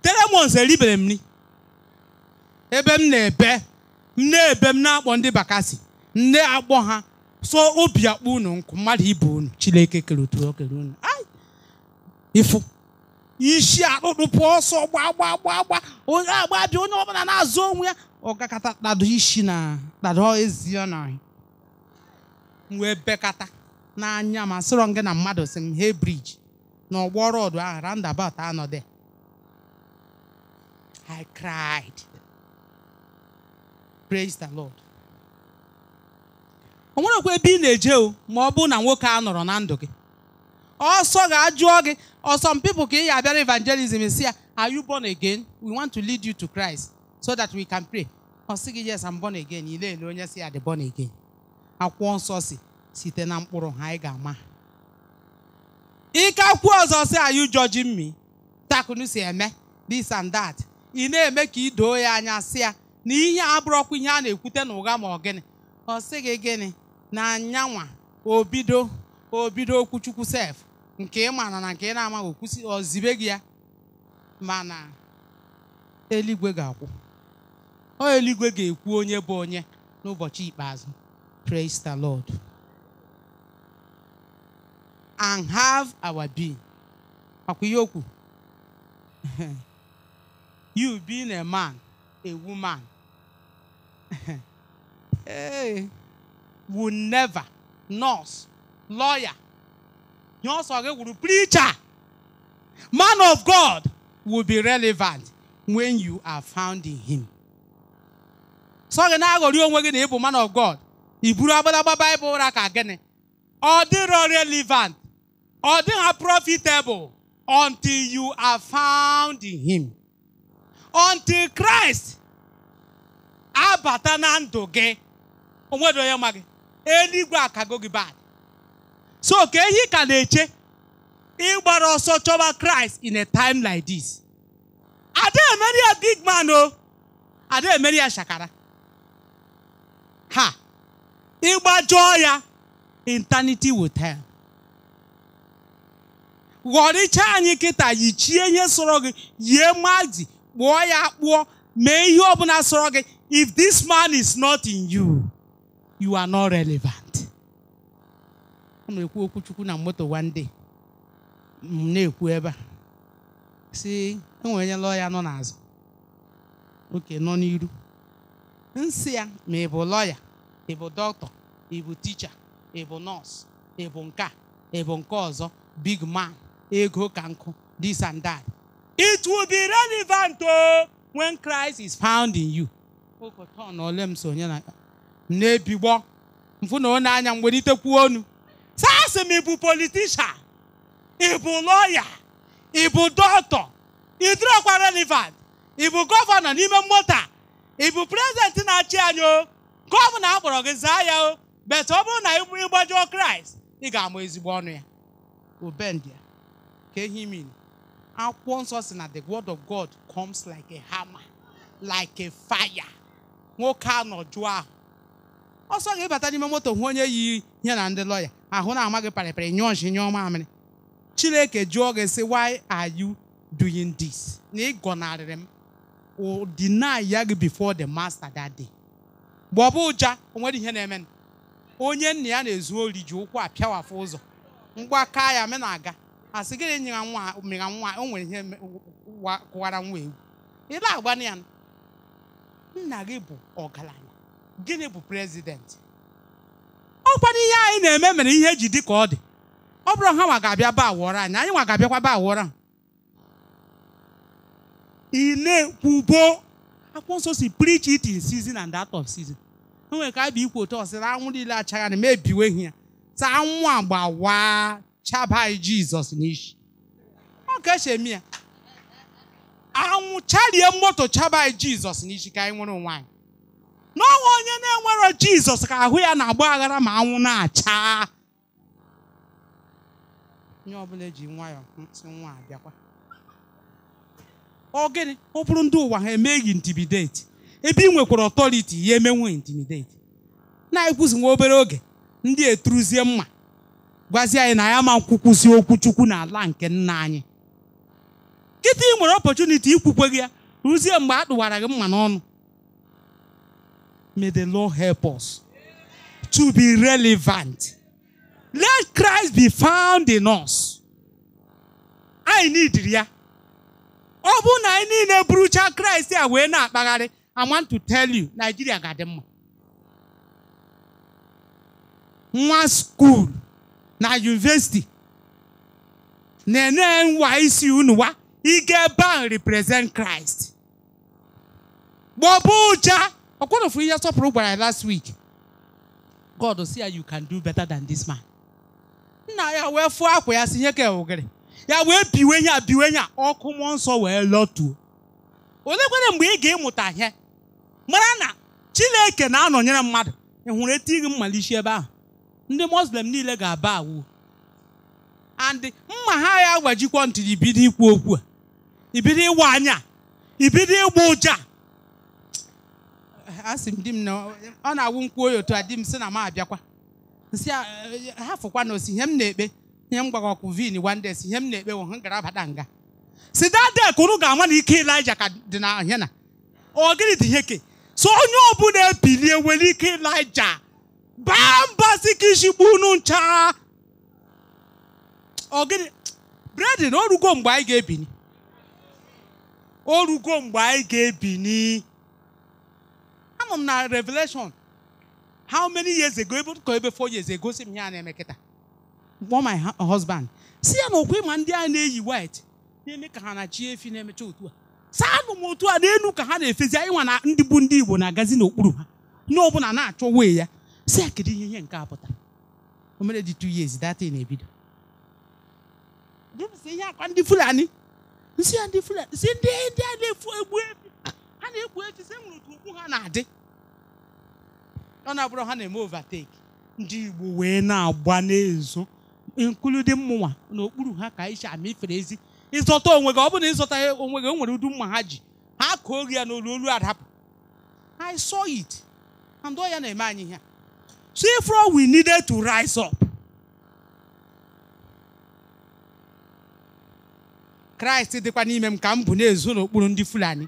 Telemons eribere m ni ebe m na-ebe m na-ebe m na-akpọ ndị bakasi nne akpọ ha so obi akpọ unu nkụ mmadụ ibe unu chileke kere otu o unu unu ifu. isi akpụkpụ pụọ ọsọ gbaa gbaa gbaa gbaa onye agba bịa onye ọbụla na-azụ onwe ya ọgakata kpado isi na kpado ezi ọ na wee bekata n'anya ma sịrọ gị na mmadụ si m he briji na ọgbọ ọdụ ahụ roundabout anọdụ I cried praise the Lord o nwerekwa ebe ị na-eje o ma ọ bụrụ na nwoke a nọrọ na ndụ gị ọsọ ga-ajụọ gị Or some people can hear about evangelism and say, Are you born again? We want to lead you to Christ so that we can pray. Or say, Yes, I'm born again. You know, you say, Are born again? Akwụkwọ nsọ si site na mkpụrụ ha anyị ga-ama ike akwụkwọ ọzọ si are you judging me takunu si eme this and that ị na-eme ka idoo ya anya si ya na ihe a bụrọkwa ihe a na-ekwute na ma ọ gịnị ọ sị gị gịnị na anyanwa obido obido okwuchukwu sef nke ị mana na nke ị na-amaghị okwụsị ọ zibe gị ya mana eluigwe ga-akwụ ọ eluigwe ga-ekwu onye bụ onye n'ụbọchị ikpeazụ praise the lord and have our being makwa ihe okwu *laughs* you being a man a woman *laughs* hey, will never nurse lawyer preacher. Man of God will be relevant when you are found in him. So gị na-aghọrị onwe gị go aghori onwe gi ibu man of God i buru agbadagba Bible ụra ka gịnị ọ relevant ọ dịghị profitable until you are found in him until Christ abata na ndụ gị onwedo onye ma gị eluigwe go gị bad so ka ehi ka na-eche ịgbara ọsọ chọba kraịst in a time like this ada emeri ya big man o ada emeri shakara ha ịgbajọọ ya eternity will tell ghọrịcha anyị kịta yichie ihe sọrọ gị yie mazi kpụọ ya kpụọ mee ihe ọbụla sọrọ gị if this man is not in you you are not relevant. ọ na-ekwu okwuchukwu na moto wande m na-ekwu ebe a si enwere onye lọya nọ n'azụ oke nọ n'iru nsị ya ma ị bụ lọya ị bụ dọkịta ị bụ ticha ị bụ nọọsụ ị bụ nke ị bụ nke ọzọ big man ego ka nkụ this and that it will be relevant o when Christ is found in you ụkọtọ na ole m sonye na m na-ebigbọ mfụ na ọ na-anya mgbe ite kwuo onu saa sị m ịbụ politishan ịbụ lọya ịbụ dọkịta ịdịrọkwa relevant ịbụ gọvanọ n'ime moto ịbụ prezidenti na-achị anyị o gọvanọ akpọrọ gị zaa o bet ọ bụrụ na ịgbajuo kraịst ị ga-amụ ezigbo ọnụ ya obendia ka ehi min akwụkwọ nsọ si na the word of god comes like a hammer like a nwoke anọ jụọ ahụ ọsọ ga-ebata n'ime moto hụ onye yi ihe na ndị lọya ahụ na-ama gị parịparị nyụọ nshi chineke jụọ gị sị why are you doing this na ị gọnarịrị m o deny ya gị before the master that day mgbe ọ bụ ụja o nwere ihe na-eme onye nna ya na-ezu ori ji ụkwụ apịawafụ ụzọ ngwa ka ya me na-aga asị gịnị nyera nwa mịra nwa o nwere ihe kụwara nwa ewu ị na ya nna gị bụ ọgaranya gịnị bụ prezidenti ọkwado ihe anyị na-eme mere ihe e ji dị ka ọ dị ọ bụrụ ha nwa ga-abịa ba awọrọ anyị anyị nwa ga-abịakwa ba awọrọ ị na-ekwubo akwụkwọ nsọ si preach it in season and out of season o nwere ka a bụ ikwu otu ọsịra anwụ niile achagha na mebiwe ihe ya taa anwụ agba waa jizọs n'ishi. ọ ka esi ya anwụ charie moto chaba jizọs n'ishi ka anyị nwere onwe anyị n'ọnwa onye na-enwero jizọs ka ahụ ya na-agba aghara ma anwụ na-acha onye ọbụla eji nwayọọ ntị nwa abịakwa ọ gịnị ọ bụrụ ndị ụwa ha emeghị intimidate ebe ị nwekwara ọtọriti ya emenwe intimidate na-ekwuzi nwa obere oge ndị eturuzie mma gwazie anyị na ya ma nkwukwuzi okwu chukwu n'ala nke nna anyị kịta ị nwere ọpọchuniti ikwukwe gị ya ruzie mgbe a tụwara gị mma n'ọnụ May the Lord help us to be relevant. Let Christ be found in us. I need ya. ọ na anyị niile burucha kraịst a wee na-akpagharị i want to tell you Nigeria ga-adị mma nwa skuul na yunivesiti na-enye nwa isi unu wa ike ban represent kraịst gbọbụ ụcha ọkpọrọfu ihe sọpụrụ gbara ya last week god oh, see ya you can do better than this man nna ya wee fụọ akwa ya si nye ka ogiri ya wee biwe ihe biwe ihe a ọkụ mụọ nsọ wee lọtuo olekwere mgbe ị ga-ịmụta ihe mara na chineke na-anọnyere mmadụ ị hụrụ etinye gị mmalichi ebe ahụ ndị muslim niile ga-aba awụ and mma ha ya agbajikwa ntị ibido ikwu okwu a ibido ịwa anya ibido ịgba ụja asị m di m na ọ na-awụ nkwuo ya otu a di m sị na m abịakwa si e, ha fụkwa na osi ihe m na-ekpe ihe m gbara ọkụ vin wande si ihe m na-ekpe wụ ha gara abata nga si dade kụrụ ga-ama na ike Ịlaịja ka dị na ahịa na ọ gịnị dị ihe ke so onye ọbụla ebilie nwere ike Ịlaịja baa mba si ka ishikpu unu ncha ọ gịnị bredin orugo mgbe anyị ga-ebini orugo mgbe anyị ga-ebini anọ m na revelation how many years ago ebe ka ebe four years ago si m ya na one my husband si ya na okwe ma ndị a na-eyi white na-eme ka ha na-achị efi na-emecha otu a saa anụ m otu a n'elu ka ha na-efezi ịnwa na ndị bụ ndị Igbo na-agazi n'okpuru ha n'ọbụla na-achọ wee ya si kedu ihe nke a pụta o mere dị years na ihe akwa ndị Fulani ndị Fulani ndị a na ha na-ekwu echi sị m nụrụ ka ukwu ha na-adị ọ na-abụrụ ha na-eme overtake ndị Igbo wee na-agba n'ezo inkluding mụnwa n'okpuru ha ka ama ifere ezi ịzọta onwe gị ọ bụrụ na ịzọta onwe gị o nwere udu mma ha ji ha kụọ gị ya n'olu olu adapụ I saw it and ọ ya na-eme anyị ihe so therefore we needed to rise up Kraịst dịkwa n'ime m ka m bụ na-ezo n'okpuru ndị Fulani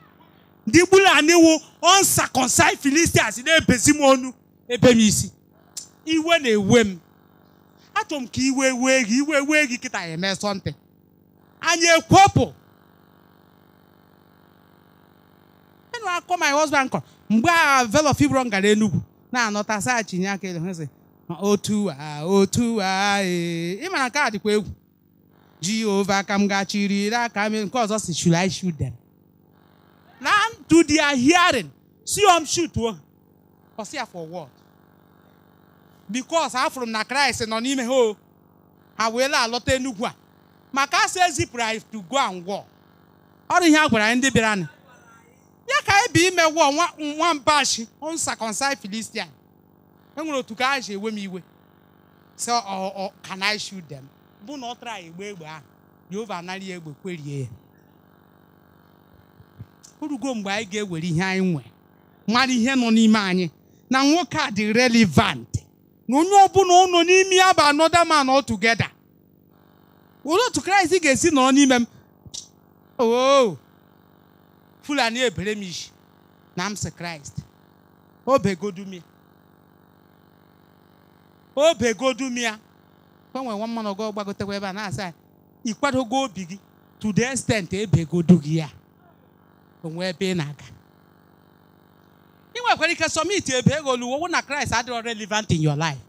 ndị Fulani wụ uncircumcised Philistines na-ebezi m ọnụ ebe m isi iwe na-ewe m achọrọ m ka iwe wee gị iwe wee gị kịta eme sọntị anyị ekwepụ enụ akọ my husband kọ mgbe a velo fibron gara Enugu na-anọta saachinye aka ele otu a otu a ee ịmara nke a dịkwa egwu Jehova ka m ga-achịrị aka m nke ọzọ si should I shoot them na to their hearing si om shutuo ọsị ya for what because afụrụ m na Christ nọ n'ime ha ha wee alọta Enugu a maka asị ezipụrụ anyị to go and war ọrụ ihe a gwara anyị ndị bịara nụ ya ka anyị bi ime wụọ nwambashi uncircumcised Philistine enwere otu ka anyị ji ewe m iwe so oh, oh, can I shoot them bụ ah. na ọ tara egbe egbe ahụ Jehova anara ya egbe kwerie orugo mgbe anyị ga-ewere ihe anyị nwere mara ihe nọ n'ime anyị na nwoke a dị relevant na onye ọbụla ụnọ n'ime ya bụ anọda man all together olee otu kraịst ga-esi nọrọ n'ime m oh! fulani ebere m isi na m si kraịst obegodumia obegodumia gbanwe nwa mmanụ gị gbagotekwa ebe a na-asa ikwadogo obi gị to the extent ebegodu gị ya o nwee ebe ị na-aga ị nwekwara ike sọmiti ebe ego luwo na kraịst adịrọ relevant in your life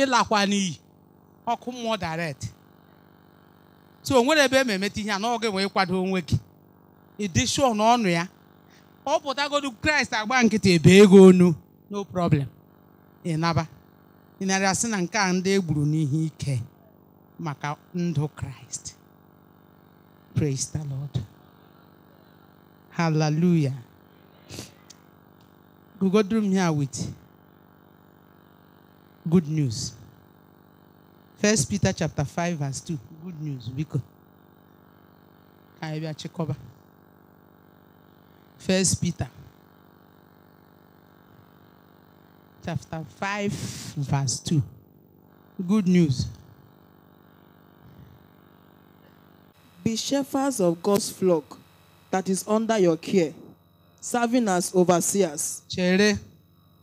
ịlakwa n'iyi ọkụ mmụọ direct so o nwere ebe e ma emeta ihe a na oge wee kwado onwe gị ịdị shuo na ọnụ ya ọ pụtagodu kraịst agba nkịtị ebe ego onu no problem ịnaba ịnarị asị na nke a ndị e gburu n'ihe ike maka ndụ kraịst praise the lord Hallelujah. We go through here with good news. First Peter chapter 5, verse 2. Good news. check over? First Peter chapter 5, verse 2. Good news.
Be shepherds of God's flock that is under your care, serving as overseers. Chere,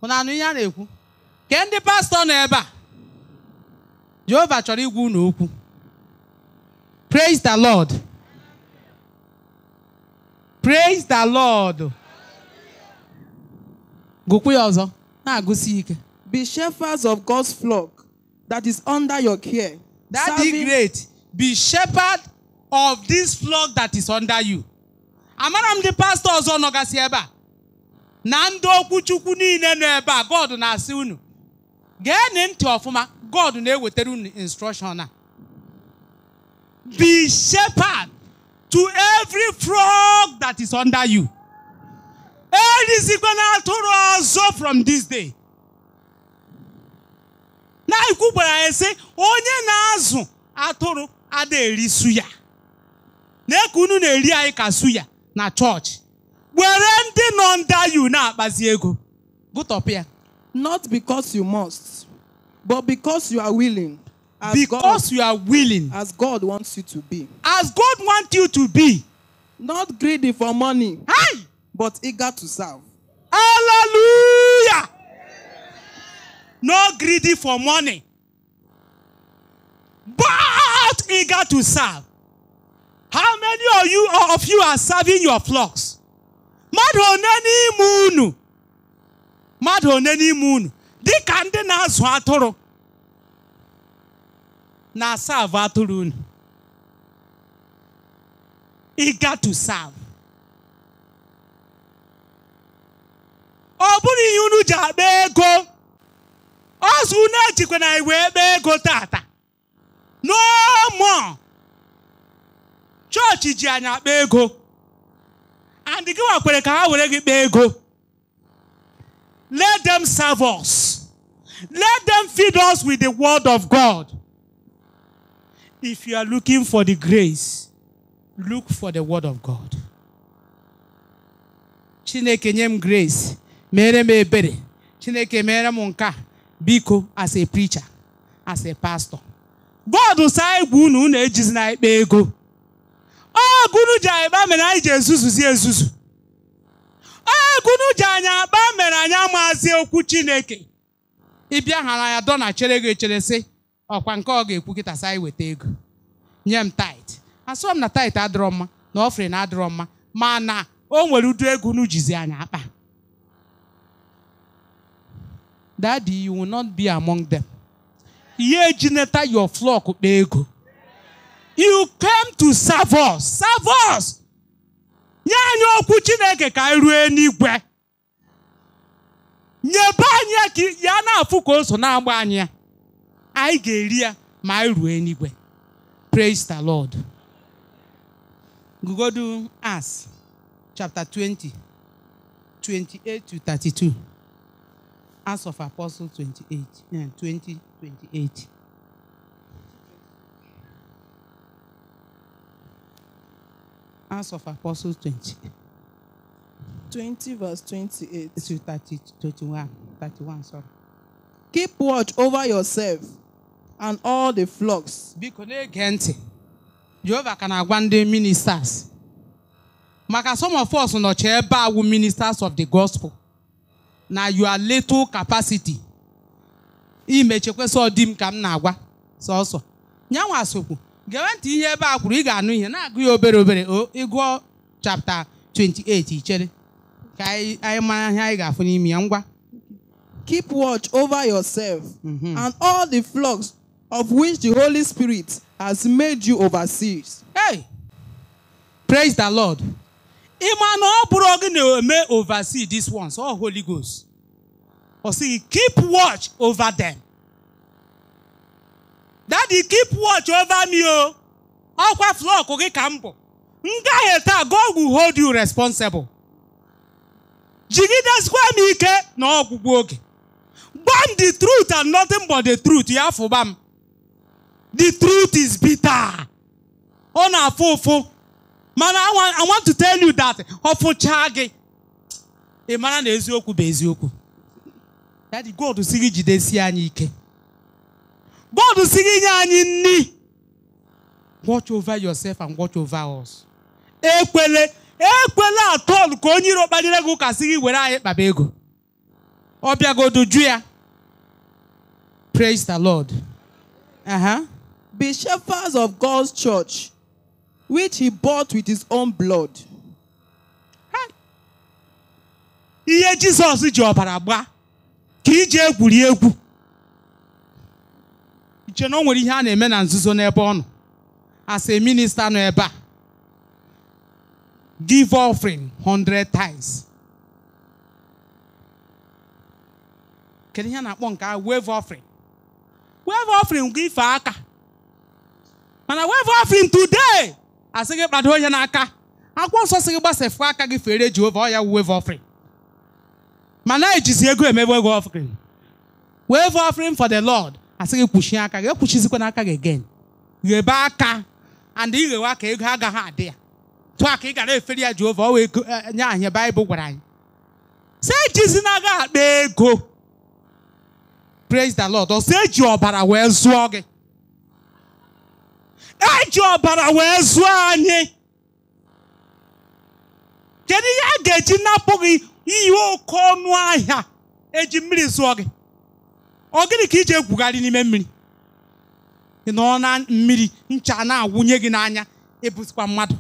unu anụ
ihe a na-ekwu? Ke ndị pastọ nọ ebe a? Jehova chọrọ igwu unu okwu. Praise the Lord. Praise the Lord. Gụkwu ya ọzọ, na-agụsi ike. Be shepherds of God's flock that is under your care. That is great. Be shepherd of this flock that is under you. amara m ndị pastọ ọzọ nọgasị ebe a na ndị okwuchukwu niile nọ ebe a God na-asị unu geenị ntị ọfụma God na-ewetara unu instruction a be shepherd to every frog that is under you na atụrụ ọzọ from this day na ikwu gwara ya sị onye na-azụ atụrụ ada erisu ya na-eke unu na-eri anyị ka su ya na church, were ndị nọ under you na-akpazi ego top here. not because you must but because you are willing as because God, you are willing as God wants you to be as God wants you to be not greedy for money hey! but eager to serve hallelujah Not greedy for money but eager to serve How many of you of you are serving your flocks? Mmadụ one n'ime unu mmadụ one n'ime unu dịka ndị na-azụ atụrụ na serve atụrụ unu ị ga to serve. Ọ bụrụ ihe unu ji akpa ego ọzọ na ejikwa na iwe ebe ego tata no more chọọchị ji anyị akpa ego and gị wakwere ka ha were gị kpaa ego let them serve us let them feed us with the word of God if you are looking for the grace look for the word of God Chineke nye m grace mere m ebere Chineke mere m nke biko as a preacher as a pastor God sị anyị gwa unu unu ejizi na ikpe ego ọ gụnụ ji anyị ba mere anyị ji ezuzuzi ezuzu ọ gụnụ ji anyị agba mere anyị amazi okwu chineke ịbịa hara ya dọ chere gị echere sị ọkwa nke ọ ga-ekwu kịta sa anyị weta ego nye m tait asọ m na tait adịrọ mma na ọfrị na adịrọ mma mana o nwere udu ego n'ujizi anyị akpa daddy you will not be among them ihe ejineta your flock kpa ego you came to serve us serve us nye anyị okwu chineke ka anyị ruo n'igwe nyebe anyị ka ya na-afụ ka o so na-agba anyị ya anyị ga-eri ya ma anyị ruo n'igwe praise the lord gugodu as chapter 20 28 to 32 Acts of Apostles 28 20 28 Acts of Apostles 20. 20 verse 28 31, sorry. Keep watch over yourself and all the flocks. Biko na-ege ntị. Jehova ka na-agwa ndị ministers. Maka some of us nọchi ebe ministers of the gospel. Na you are little capacity. imechekweso ọdịm ka m na-agwa so, Nyanwa Asokwu gewe ntị ihe ebe a kwuru ị ga-anụ ihe na-agụ ya obere obere ịgụọ chapta 28 ichere ka anyị mara ihe anyị ga-afụ n'ime ya ngwa
keep watch over yourself mhm. and all the flocks of which the Holy Spirit has made you overseers. Hey! Praise the Lord.
Ịma na ọ bụrụ gị na-eme oversee this ones, all Holy Ghost. Ọ sị, keep watch over them. dadi keep watch over me o oh. ọkwa flọk gị ka m bụ m taa God will hold you responsible jigideskwa m ike na ọgwụgwụ oge gbam the truth and nothing but the truth ya fụba m the truth is bitter ọ na-afụ ụfụ mana I want to tell you that ofucha gị ị mara na eziokwu bụ eziokwu Daddy God si gị jidesie anyị ike God si gị nye anyị nni watch over yourself and watch over us ekwele ekwele atọl ka onye iro kpalire gị ụka sị gị were anyị kpaba ego ọ bịagodu ju ya praise the lord uh-huh. be shepherds of God's church which he bought with his own blood ihe Jizọs ji ọbara gbaa ka iji egwuri egwu nche na o nwere ihe a na-eme na nzuzo n'ebe ọ nọ as a minister nọ ebe a give offering 100 times kedu ihe a na-akpọ nke a wave offering wave offering gị ife aka mana wave offering today asị gị kpado onye n'aka akwụkwọ nsọ sị gị gbasefu aka gị fere Jehova ọ ya wave offering mana ejizi ego emebe wave offering wave offering for the Lord asị gị kwuchie aka gị ekwuchizikwana n'aka gị again ghebe aka and ighewe aka ego agaghị adị ya tụọ aka ị gara efere ya Jehova ọ wee nye anyị Baịbụl gwara anyị si eji na agaghị akpa ego praise the Lord ọsọ eji ọbara wee zụọ gị eji ọbara wee zụọ anyị kedu ihe a ga-eji napụ gị ihe oke ọnụ ahịa eji mmiri zụọ gị ọ gịnị ka iji egwugharị n'ime mmiri ị nọ na mmiri ncha na-awụnye gị n'anya ebusikwa mmadụ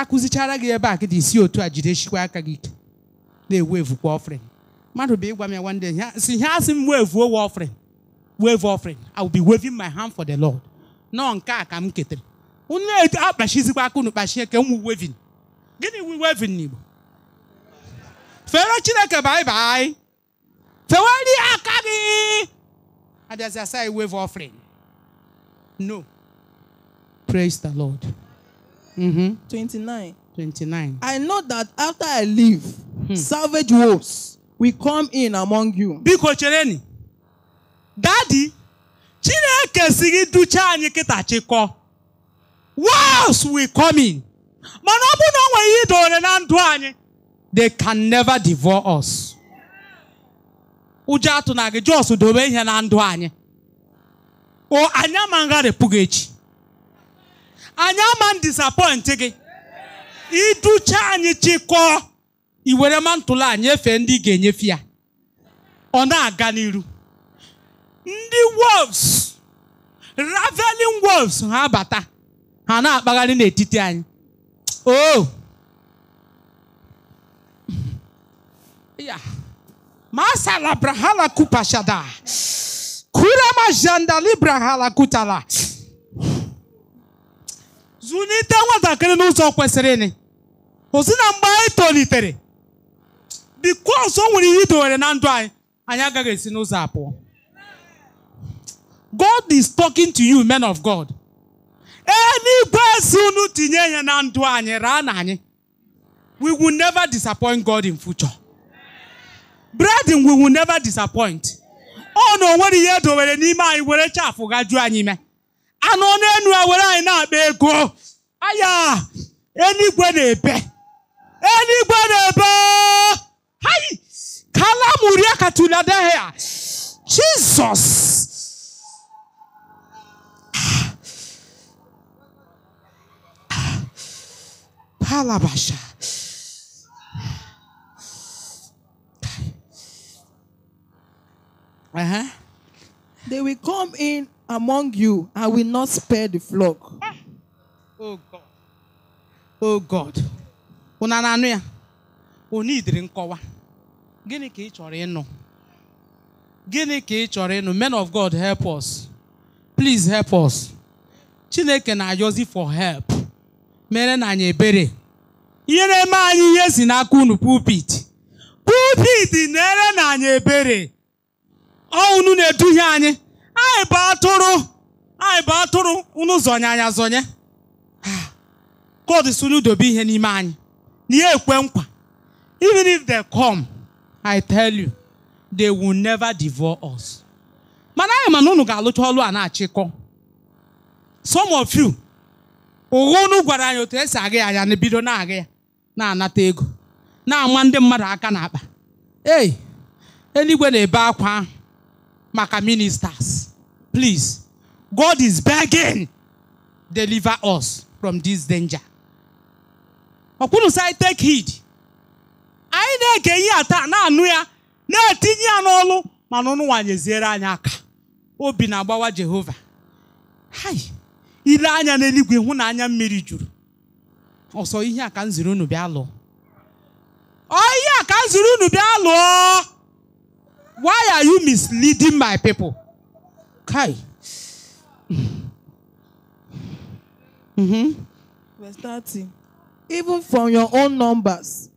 akụzichara gị ebe a gị dị isi otu a jideshikwa aka gị ike na-ewu evukwa ọfrịn mmadụ bụ ịgwa m ya nwanne ya si ha asị m weevu wa ọfrịn wave offering i will be waving my hand for the lord nọọ nke a ka m ketere unu akpachizikwa aka unu kpachie ka m waving gịnị wu waving n'igbo fere chineke baịbaị Tewari Akagi. And there's a side wave offering. No. Praise the Lord. Mm-hmm. 29. 29. I know
that after I leave, hmm. savage wolves will come in among
you. Biko chereni. Daddy, Chineke sigi gị duchaa anyị kịta chịkọ. Wolves will come in. Mana ọ bụ na o nwere ihe idowere na ndụ anyị. They can never devour us. ụjọ atụ na gị jọs dobe ihe na ndụ anyị o anyị ama gị echi anyị ama m gị iducha anyị chịkọọ iwere mantụlụ anyị efe ndị ga-enyefe ya ọ na-aga n'iru ndị wolves raveling wolves ha bata ha na-akpagharị n'etiti anyị o oh. *laughs* masala brahala kupashada kurama jandali brahala kutala zụlite nwatakịrị n'ụzọ kwesịrị ozi na mgbe anyị tolitere bikos o nwere ihe idowere na ndụ anyị anyị agaghị esi n'ụzọ abụọ God is talking to you men of God e, n'igwe esi unu tinye ya na ndụ anyị raa na anyị we will never disappoint God in future bredin we will never disappoint ọ na onwere ihe edowere n'ime anyị were chafụ gajuo anyị ime anụ n'enu a were anyị na-akpa ego aya enigwe na-ebe Enigwe na-ebe hai kalamuria katuladehia jizọs palabasha
Uh-huh. They will come in among you and will not spare the flock. Oh God. Oh God.
Una anụ ya? Onye idiri nkọwa. Gịnị ka ị chọrọ ịnụ? Gịnị ka ị chọrọ ịnụ? Men of God help us. Please help us. Chineke na-ayọzi for help. Mere na anyị ebere. nyere m anyị ihe si n'aka unu pulpit. Pulpit na-ere na anyị ebere. ọ na-eduhie anyị anyị bụ atụrụ anyị bụ atụrụ unu zọnye anya zọnye ah. God sunu dobe ihe n'ime anyị na ihe ekwe nkwa even if they come I tell you they will never devour us mana anyị mana unu ga-alụcha ọlụ a na-achịkọ some of you ụgha unu gwara anyị otu esi aga ya anya na bido na-agha ya na-anata ego na-ama ndị mmadụ aka n'akpa ei eluigwe na-ebe akwa ahụ maka ministers. Please, God is begging, deliver us from this danger. Ọkwụrụ sị take heed. Anyị na-ege ihe ata na-anụ ya na-etinye ya n'ọlụ mana ọnụnwa nyeziere anyị aka. Obi na-agbawa Jehova. Hai, ile anya n'eluigwe hụ na anya mmiri juru. Ọsọ ihe a ka m unu bịa lụọ. Ọ ihe unu bịa lụọ. Why are you misleading my people? Kai.
Mm-hmm. Verse 30. Even from your own numbers,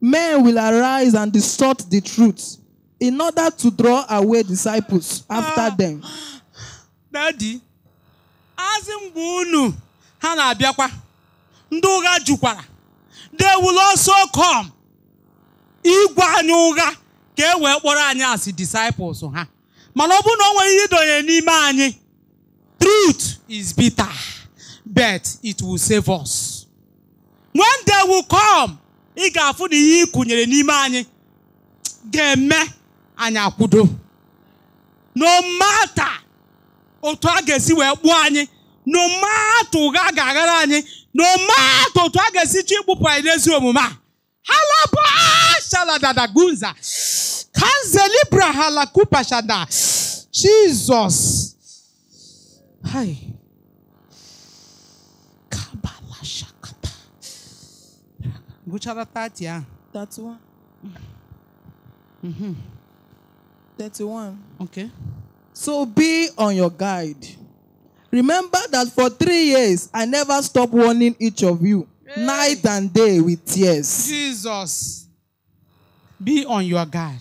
men will arise and distort the truth in order to draw away disciples after uh, them. *gasps*
Daddy, asị mgbe unu ha na-abịakwa, jukwara, they will also come ịgwa anyị ka e wee kpọrọ anyị asị disciples ha mana ọ bụrụ na ọ nwere ihe idonye n'ime anyị truth is bitter but it will save us when they will come ị ga-afụ na ihe ị n'ime anyị ga-eme anyị akwụdo. no matter otu a ga-esi wee kpụọ anyị no matter ụgha ga-aghara anyị no matter otu a ga-esi chi ịkpụpụ anyị n'ezi omume a halabụ shaladadagunza Kanzelibra halakupashada. Jesus. Hi. Kabala shakata. Buchara 30, yeah. 31. Mm-hmm.
31.
Okay. So be on your guard. Remember
that for three years I never stopped warning each of you, hey. night and day with tears.
Jesus, be on your guard.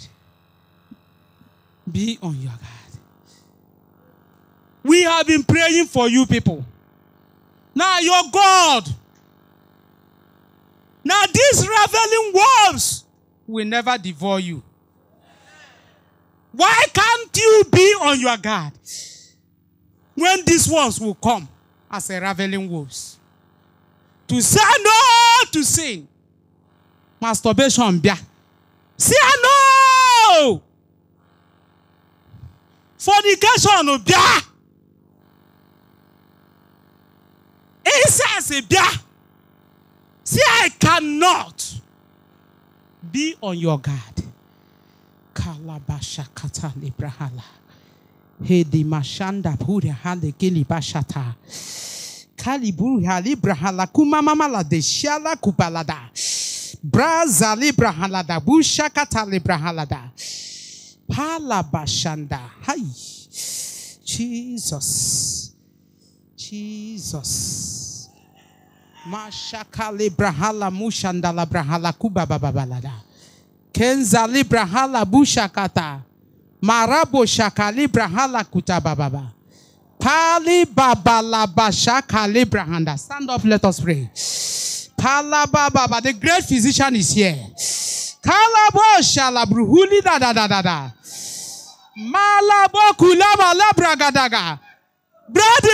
Be on your guard. We have been praying for you people. Now your God. Now these ravening wolves will never devour you. Why can't you be on your guard when these wolves will come as a ravening wolves? To say no to sin. Masturbation, See, I know fornication bịa incest bịa see I cannot be on your guard kalabashakata librahala hedi mashanda pura hale kilibashata kaliburu halibrahala kumamamala deshala kupalada. braza librahalada bushakata da. palabashanda Jesus, Jesus. Jesus. Mashakale brahala mushandala brahala kuba bababalada. Kenza librahala bushakata. Marabo shakali brahala Baba, Pali babalabashakali brahanda. Stand up, let us pray. Baba. the great physician is here. Kalabo shalabruhuli da da da da da. Brother,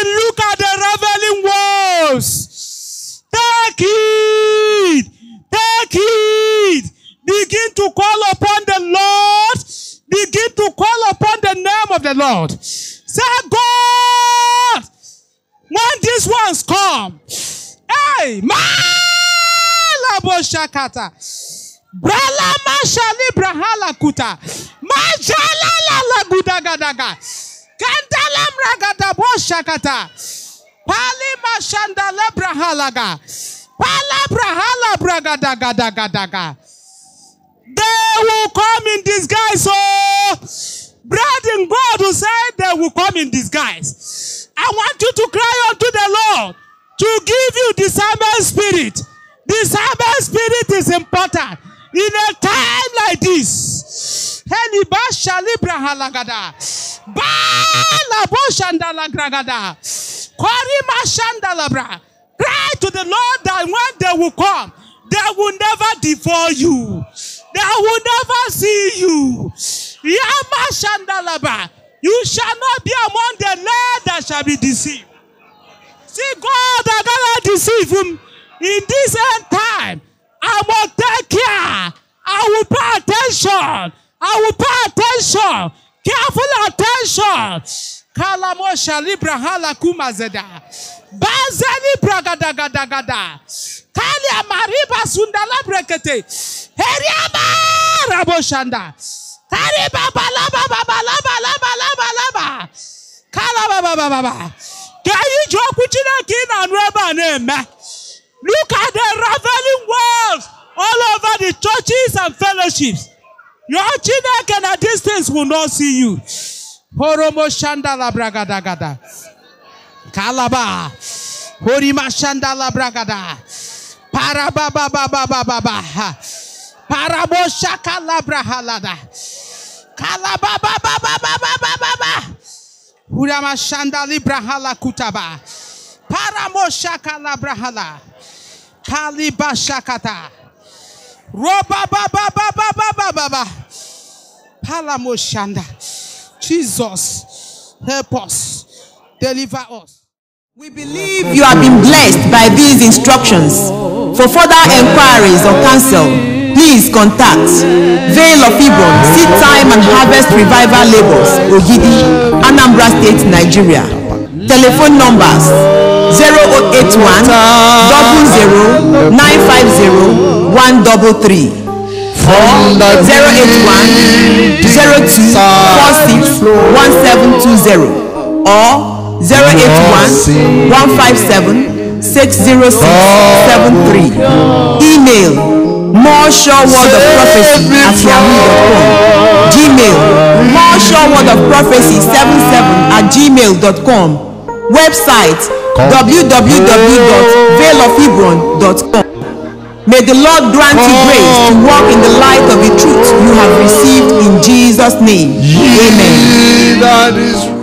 look at the revealing walls. Take it. Take it. Begin to call upon the Lord. Begin to call upon the name of the Lord. Say, God, when these ones come, hey, Malaboshakata. Brala mashali brahala kuta. Majala la la gudagadaga. Kandalam ragada boshakata. Pali mashandala brahalaga. Pala brahala bragadagadagadaga. They will come in disguise, so oh. bread and God will say they will come in disguise. I want you to cry unto the Lord to give you discernment spirit. Discernment spirit is important. in a time like this. Eliba shalibra halagada. Ba labo shandala gragada. Korima shandalabra. Cry to the Lord that when they will come, they will never devour you. They will never see you. Yama shandalaba. You shall not be among the land that shall be deceived. See, God that cannot deceive him in this end time. I will take care. I will pay attention. I will pay attention. Careful attention. Kalamosha libra halakuma zeda. gada gada. Kalia mariba sundala brekete. Heriaba raboshanda. Kariba balaba balaba laba laba laba. Kalaba baba baba. Can you joke with you like in and rubber name? Look at the raveling walls all over the churches and fellowships. Your children can at distance will not see you. Horomo shandala bragadagada. Kalaba. Horima shandala bragada. Parababababababa. Parabo shakala brahalada. Kalabababababababa. Hurama shandali brahala kutaba. Paramo shakala brahala. Kalibashakata. Roba ba ba ba ba ba ba ba, baba. Palamoshanda. Jesus, help us. Deliver us.
We believe you have been blessed by these instructions. For further inquiries or counsel, please contact Vale of Ibon, Seed Time and Harvest Revival Labels, Ogidi, Anambra State, Nigeria. Telephone numbers 0881 or 081 02 or 081 157 60673. Email more sure word of prophecy at yahoo.com gmail more sure word of prophecy 77 at gmail.com website www.veilofhebron.com. May the Lord grant you grace to walk in the light of the truth you have received in Jesus' name.
Amen.